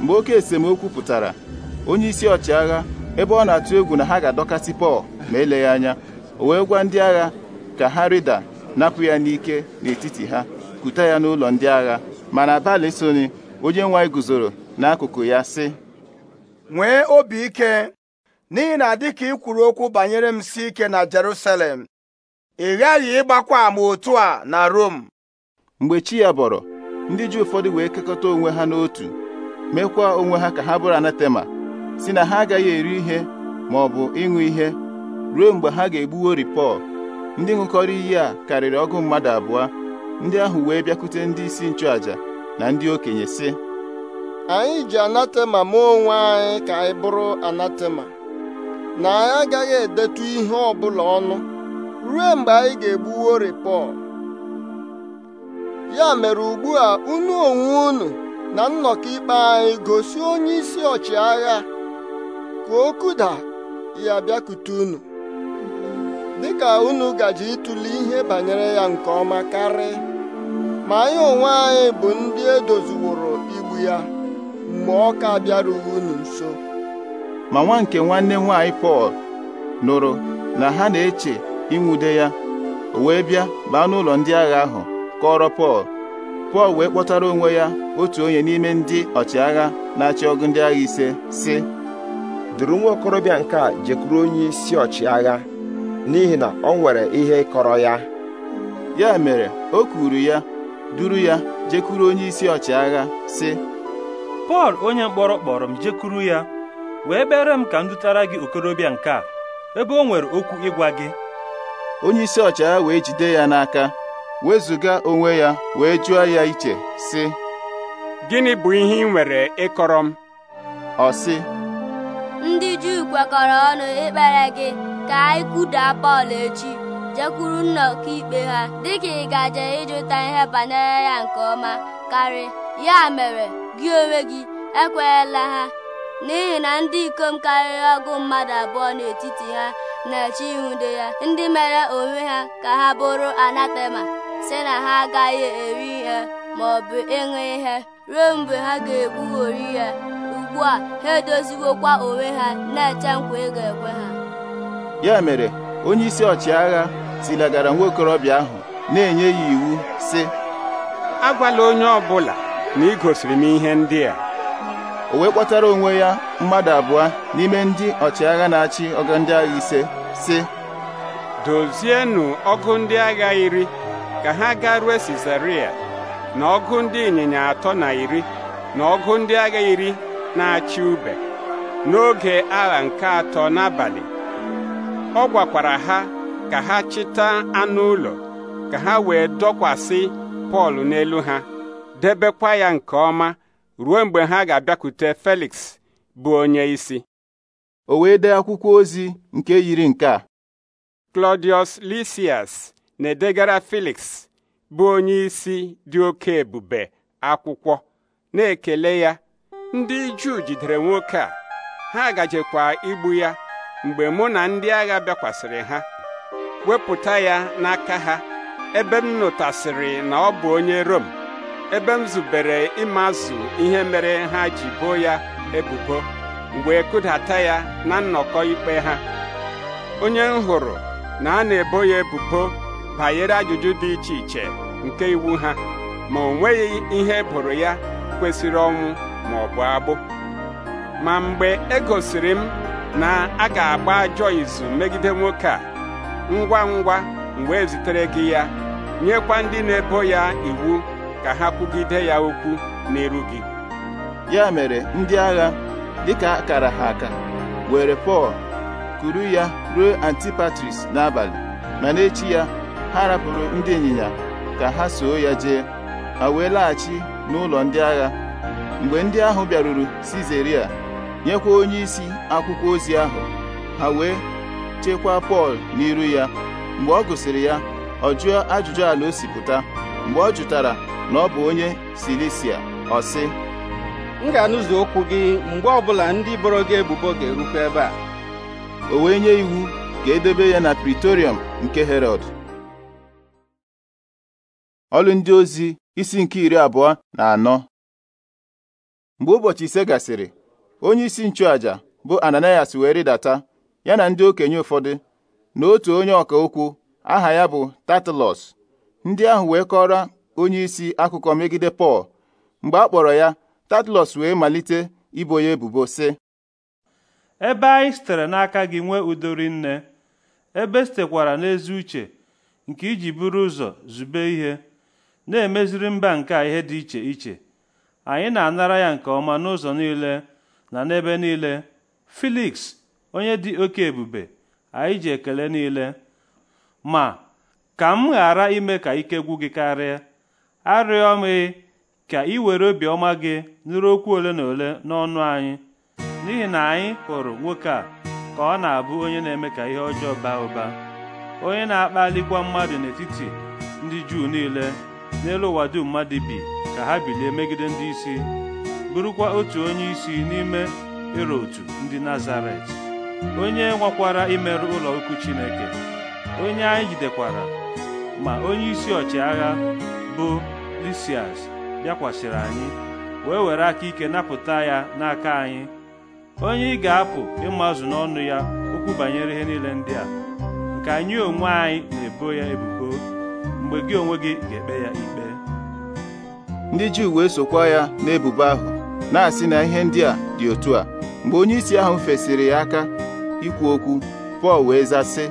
mgbe oke esemokwu pụtara onye isi ọchịagha ebe ọ na-atụ egwu na ha ga-adọkasị Pọl ma eleghị anya o wee gwa ndị agha ka ha rịda napụ ya n'ike n'etiti ha kute ya n'ụlọ ndị agha mana abalị soni onye nwaanyị anyị guzoro n'akụkụ ya sị nwee obi ike n'ihi na dịka ị kwuru okwu banyere m si ike na Jerusalem ị ghaghị ịgbakwa ama otu a na Rom mgbe chi ya bọrọ ndị ji ụfọdụ wee kekọta onwe ha n'otu mekwa onwe ha ka ha bụrụ anatema si na ha agaghị eri ihe ma ọ bụ ịṅụ ihe ruo mgbe ha ga egbuwo Pọl ndị ṅụkọrọ iyi a karịrị ọgụ mmadụ abụọ ndị ahụ wee bịakwute ndị isi nchụàjà na ndị okenye sị anyị ji anatema ma onwe anyị ka anyị bụrụ anatema na anyị agaghị edetu ihe ọbụla ọnụ ruo mgbe anyị ga-egbuwo repọl ya mere ugbua, a unu onwe unu na nnọkọ ikpe anyị gosi onye isi ọchịagha ka o kuda ya bịakute unu dịka unu gaji ịtụle ihe banyere ya nke ọma karị ma anyị onwe anyị bụ ndị edoziworo igbu ya mgbe ọ ka bịarughị unu nso ma nwa nke nwanne nwanyị Pọl nụrụ na ha na-eche ịnwude ya o wee bịa baa n'ụlọ ndị agha ahụ kọrọ Pọl Pọl wee kpọtara onwe ya otu onye n'ime ndị ọchịagha na-achị ọgụ ndị agha ise sị duru nwa okorobịa nke a jekwuru onye isi ọchịagha n'ihi na ọ nwere ihe kọrọ ya ya mere o kwuru ya duru ya jekwuru onye isi ọchịagha sị pọl onye mkpọrọ kpọrọ m jekuru ya wee bere m ka m dutara gị okorobịa nke a ebe o nwere okwu ịgwa gị onye isi ọchịagha wee jide ya n'aka wezụga onwe ya wee jụọ ya iche sị gịnị bụ ihe ị nwere ịkọrọ m ọ sị ndị Juu kwekọrọ ọnụ ikpere gị ka anyị kwudaa Pọl echi jekwuru nna ikpe ha dịka ị gaje ịjụta ihe banyere ya nke ọma karị ya mere gị onwe gị ekwenyela ha n'ihi na ndị ikom karịrị ọgụ mmadụ abụọ n'etiti ha na-eche ihude ya ndị mere onwe ha ka ha bụrụ anatema si na ha agaghị eri ihe ma ọ bụ ịṅụ ihe ruo mgbe ha ga-ekpughori ya ugbu a ha edoziwokwa onwe ha na-eche nkwa ị ga-ekwe ha ya mere onye isi ọchịagha tilagara nwa okorobịa ahụ na-enye ya iwu sị agwala onye ọbụla na igosiri m ihe ndị a o wee kpọtara onwe ya mmadụ abụọ n'ime ndị ọchịagha na-achị ọgụ ndị agha ise sị dozienụ ọgụ ndị agha iri ka ha rue Sizaria na ọgụ ndị ịnyịnya atọ na iri na ọgụ ndị agha iri na-achị ube n'oge agha nke atọ n'abalị ọ gwakwara ha ka ha chịta anụ ụlọ ka ha wee dọkwasị Pọl n'elu ha debekwa ya nke ọma ruo mgbe ha ga-abịakwute Felix bụ onye isi o wee dee akwụkwọ ozi nke yiri nke a Claudius Lysias na-edegara Felix bụ onye isi dị oke ebube akwụkwọ na-ekele ya ndị Juu jidere nwoke a ha gajekwa igbu ya mgbe mụ na ndị agha bịakwasịrị ha wepụta ya n'aka ha ebe m nụtasịrị na ọ bụ onye Rom ebe m zubere ịmazụ ihe mere ha ji boo ya ebubo wee e kụdata ya na nnọkọ ikpe ha onye m hụrụ na a na-ebo ya ebubo banyere ajụjụ dị iche iche nke iwu ha ma o nweghị ihe eboro ya kwesịrị ọnwụ ma ọ bụ agbụ ma mgbe e gosiri m na a ga-agba ajọ izu megide nwoke a ngwa ngwa m wee zitere gị ya nyekwa ndị na-ebo ya iwu ka ha kwugide ya okwu n'iru gị ya mere ndị agha dịka akara ha aka were Pọl kuru ya ruo Antipatris n'abalị ma echi ya ha rapụrụ ndị ịnyịnya ka ha soo ya jee ha wee laghachi n'ụlọ ndị agha mgbe ndị ahụ bịaruru Sizeria nyekwa isi akwụkwọ ozi ahụ ha wee chekwaa Pọl n'iru ya mgbe ọ gụsịrị ya ọ jụọ ajụjụ ala o mgbe ọ jụtara na ọ bụ onye Silisia ọ sị m ga-anụzi okwu gị mgbe ọbụla ndị boro gị ebubo ga-erukwa ebe a o wee nye iwu ka edebe ya na Pritorium nke Herọd ọlụ ndị ozi isi nke iri abụọ na anọ mgbe ụbọchị ise gasịrị onye isi nchụaja bụ Ananias wee rịdata ya na ndị okenye ụfọdụ na otu onye ọka okwu aha ya bụ Tatalọs ndị ahụ wee kọrọ onye isi akụkọ megide Pọl mgbe a kpọrọ ya Tatlọs wee malite ibo ya ebubo sị ebe anyị sitere n'aka gị nwee udo nne ebe sitekwara n'ezi uche nke iji buru ụzọ zube ihe na-emeziri mba nke a ihe dị iche iche anyị na-anara ya nke ọma n'ụzọ niile na n'ebe niile Filiks onye dị oke ebube anyị ji ekele niile ma ka m ghara ime ka ike gwụ gị karịa arịọ m ka ị were obiọma gị nụrụ okwu ole na ole n'ọnụ anyị n'ihi na anyị hụrụ nwoke a ka ọ na-abụ onye na-eme ka ihe ọjọọ baa ụba onye na-akpalikwa mmadụ n'etiti ndị Juu niile n'elu ụwa dum mmadụ bi ka ha bilie megide ndị isi bụrụkwa otu onye isi n'ime Irotu ndị Nazaret onye nwakwara imerụ ụlọ ukwu Chineke onye anyị jidekwara ma onyeisi ọchịagha bụ Lisias bịakwasịrị anyị wee were aka ike napụta ya n'aka anyị onye ị ga-apụ ịmazụ n'ọnụ ya okwu banyere ihe niile ndị a nke anyị onwe anyị na-ebo ya ebubo mgbe gị onwe gị ga-ekpe ya ikpe ndị Juu wee sokwa ya n'ebubo ahụ na-asị na ihe ndị a dị otu a mgbe onyeisi ahụ fesiri ya aka ikwu okwu Pọl wee zasị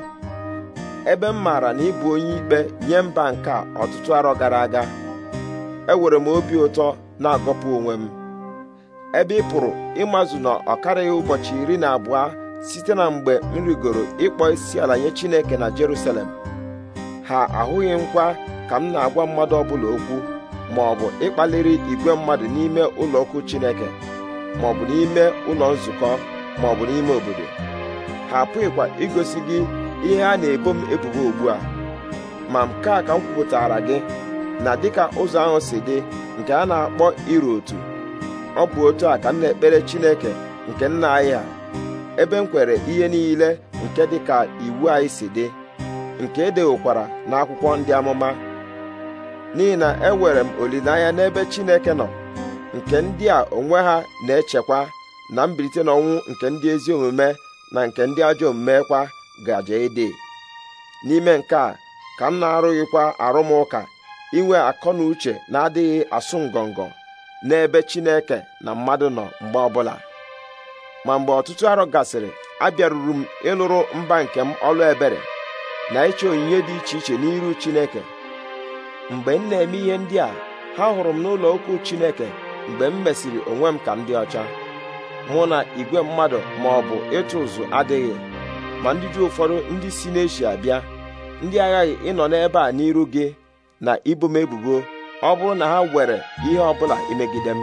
ebe m maara na ị bụ onye ikpe nye mba nke ọtụtụ arọ gara aga enwere m obi ụtọ na-agọpụ onwe m ebe ị pụrụ ịmazụ na ọ karịghị ụbọchị iri na abụọ site na mgbe m rigoro ịkpọ isi ala nye Chineke na Jerusalem ha ahụghị nkwa ka m na-agwa mmadụ ọbụla okwu ma ọ bụ ịkpaliri igwe mmadụ n'ime ụlọokwu Chineke ma ọ bụ n'ime ụlọ nzukọ ma ọ bụ n'ime obodo ha apụghịkwa igosi gị ihe a na-ebo m ebubo ugbu a ma nke a ka m kwupụtara gị na dịka ụzọ ahụ si dị nke a na-akpọ iru otu ọ bụ otu a ka m na-ekpere Chineke nke nna anyị a ebe m kwere ihe niile nke dịka iwu anyị si dị nke e dewokwara n'akwụkwọ ndị amụma n'ihi na enwere m olileanya n'ebe Chineke nọ nke ndị a onwe ha na-echekwa na mbilite n'ọnwụ nke ndị ezi omume na nke ndị ajọ omume kwa gaje ịdị n'ime nke a ka m na-arụghịkwa arụmụka inwe akọ na uche na-adịghị asụ ngọngọ n'ebe Chineke na mmadụ nọ mgbe ọbụla ma mgbe ọtụtụ arọ gasịrị abịaruru m ịlụrụ mba nke m ọlụ ebere na ịchọ onyinye dị iche iche n'iru Chineke mgbe m na-eme ihe ndị a ha hụrụ m n'ụlọ okwu Chineke mgbe m mesịrị onwe m ka m dị ọcha mụ na igwe mmadụ ma ọ bụ ịtụ ụzụ adịghị ma ndị ju ụfọdụ ndị si n'eshia bịa ndị aghaghị ịnọ n'ebe a n'iru gị na ibo m ebubo ọ bụrụ na ha were ihe ọbụla imegide m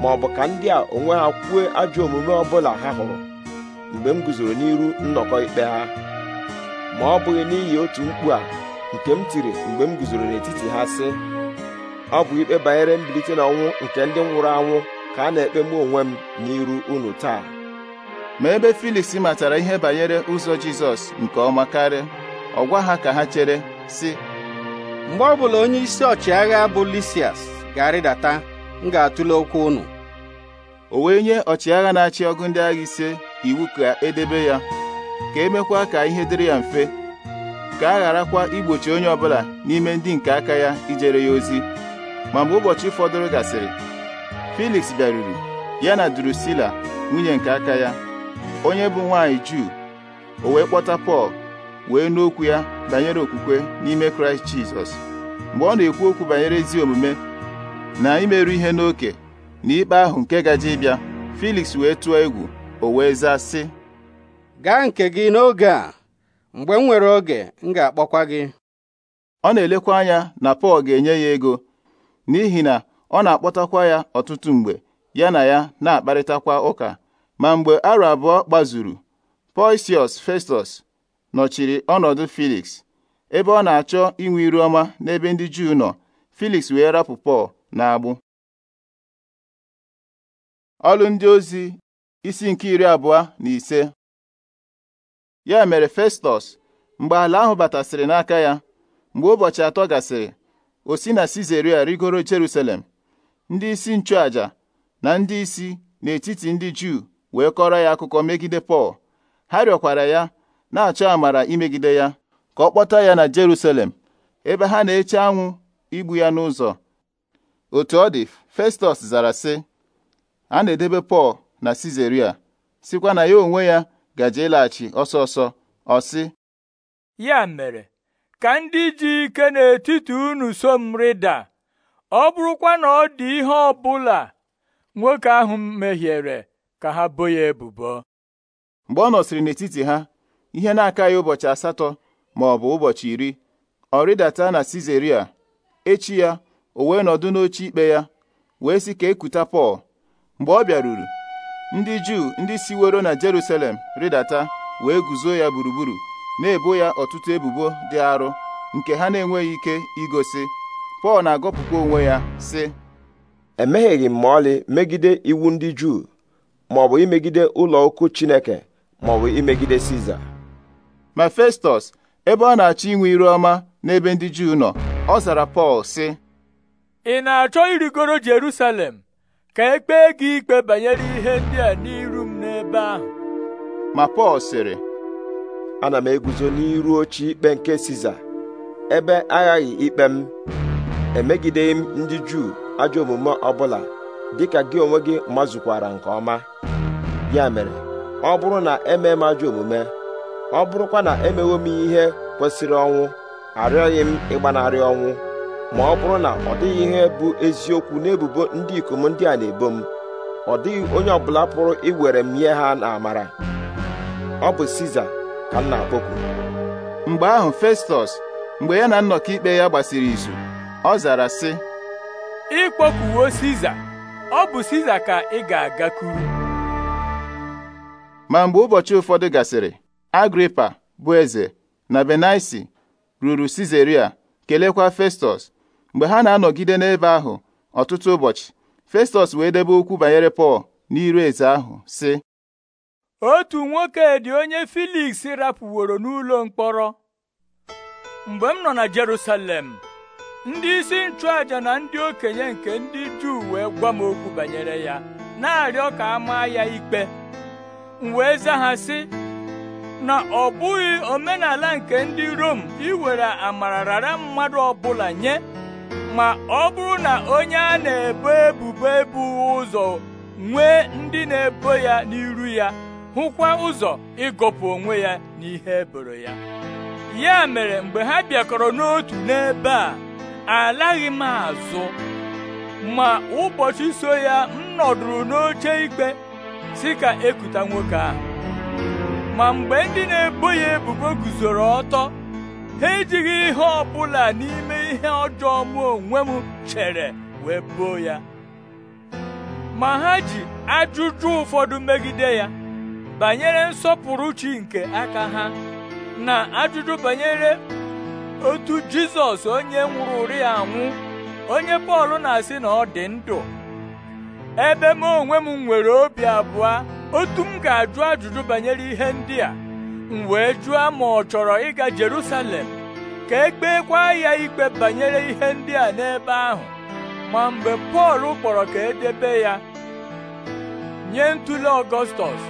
ma ọ bụ ka ndị a onwe ha kwuo ajọ omume ọbụla ha hụrụ mgbe m guzoro n'iru nnọkọ ikpe ha ma ọ bụghị n'ihi otu mkpu a nke m tiri mgbe m guzoro n'etiti ha sị ọ bụ ikpe banyere mbilite n'ọnwụ nke ndị nwụrụ anwụ ka a na-ekpe mụ onwe m n'iru unu taa ma ebe Filiks matara ihe banyere ụzọ Jizọs nke ọma karịa ọ gwa ha ka ha chere sị mgbe ọbụla onye isi ọchịagha bụ Lisias ga-arịdata m ga-atụle okwu unu o wee nye ọchịagha na-achị ọgụ ndị agha ise iwu ka edebe ya ka emekwa ka ihe dịrị ya mfe ka a gharakwa igbochi onye ọbụla n'ime ndị nke aka ya ijere ya ozi ma mgbe ụbọchị fọdụrụ gasịrị Felix bịaruru ya na Drusila nwunye nke aka ya onye bụ nwanyị juu o wee kpọta pọl wee n'okwu ya banyere okwukwe n'ime kraịst jizọs mgbe ọ na-ekwu okwu banyere ezi omume na imerụ ihe n'oke na ikpe ahụ nke gaje ịbịa filiks wee tụọ egwu o wee zaa sị gaa nke gị n'oge a mgbe m nwere oge m ga-akpọkwa gị ọ na-elekwa anya na pọl ga-enye ya ego n'ihi na ọ na-akpọtakwa ya ọtụtụ mgbe ya na ya na-akparịtakwa ụka ma mgbe arọ abụọ gbazuru Poisius Festus nọchiri ọnọdụ Felix ebe ọ na-achọ inwe iru ọma n'ebe ndị Juu nọ Felix wee rapụ Pọl agbụ ọlụ ndị ozi isi nke iri abụọ na ise ya mere Festus mgbe ala ahụ batasịrị n'aka ya mgbe ụbọchị atọ gasịrị o si na sizeria rigoro Jerusalem ndị isi nchụaja na ndị isi n'etiti ndị Juu wee kọrọ ya akụkọ megide Pọl ha rịọkwara ya na-achọ amara imegide ya ka ọ kpọta ya na Jerusalem ebe ha na-eche anwụ igbu ya n'ụzọ otu ọ dị Festus zara sị a na-edebe Pọl na Sizeria sikwa na ya onwe ya gaje ịlaghachi ọsọ ọsọ ọ sị ya mere ka ndị ji ike n'etiti unu so m rịda ọ bụrụkwa na ọ dị ihe ọ nwoke ahụ mehiere ka ha bo ya ebubo mgbe ọ nọsịrị n'etiti ha ihe na-akaghị ụbọchị asatọ ma ọ bụ ụbọchị iri ọ rịdata na Sizeria echi ya o wee nọdụ n'oche ikpe ya wee sị ka ekuta Pọl mgbe ọ bịaruru ndị Juu ndị siwero na Jeruselem rịdata wee guzo ya gburugburu na-ebo ya ọtụtụ ebubo dị arụ nke ha na-enweghị ike igosi Pọl na-agọpụkwa onwe ya sị emehieghị m ma ọlị megide iwu ndị Juu maọbụ imegide ụlọ ukwu Chineke maọbụ imegide Siza ma Festọs ebe ọ na-achọ inwe iru ọma n'ebe ndị Juu nọ ọ zara Pọl sị ị na-achọ irigoro Jerusalem ka e kpee gị ikpe banyere ihe ndị a n'iru m n'ebe ahụ ma Pọl sịrị ana m eguzo n'iru oche ikpe nke Siza ebe aghaghị ikpe m emegideghị m ndị Juu ajọ omume ọbụla dịka gị onwe gị mazụkwara nke ọma ya mere ọ bụrụ na eme m ajọ omume ọ bụrụkwa na emewo m ihe kwesịrị ọnwụ arịọghị m ịgbanarị ọnwụ ma ọ bụrụ na ọ dịghị ihe bụ eziokwu n'ebubo ndị ikom ndị a na-ebo m ọ dịghị onye ọbụla pụrụ iwere m nye ha n'amara ọ bụ Siza ka m na-akpọkwu mgbe ahụ Festọs mgbe ya na nnọkọ ikpe ya gbasiri izu ọ zara sị ịkpọkuwo Siza ọ bụ Siza ka ị ga-agakwuru ma mgbe ụbọchị ụfọdụ gasịrị agripa bụ eze na benaisi ruru sizeria kelekwa festus mgbe ha na-anọgide n'ebe ahụ ọtụtụ ụbọchị festus wee debe okwu banyere pọl n'iru eze ahụ sị otu nwoke dị onye filiks rapụworo n'ụlọ mkpọrọ mgbe m nọ na jerusalem ndị isi nchụaja na ndị okenye nke ndị juu wee gwa m okwu banyere ya na-arịọ ka a maa ya ikpe m wee na ọ bụghị omenala nke ndị Rom iwere amara rara mmadụ ọbụla nye ma ọ bụrụ na onye a na-ebo ebubo ebu ụzọ nwee ndị na-ebo ya n'iru ya hụkwa ụzọ ịgọpụ onwe ya n'ihe eboro ya ya mere mgbe ha bịakọrọ n'otu n'ebe a alaghị m azụ ma ụbọchị so ya m nọdụrụ n'oche ikpe si ka ekuta nwoke ahụ ma mgbe ndị na-ebo ya ebubo guzoro ọtọ ha ejighị ihe ọ bụla n'ime ihe ọjọọ mụ onwe m chere wee boo ya ma ha ji ajụjụ ụfọdụ megide ya banyere nsọpụrụ chi nke aka ha na ajụjụ banyere otu Jizọs onye nwụrụ ụri anwụ onye Pọl na-asị na ọ dị ndụ ebe m onwe m nwere obi abụọ otu m ga-ajụ ajụjụ banyere ihe ndị a m wee jụọ ma ọ chọrọ ịga Jerusalem ka e kwa ya ikpe banyere ihe ndị a n'ebe ahụ ma mgbe Pọl kpọrọ ka edebe ya nye ntuli Ọgọstọs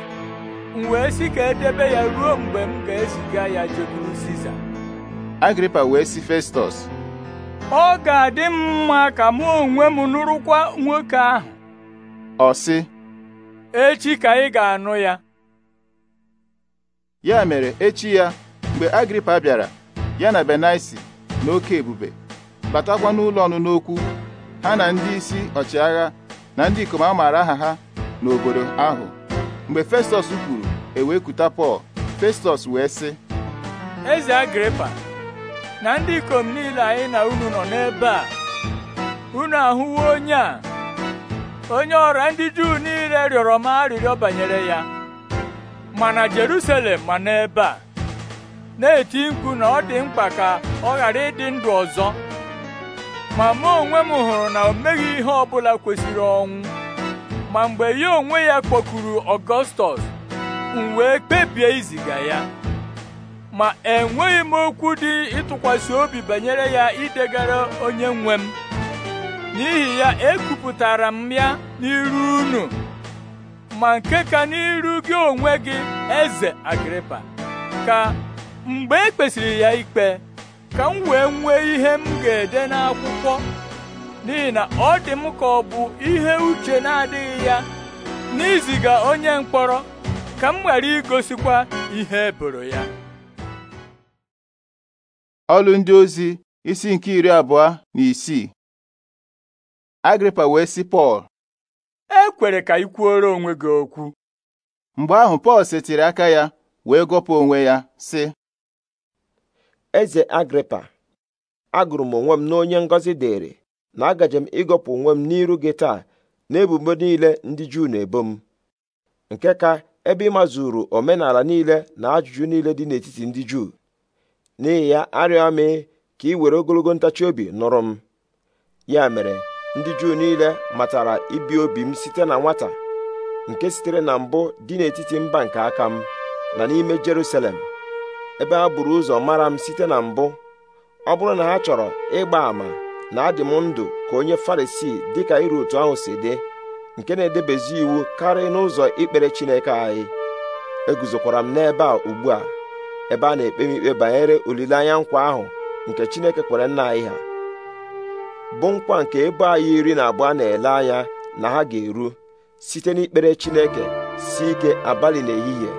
m wee sị ka edebe ya ruo mgbe m ga-eziga ya jekwuru Siza Agripa wee sị Festọs ọ ga-adị m mma ka mụ onwe m nụrụkwa nwoke ahụ ọ sị echi ka ị ga-anụ ya ya mere echi ya mgbe agripa bịara ya na benaisi na oke ebube batakwa n'ụlọ ọnụnụ n'okwu ha na ndị isi ọchịagha na ndị ikom amaara aha ha n'obodo ahụ mgbe Festọs kwuru ewe kuta Pọl Festọs wee sị Eze Agripa na ndị ikom niile anyị na unu nọ n'ebe a unu ahụwo onye a onye ọrịa ndị Juu niile rịọrọ m arịrịọ banyere ya ma na Jerusalem ma n'ebe a na-eti mkpu na ọ dị mkpa ka ọ ghara ịdị ndụ ọzọ ma mụ onwe m hụrụ na o meghị ihe ọ bụla kwesịrị ọnwụ ma mgbe ya onwe ya kpọkuru Ọgọstọs m wee kpebie iziga ya ma enweghị m okwu dị ịtụkwasị obi banyere ya idegara onye nwe m n'ihi ya ekwupụtara m ya n'iru unu ma nke ka n'iru gị onwe gị eze Agripa ka mgbe e kpesịrị ya ikpe ka m wee nwee ihe m ga-ede n'akwụkwọ n'ihi na ọ dị m ka ọ bụ ihe uche na-adịghị ya n'iziga onye mkpọrọ ka m ghara igosikwa ihe eboro ya ọlụ ndị ozi isi nke iri abụọ na isii Agripa wee sị Pọl e kwere ka ị kwuoro onwe gị okwu mgbe ahụ Pọl setịrị aka ya wee gọpụ onwe ya sị eze Agripa agụrụ m onwe m n'onye ngọzi dịrị na agaje m ịgọpụ onwe m n'iru gị taa n'ebubo niile ndị Juu na-ebo m nke ka ebe ị mazuru omenala niile na ajụjụ niile dị n'etiti ndị Juu n'ihi ya arịọ m ka ị were ogologo ntachi obi nụrụ m ya mere ndị juu niile matara ibi obi m site na nwata nke sitere na mbụ dị n'etiti mba nke aka m na n'ime Jerusalem ebe ha buru ụzọ mara m site na mbụ ọ bụrụ na ha chọrọ ịgba ama na adị m ndụ ka onye Farisii ka iru otu ahụ si dị nke na-edebezi iwu karịa n'ụzọ ikpere Chineke anyị eguzokwara m n'ebe a ugbu a ebe a na-ekpe m ikpe banyere olileanya nkwa ahụ nke Chineke kwere nna anyị ha bụ nkwa nke ebo anyị iri na abụọ na-ele anya na ha ga-eru site n'ikpere Chineke si ike abalị n'ehihie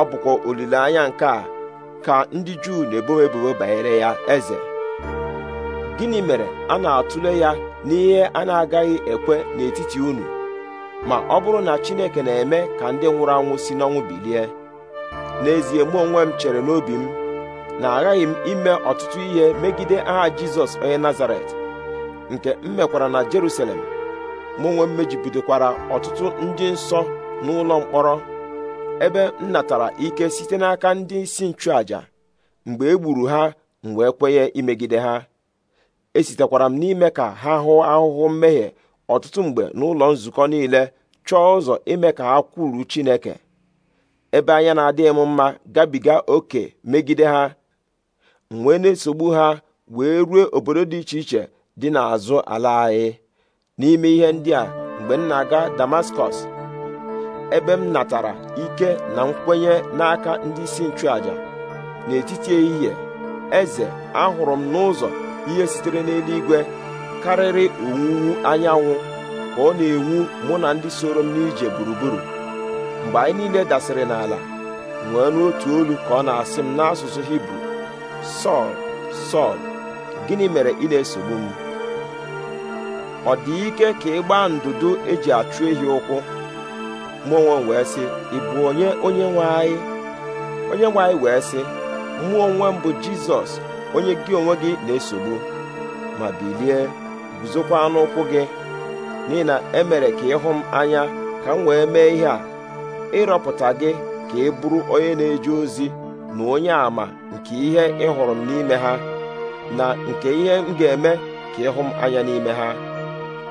ọ bụkwa olileanya nke a ka ndị Juu na-ebo ebubo banyere ya eze gịnị mere a na-atụle ya n'ihe a na-agaghị ekwe n'etiti unu ma ọ bụrụ na Chineke na-eme ka ndị nwụrụ anwụ si n'ọnwụ bilie n'ezie mụ onwe m chere n'obi m na aghaghị m ime ọtụtụ ihe megide aha Jizọs onye Nazaret nke m mekwara na Jerusalem mụ nwe m ọtụtụ ndị nsọ n'ụlọ mkpọrọ ebe m natara ike site n'aka ndị isi nchụaja mgbe e gburu ha m wee kwenye imegide ha esitekwara m n'ime ka ha hụ ahụhụ mmehie ọtụtụ mgbe n'ụlọ nzukọ niile chọọ ụzọ ime ka ha kwuru Chineke ebe anya na-adịghị m mma gabiga oke megide ha m wee na-esogbu ha wee ruo obodo dị iche iche dị n'azụ ala anyị n'ime ihe ndị a mgbe m na-aga damaskọs ebe m natara ike na nkwenye n'aka ndị isi nchụaja n'etiti ehihie eze ahụrụ m n'ụzọ ihe sitere n'eluigwe karịrị owuwu anyanwụ ka ọ na-enwu mụ na ndị soro m n'ije gburugburu mgbe anyị niile dasịrị n'ala nwee n'otu olu ka ọ na-asị m n'asụsụ hibru sọl sọl gịnị mere ị na-esogbu m ọ dị ike ka ị gbaa ndụdụ eji achụ ehi ụkwụ mụ wee sị ị bụ onye onye nwe anyị onye nwe anyị wee sị mmụọ onwe m bụ jizọs onye gị onwe gị na-esogbu ma bilie guzokwa n'ụkwụ gị n'ihi na emere ka ịhụ m anya ka m wee mee ihe a ịrọpụta gị ka ị bụrụ onye na-eje ozi na onye àmà nke ihe ị hụrụ m n'ime ha na nke ihe m ga-eme ka ịhụ m anya n'ime ha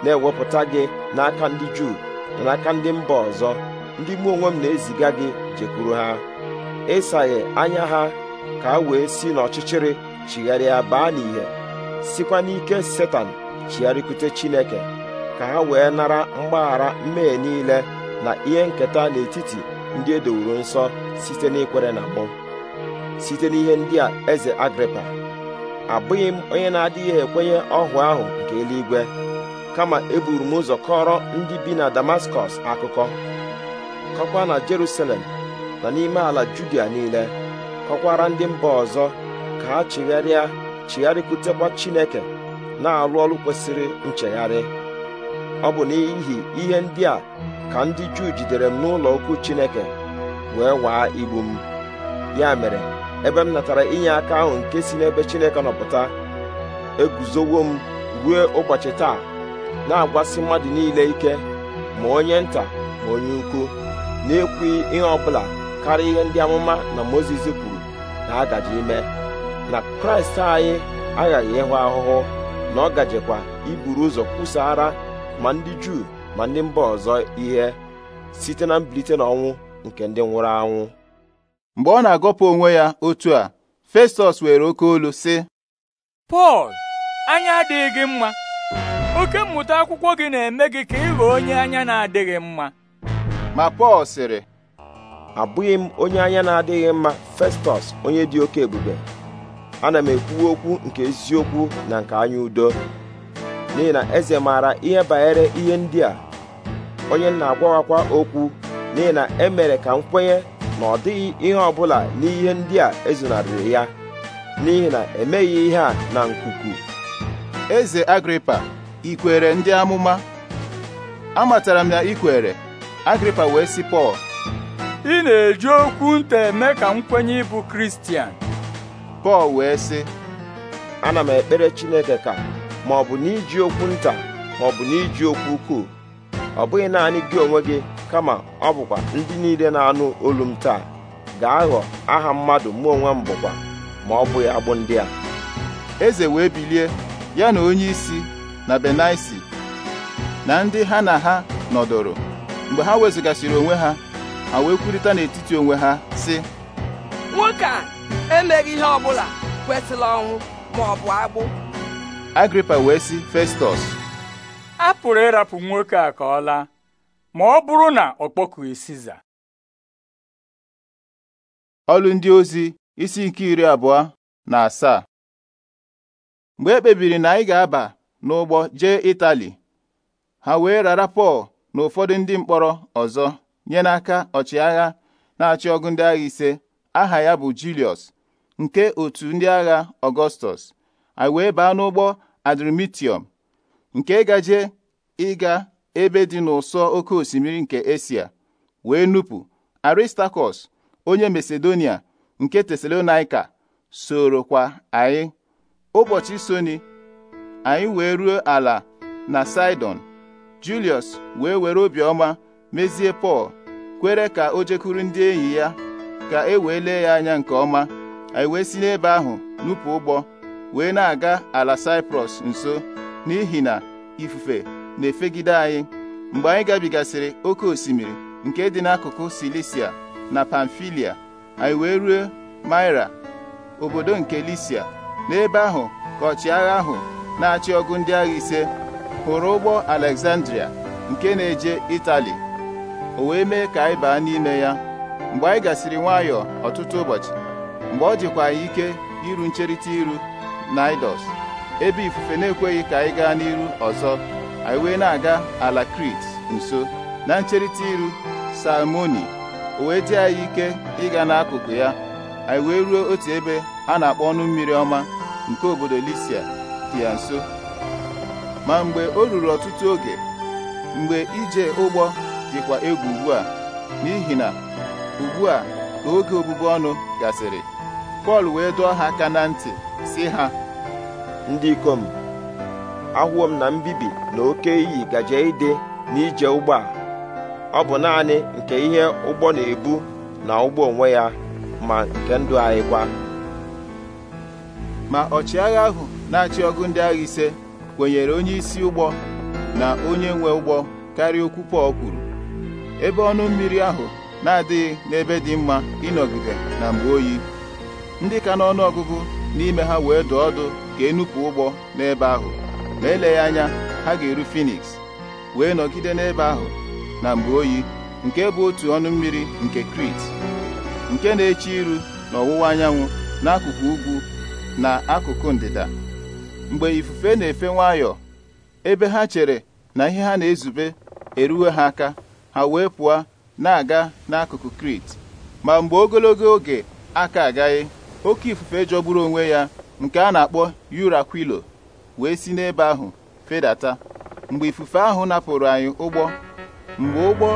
na-ewepụta gị n'aka ndị Juu na n'aka ndị mba ọzọ ndị mụ onwe m na-eziga gị jekwuru ha ịsaghe anya ha ka a wee si n'ọchịchịrị chigharịa baa n'ihe sikwa n'ike setan chigharịkwute Chineke ka ha wee nara mgbaghara mmehie niile na ihe nketa n'etiti ndị e dowuru nsọ site n'ikwere na mụ site n'ihe ndị a eze Agripa abụghị m onye na-adịghị ekwenye ọhụụ ahụ nke eluigwe kama eburu m ụzọ kọrọ ndị bi na damaskọs akụkọ kọkwa na jerusalem na n'ime ala judia niile kọkwara ndị mba ọzọ ka ha chigharịa chigharịkwutekwa chineke na-alụ ọrụ kwesịrị nchegharị ọ bụ n'ihi ihe ndị a ka ndị juu jidere m n'ụlọ okwu chineke wee waa igbu m ya mere ebe m natara inye aka ahụ nke si n'ebe chineke nọpụta eguzowo m ruo ụbọchị taa na-agwasị mmadụ niile ike ma onye nta ma onye ukwu na-ekwughị ihe ọbụla karịa ihe ndị amụma na mozes kwuru na agajị ime na kraịst anyị aghaghị ịhụ ahụhụ na ọ gajekwa iburu ụzọ kwụsara ma ndị juu ma ndị mba ọzọ ihe site na mbilite n'ọnwụ nke ndị nwụrụ anwụ mgbe ọ na-agọpụ onwe ya otu a Festọs were oke olu sị Pọl anya adịghị gị mma oke mmụta akwụkwọ gị na-eme gị ka ịghọ onye anya na-adịghị mma ma Pọl sịrị abụghị m onye anya na-adịghị mma Festọs onye dị oke ebube ana m ekwuwe okwu nke eziokwu na nke anya udo n'ihi na eze maara ihe banyere ihe ndị a onye na-agwawakwa okwu n'ihi na emere ka m kwenye na ọ dịghị ihe ọbụla n'ihe ndị a ezonarịrị ya n'ihi na emeghị ihe a na nkuku eze Agripa kwere ndị amụma amatara m ya ikwere agripa wee sị pọl ị na-eji okwu nta eme ka m kwenye ịbụ kristian pọl wee sị ana m ekpere chineke ka ma ọ bụ n'iji okwu nta ma ọ bụ n'iji okwu ukwuu ọ bụghị naanị gị onwe gị kama ọ bụkwa ndị niile na-anụ olu m taa ga-aghọ aha mmadụ mụ onwe m bụkwa ma ọ bụghị agbụ ndị a eze wee bilie ya na onye isi na benaisi na ndị ha na ha nọdụrụ mgbe ha wezụgasịrị onwe ha ha wee kwurịta n'etiti onwe ha sị nwoke a emeghị ihe ọbụla kwesịrị ọnwụ ma ọ bụ agbụ agripa wee sị festọs a pụrụ ịrapụ nwoke a ka ọ laa ma ọ bụrụ na ọ kpọkughị siza ọlụ ndị ozi isi nke iri abụọ na asaa mgbe e kpebiri na anyị ga-aba n'ụgbọ jee Itali ha wee rara Pọl na ụfọdụ ndị mkpọrọ ọzọ nye n'aka ọchịagha na-achị ọgụ ndị agha ise aha ya bụ Julius nke otu ndị agha Ọgọstọs anyị wee baa n'ụgbọ Adrimitiọm nke gaje ịga ebe dị n'ụsọ oke osimiri nke Esia wee nupụ Aristakọs onye Masedonia nke Tesalonaika kwa anyị ụbọchị soni anyị wee ruo ala na sidon Julius wee were obiọma mezie Pọl kwere ka o jekwuru ndị enyi ya ka e wee lee ya anya nke ọma anyị wee si n'ebe ahụ nupụ ụgbọ wee na-aga ala Saịprọs nso n'ihi na ifufe na-efegide anyị mgbe anyị gabigasịrị oke osimiri nke dị n'akụkụ Silisia na Pamfilia anyị wee ruo maira obodo nke Lisia n'ebe ahụ ka ọchịagha ahụ na-achị ọgụ ndị agha ise hụrụ ụgbọ Alexandria nke na-eje Itali o wee mee ka anyị baa n'ime ya mgbe anyị gasịrị nwayọọ ọtụtụ ụbọchị mgbe ọ dịkwa anyị ike iru ncherịta iru Naịdọs ebe ifufe na-ekweghị ka anyị gaa n'iru ọzọ anyị wee na-aga ala Krit nso na ncherịta iru Salmoni o wee dị anyị ike ịga n'akụkụ ya anyị wee ruo otu ebe a na-akpọ ọnụ mmiri ọma nke obodo Lisia ya nso ma mgbe o ruru ọtụtụ oge mgbe ije ụgbọ dịkwa egwu ugbu a n'ihi na ugbu a ka oge obubu ọnụ gasịrị Pọl wee dụọ ha aka na ntị si ha ndị ikom ahụwo m na mbibi na oke iyi gaje ide n'ije ụgbọ a ọ bụ naanị nke ihe ụgbọ na-ebu na ụgbọ onwe ya ma nke ndụ anyị kwa ma ọchịagha ahụ na-achị ọgụ ndị agha ise kwenyere onye isi ụgbọ na onye nwe ụgbọ karịa okwu Pọl kwuru ebe ọnụ mmiri ahụ na-adịghị n'ebe dị mma ịnọgide na mgbe oyi ndị ka n'ọnụ ọgụgụ n'ime ha wee dụ ọdụ ka enupụ ụgbọ n'ebe ahụ ma eleghị anya ha ga-eru Finiks wee nọgide n'ebe ahụ na mgbe oyi nke bụ otu ọnụ mmiri nke Krit nke na-eche iru n'ọwụwa anyanwụ n'akụkụ ugwu na akụkụ ndịda mgbe ifufe na-efe nwayọọ ebe ha chere na ihe ha na-ezube eruwe ha aka ha wee pụọ na-aga n'akụkụ Krit ma mgbe ogologo oge aka agaghị oke ifufe jọgburu onwe ya nke a na-akpọ Yurakwilo wee si n'ebe ahụ fedata mgbe ifufe ahụ napụrụ anyị ụgbọ mgbe ụgbọ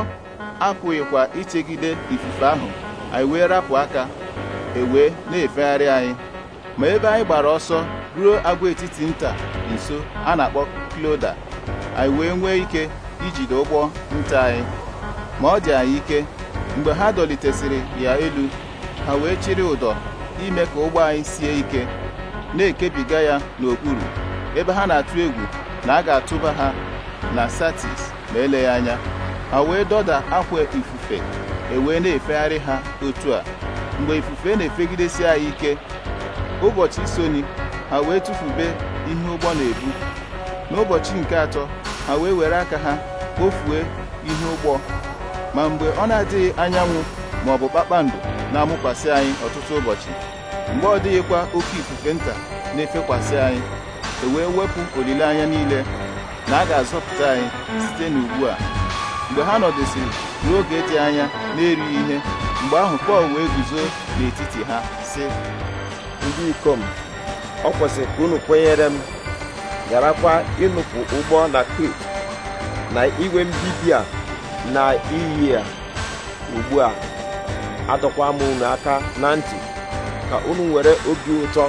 apụghịkwa ichegide ifufe ahụ anyị wee rapụ aka ewee na-efegharị anyị ma ebe anyị gbara ọsọ ruo agwaetiti nta nso a na-akpọ Kloda anyị wee nwee ike ijide ụgbọ nta anyị ma ọ dị anyị ike mgbe ha dọlitesịrị ya elu ha wee chịrị ụdọ ime ka ụgbọ anyị sie ike na-ekebiga ya n'okpuru ebe ha na-atụ egwu na a ga-atụba ha na Satis ma eleghị anya ha wee dọda akwa ifufe ewee na-efegharị ha otu a mgbe ifufe na-efegidesi anyị ike ụbọchị soni ha wee tụfube ihe ụgbọ na-ebu n'ụbọchị nke atọ ha wee were aka ha kpofue ihe ụgbọ ma mgbe ọ na-adịghị anyanwụ ma ọ bụ kpakpando na-amụkwasị anyị ọtụtụ ụbọchị mgbe ọ dịghịkwa oke ifufe nta na-efekwasị anyị e wee wepụ olileanya niile na a ga-azọpụta anyị site n'ugbu a mgbe ha nọdụsịrị n'oge dị anya na-erighị ihe mgbe ahụ Pọl wee guzo n'etiti ha sị ndị ikom ọ kwesịrị ka unu kwenyere m garakwa ịnụpụ ụgbọ na krit na igwe mbibi a na iyi a ugbu a adọkwa m unu aka na ntị ka unu were obi ụtọ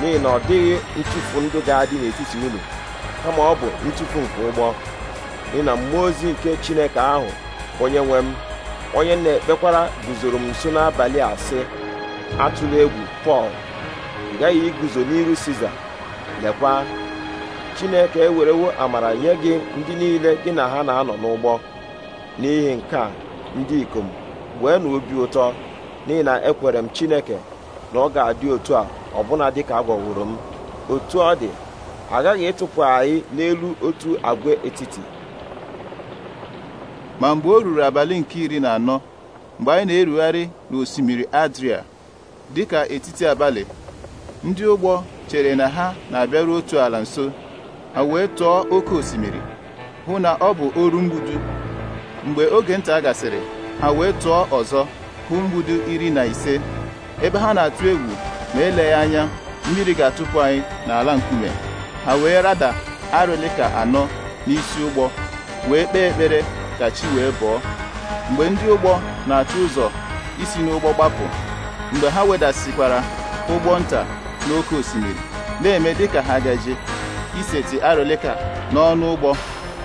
n'ihi na ọ dịghị ntụpụ ndụ ga-adị n'etiti unu kama ọ bụ ntụpụ nke ụgbọ n'ihi na mmụọ ozi nke chineke ahụ onye nwe m onye na-ekpekwara guzoro m nso n'abalị a sị atụla egwu pọl agaghị iguzo n'iru siza lekwa chineke ewerewo amara nye gị ndị niile gị na ha na-anọ n'ụgbọ n'ihi nke a ndị ikom wee na obi ụtọ n'ihi na ekwere m chineke na ọ ga-adị otu a ọbụna dịka agwọwụrụ m otu ọ dị agaghị ịtụpụ anyị n'elu otu agwa etiti ma mgbe o ruru abalị nke iri na anọ mgbe anyị na-erugharị n'osimiri adria dịka etiti abalị ndị ụgbọ chere na ha na-abịaru otu ala nso ha wee tụọ oke osimiri hụ na ọ bụ oru mgbudu mgbe oge nta gasịrị ha wee tụọ ọzọ hụ mgbudu iri na ise ebe ha na-atụ egwu ma ya anya mmiri ga-atụpụ anyị n'ala nkume ha wee rada arịlịka anọ n'isi ụgbọ wee kpee ekpere ka chi wee bụọ mgbe ndị ụgbọ na atụ ụzọ isi n'ụgbọ gbapụ mgbe ha wedasịkwara ụgbọ nta n'oké osimiri na-eme dịka ha gaje iseti arụlịka n'ọnụ ụgbọ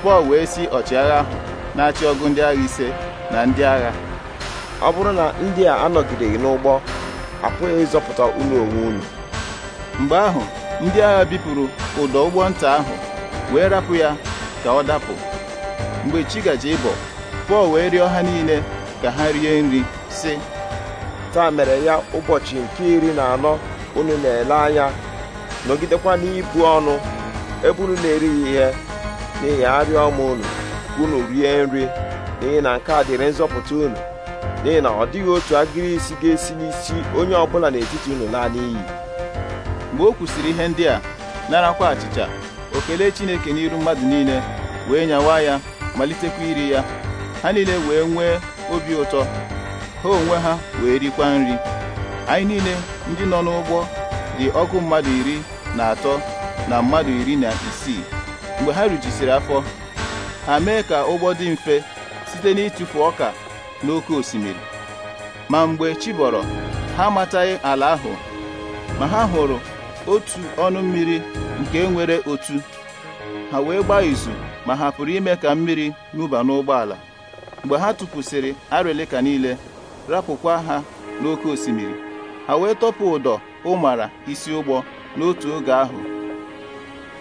Pọl wee si ọchịagha ahụ na-achị ọgụ ndị agha ise na ndị agha ọ bụrụ na ndị a anọgideghị n'ụgbọ apụghị ịzọpụta unu onwe unu mgbe ahụ ndị agha bipụrụ ụdọ ụgbọ nta ahụ wee rapụ ya ka ọ dapụ mgbe chi gaje ịbọ Pọl wee rịọ ha niile ka ha rie nri sị taa mere ya ụbọchị nke iri na anọ unu na-ele anya nọgidekwa n'ibu ọnụ ebe unu na-erighị ihe n'ihi arịa ọma unu unu rie nri n'ihi na nke a dịrị nzọpụta unu n'ihi na ọ dịghị otu agịrị isi ga-esi n'isi onye ọbụla n'etiti unu laa n'iyi mgbe o kwụsịrị ihe ndị a narakwa achịcha o kelee Chineke n'iru mmadụ niile wee nyawa ya malitekwa iri ya ha niile wee nwee obi ụtọ ha onwe ha wee rikwa nri anyị niile ndị nọ n'ụgbọ dị ọgụ mmadụ iri na atọ na mmadụ iri na isii mgbe ha rijisiri afọ ha mee ka ụgbọ dị mfe site n'ịtụfu ọka n'oke osimiri ma mgbe chi ha amataghị ala ahụ ma ha hụrụ otu ọnụ mmiri nke nwere otu ha wee gbaa izu ma ha pụrụ ime ka mmiri n'ụba n'ụgbọala mgbe ha tụpụsịrị arịlịka niile rapụkwa ha n'oké osimiri ha wee tọpụ ụdọ ụmara isi ụgbọ n'otu oge ahụ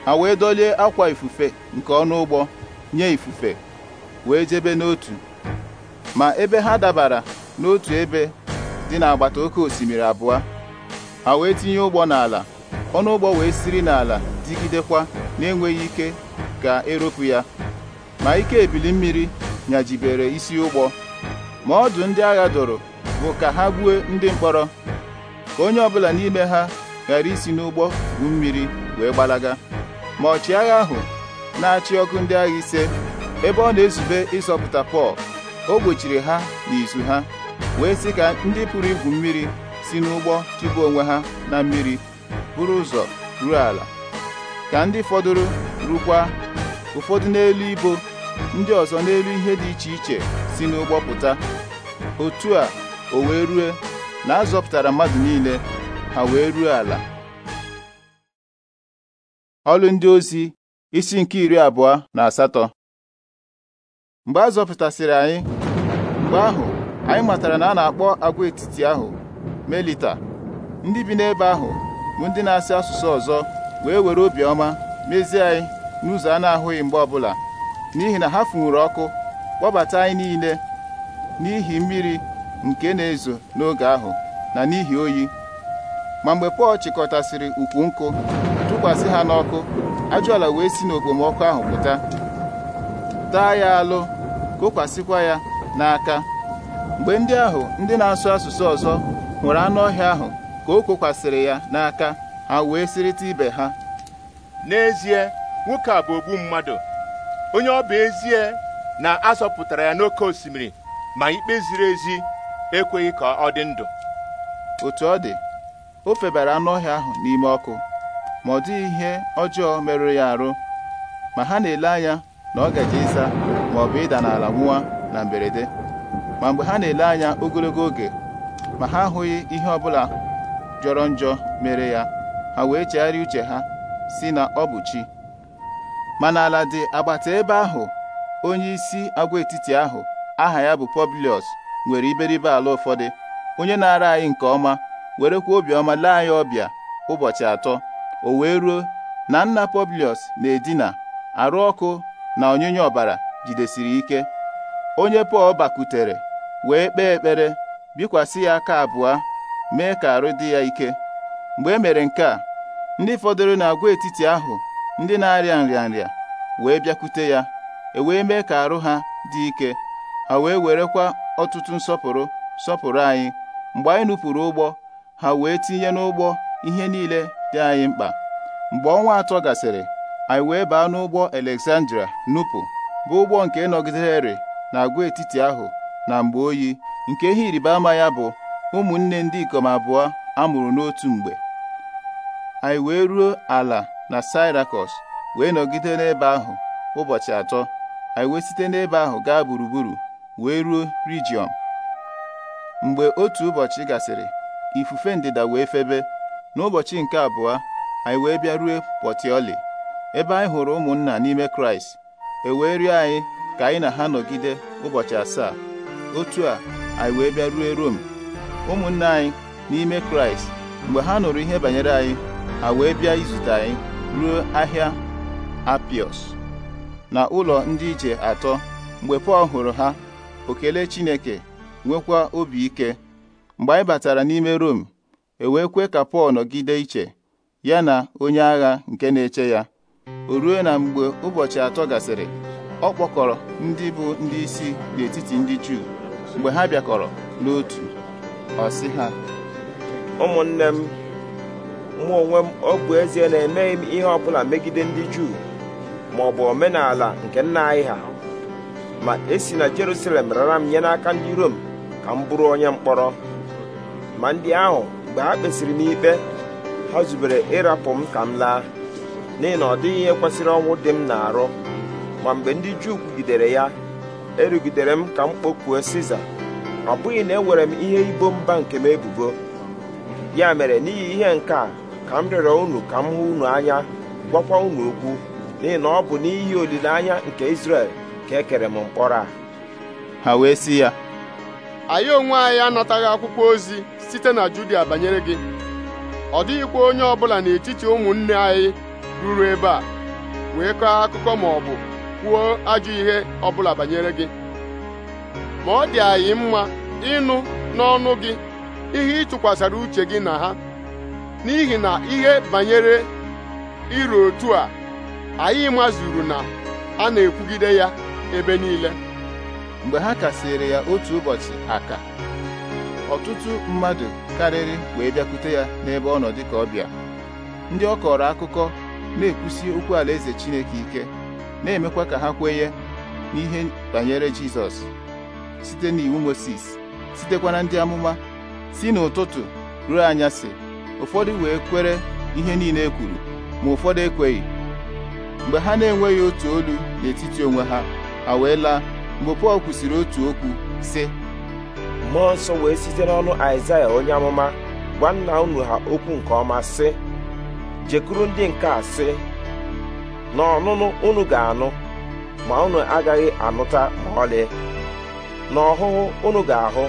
ha wee dolie akwa ifufe nke ọnụ ụgbọ nye ifufe wee jebe n'otu ma ebe ha dabara n'otu ebe dị n'agbata oke osimiri abụọ ha wee tinye ụgbọ n'ala ọnụ ụgbọ wee siri n'ala digidekwa na-enweghị ike ka eropu ya ma ike ebili mmiri nyajibere isi ụgbọ ma ọdụ ndị agha doro bụ ka ha gbuo ndị mkpọrọ ka onye ọbụla n'ime ha ghara isi n'ụgbọ gwu mmiri wee gbalaga ma ọchịagha ahụ na-achị ọkụ ndị agha ise ebe ọ na-ezube ịzọpụta Pọl o gbochiri ha n'izu ha wee sị ka ndị pụrụ igwu mmiri si n'ụgbọ chụba onwe ha na mmiri buru ụzọ ruo ala ka ndị fọdụrụ rukwa ụfọdụ n'elu ibo ndị ọzọ n'elu ihe dị iche iche si n'ụgbọ pụta otu a o wee rue na a zọpụtara mmadụ niile ha wee ruo ala ọlụ ndị ozi isi nke iri abụọ na asatọ mgbe a zọpụtasịrị anyị mgbe ahụ anyị matara na a na-akpọ agwaetiti ahụ melita ndị bi n'ebe ahụ bụ ndị na-asị asụsụ ọzọ wee were obiọma mezie anyị n'ụzọ a na-ahụghị mgbe ọbụla n'ihi na ha funwuru ọkụ kpọbata anyị niile n'ihi mmiri nke na-ezo n'oge ahụ na n'ihi oyi ma mgbe Pọl chịkọtasịrị ukwu nkụ tụkwasị ha n'ọkụ ajụala wee si n'okpomọkụ ahụ pụta taa ya alụ kokwasịkwa ya n'aka mgbe ndị ahụ ndị na-asụ asụsụ ọzọ hụrụ anụ ọhịa ahụ ka o kokwasịrị ya n'aka ha wee sịrịta ibe ha n'ezie nwoke a bụ ogbu mmadụ onye ọ bụ ezie na a zọpụtara ya n'oké osimiri ma ikpe ziri ezi ekweghị ka ọ dị ndụ otu ọ dị o febara anụ ọhịa ahụ n'ime ọkụ ma ọ dịghị ihe ọjọọ merụrụ ya arụ ma ha na-ele anya na ọ gaje ịza ma ọ bụ ịda n'ala nwụọ na mberede ma mgbe ha na-ele anya ogologo oge ma ha ahụghị ihe ọbụla jọrọ njọ mere ya ha wee chegharịa uche ha si na ọ bụ chi ma n'ala dị agbata ebe ahụ onye isi agwaetiti ahụ aha ya bụ Publius nwere iberibe ala ụfọdụ onye na-ara anyị nke ọma werekwa obiọma lee anyị ọbịa ụbọchị atọ o wee ruo na nna Publius na-edina arụ ọkụ na onyinye ọbara jidesiri ike onye Pọl bakwutere wee kpee ekpere bikwasị ya aka abụọ mee ka arụ dị ya ike mgbe e mere nke a ndị fọdụrụ n'agwaetiti ahụ ndị na-arịa nrịanrịa wee bịakwute ya e wee mee ka arụ ha dị ike ha wee werekwa ọtụtụ nsọpụrụ sọpụrụ anyị mgbe anyị nupụrụ ụgbọ ha wee tinye n'ụgbọ ihe niile dị anyị mkpa mgbe ọnwa atọ gasịrị anyị wee baa n'ụgbọ Alexandria nupụ bụ ụgbọ nke nọgidere na agwaetiti ahụ na mgbe oyi nke ihe ịrịba ama ya bụ ụmụnne ndị ikom abụọ a mụrụ n'otu mgbe anyị wee ruo ala na Syrakus wee nọgide n'ebe ahụ ụbọchị atọ anyị wee site n'ebe ahụ gaa gburugburu wee ruo Rejiọm mgbe otu ụbọchị gasịrị ifufe ndịda wee febe n'ụbọchị nke abụọ anyị wee bịa rue Pọtiọli ebe anyị hụrụ ụmụnna n'ime Kraịst e wee rịọ anyị ka anyị na ha nọgide ụbọchị asaa otu a anyị wee bịa rue Rom ụmụnna anyị n'ime Kraịst mgbe ha nụrụ ihe banyere anyị ha wee bịa izute anyị ruo ahịa apios na ụlọ ndị ije atọ mgbe Pọl hụrụ ha okele Chineke nwekwa obi ike mgbe anyị batara n'ime Rom e wee kwe ka Pọl nọgide iche ya na onye agha nke na-eche ya o ruo na mgbe ụbọchị atọ gasịrị ọ kpọkọrọ ndị bụ ndị isi n'etiti ndị Juu mgbe ha bịakọrọ n'otu ọ sị ha ụmụnne m mụ onwe m ọ ezie na emeghị m ihe ọbụla megide ndị Juu ma bụ omenala nke nna anyị ha ma esi na Jerusalem rara m nye n'aka ndị Rom ka m bụrụ onye mkpọrọ ma ndị ahụ mgbe ha kpesiri m ikpe ha zubere ịrapụ m ka m laa n'ihi na ọ dịghị ihe kwesịrị ọnwụ dị m na-arụ ma mgbe ndị Juu kwugidere ya erugidere m ka m kpọkuo Siza ọ bụghị na ewere m ihe ibo mba nke m ebubo ya mere n'ihi ihe nke a ka m rịọrọ unu ka m hụ unu anya gwakwa unu okwu n'ihi na ọ bụ n'ihi olileanya nke Izrel ka ekere m mkpọrọ a ha wee sị ya anyị onwe anyị anataghị akwụkwọ ozi site na Judia banyere gị ọ dịghịkwa onye ọbụla n'etiti ụmụnne anyị ruru ebe a wee kọọ akụkọ ma ọ bụ kwuo ajọ ihe ọbụla banyere gị ma ọ dị anyị mma ịnụ n'ọnụ gị ihe ị tụkwasara uche gị na ha n'ihi na ihe banyere iru otu a anyị mazuru na a na-ekwugide ya ebe niile mgbe ha kasịrị ya otu ụbọchị aka ọtụtụ mmadụ karịrị wee bịakwute ya n'ebe ọ nọ dịka ọbịa ndị ọ kọrọ akụkọ na-ekwusi okwu alaeze Chineke ike na-emekwa ka ha kwenye n'ihe banyere Jizọs site n'iwu Mosis sitekwa na ndị amụma si n'ụtụtụ ruo anyasị ụfọdụ wee kwere ihe niile e kwuru ma ụfọdụ ekweghị mgbe ha na-enweghị otu olu n'etiti onwe ha ha wee laa mgbe pọl kwusịrị otu okwu sị mmụọ nsọ wee site n'ọnụ aịzaya onye amụma gwa nna unu ha okwu nke ọma sị jekuru ndị nke a sị na ọnụnụ unu ga-anụ ma unu agaghị anụta ma ọlị na ọhụhụ unu ga-ahụ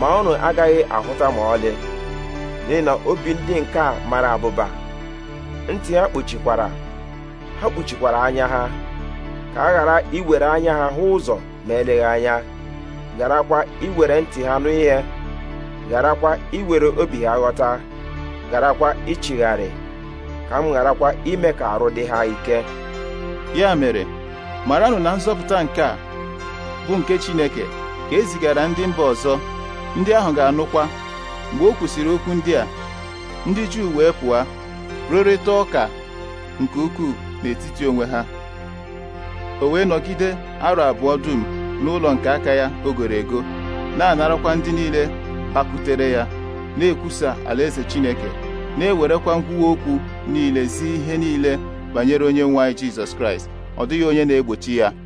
ma unu agaghị ahụta ma ọlị n'ihi na obi ndị nke a mara abụba ntị ha kpuchikwara ha kpuchikwara anya ha ka a ghara iwere anya ha hụ ụzọ ma eleghị anya gharakwa iwere ntị ha nụ ihe gharakwa iwere obi ha ghọta garakwa ịchịgharị ka m gharakwa ime ka arụ dị ha ike ya mere maranụ na nzọpụta nke a bụ nke Chineke ka e zigara ndị mba ọzọ ndị ahụ ga-anụkwa mgbe o kwusịrị okwu ndị a ndị Juu wee pụọ rụrịta ụka nke ukwuu n'etiti onwe ha o wee nọgide arọ abụọ dum n'ụlọ nke aka ya ogoro ego na-anarakwa ndị niile kpakutere ya na-ekwusa alaeze Chineke na-ewerekwa nkwuwa okwu niile zi ihe niile banyere onye nwe jesus Jizọs Kraịst ọ dịghị onye na-egbochi ya